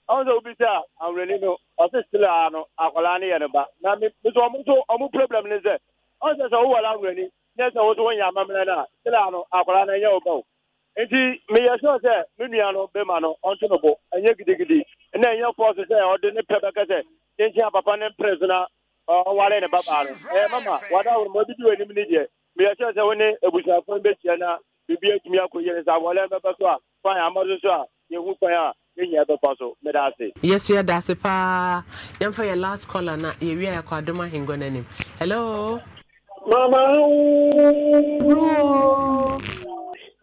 ɔn sɛ obi sɛ a awurani no ɔsi sila no akwadaa ne yɛ ne ba na me me sɛ ɔmo so problem ne sɛ ɔn sɛ sɛ owó wɔ la awurani ne sɛ ɔwɔ so wɔnyɛ amamina na sila no akwadaa na yɛ o ba o nti meyɛ sɛ sɛ me nua no bɛma no ɔnto no bo ɛnyɛ gidigidi na ɛnyɛ fɔɔse sɛ ɔde ne pɛ bɛkɛ sɛ a papa ne mprɛs na ɔware ne babaa no ɛyɛ mama wada woro ma bidi w'anim ne deɛ meyɛ sɛ sɛ wo ne abusuafo no bɛhyia na biribi atumi akɔyie ne sɛ awɔre bɛbɛ so a fan amɔdo so a yɛhu kwan a yɛnyia bɛkɔ so meda ase yɛso yɛda ase paa yɛmfa yɛ last caller na yɛwie a yɛkɔ adom ahengua no anim hello mama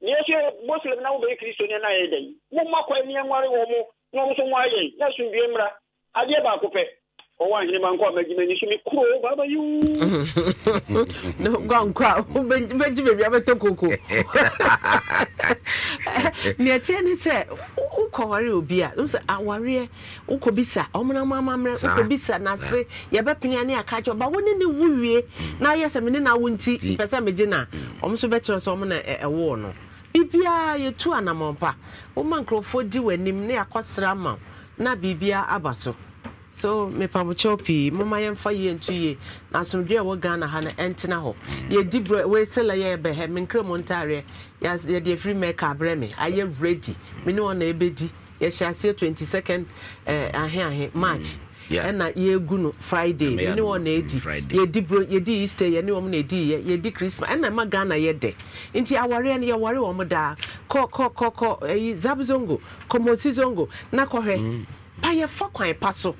na sie mgb osir mna nwụba iki iso onyenaya e e gbụ makw m he nwari wo mụ nyaọụkwụ na-esu mbie mra aja ebu akwupe ɔwɔahene a bebi koko ne sɛ wokɔware obi a sɛ awareɛ nase aka kyɛ ne mm. mm. e, e wo wie na woyɛ sɛ mene na nti pɛ sɛ megye no a so na ɛwoo no biribiaa yɛtu anammɔmpa woma nkurɔfoɔ di w'anim ne ma na biribiaa aba so so mepamokyɛw pii moma yɛmfa yie nto yie na asomdwe a ɛwɔ ghana ha no ɛntena hɔ mm. yɛdi berɛ wɔsɛlɛ yɛ bɛhɛ mu ntareɛ yɛde afiri mɛka abrɛ me ayɛ ready me ne ɔna ɛbɛdi yɛhyɛ aseɛ 22nd ahe ahe march ɛna mm. yɛgu no friday me e mm, ne wɔna ɛdi yɛdi berɛ yɛdi easter yɛne wɔm na ɛdi yɛdi christmas ɛna ɛma ghana yɛdɛ nti awareɛ no yɛware wɔm daa kɔ kɔ kɔ ɛyi eh, zab zongo kɔmɔsi zongo na kɔhwɛ pa yɛfa kwan e pa so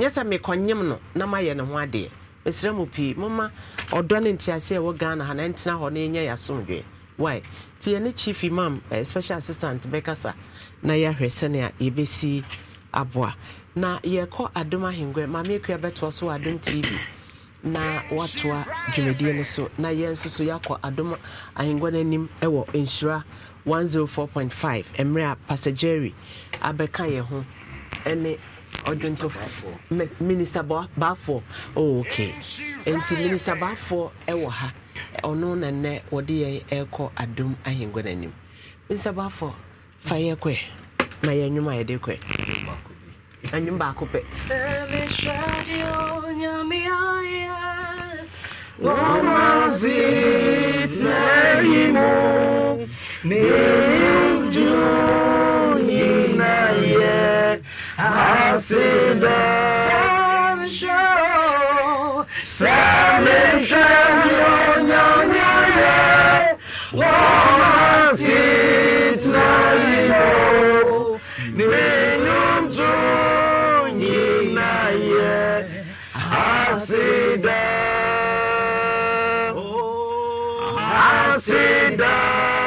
yɛsɛ mekɔnyem no na mayɛ ne ho adeɛ mesrɛ mu pii moma ɔdɔ ne nteaseɛ ɛwɔ ghana ha na ɛntena hɔ na ɛnyɛ yɛ asomdwee why nti yɛne chief imam eh, special assistant bɛkasa na yɛahwɛ sɛnea yɛbɛsi aboa na yɛkɔ adom ahengua maame akua bɛtoa so wɔ adom tv na watoa dwumadie no so na yɛn nso so yɛakɔ adom ahengua no anim ɛwɔ nhyira 104.5 mmerɛ a pastor jerry abɛka yɛn ho ɛne ọdụntụ minista baafoɔ ok nti minista baafoɔ ɛwɔ ha ɔno na nnɛ wɔde yɛn ɛrekɔ adom ahengua minista baafoɔ fa yɛ kɔɛ na yɛ nnwom a yɛde kɔɛ baako pɛ I show. sit na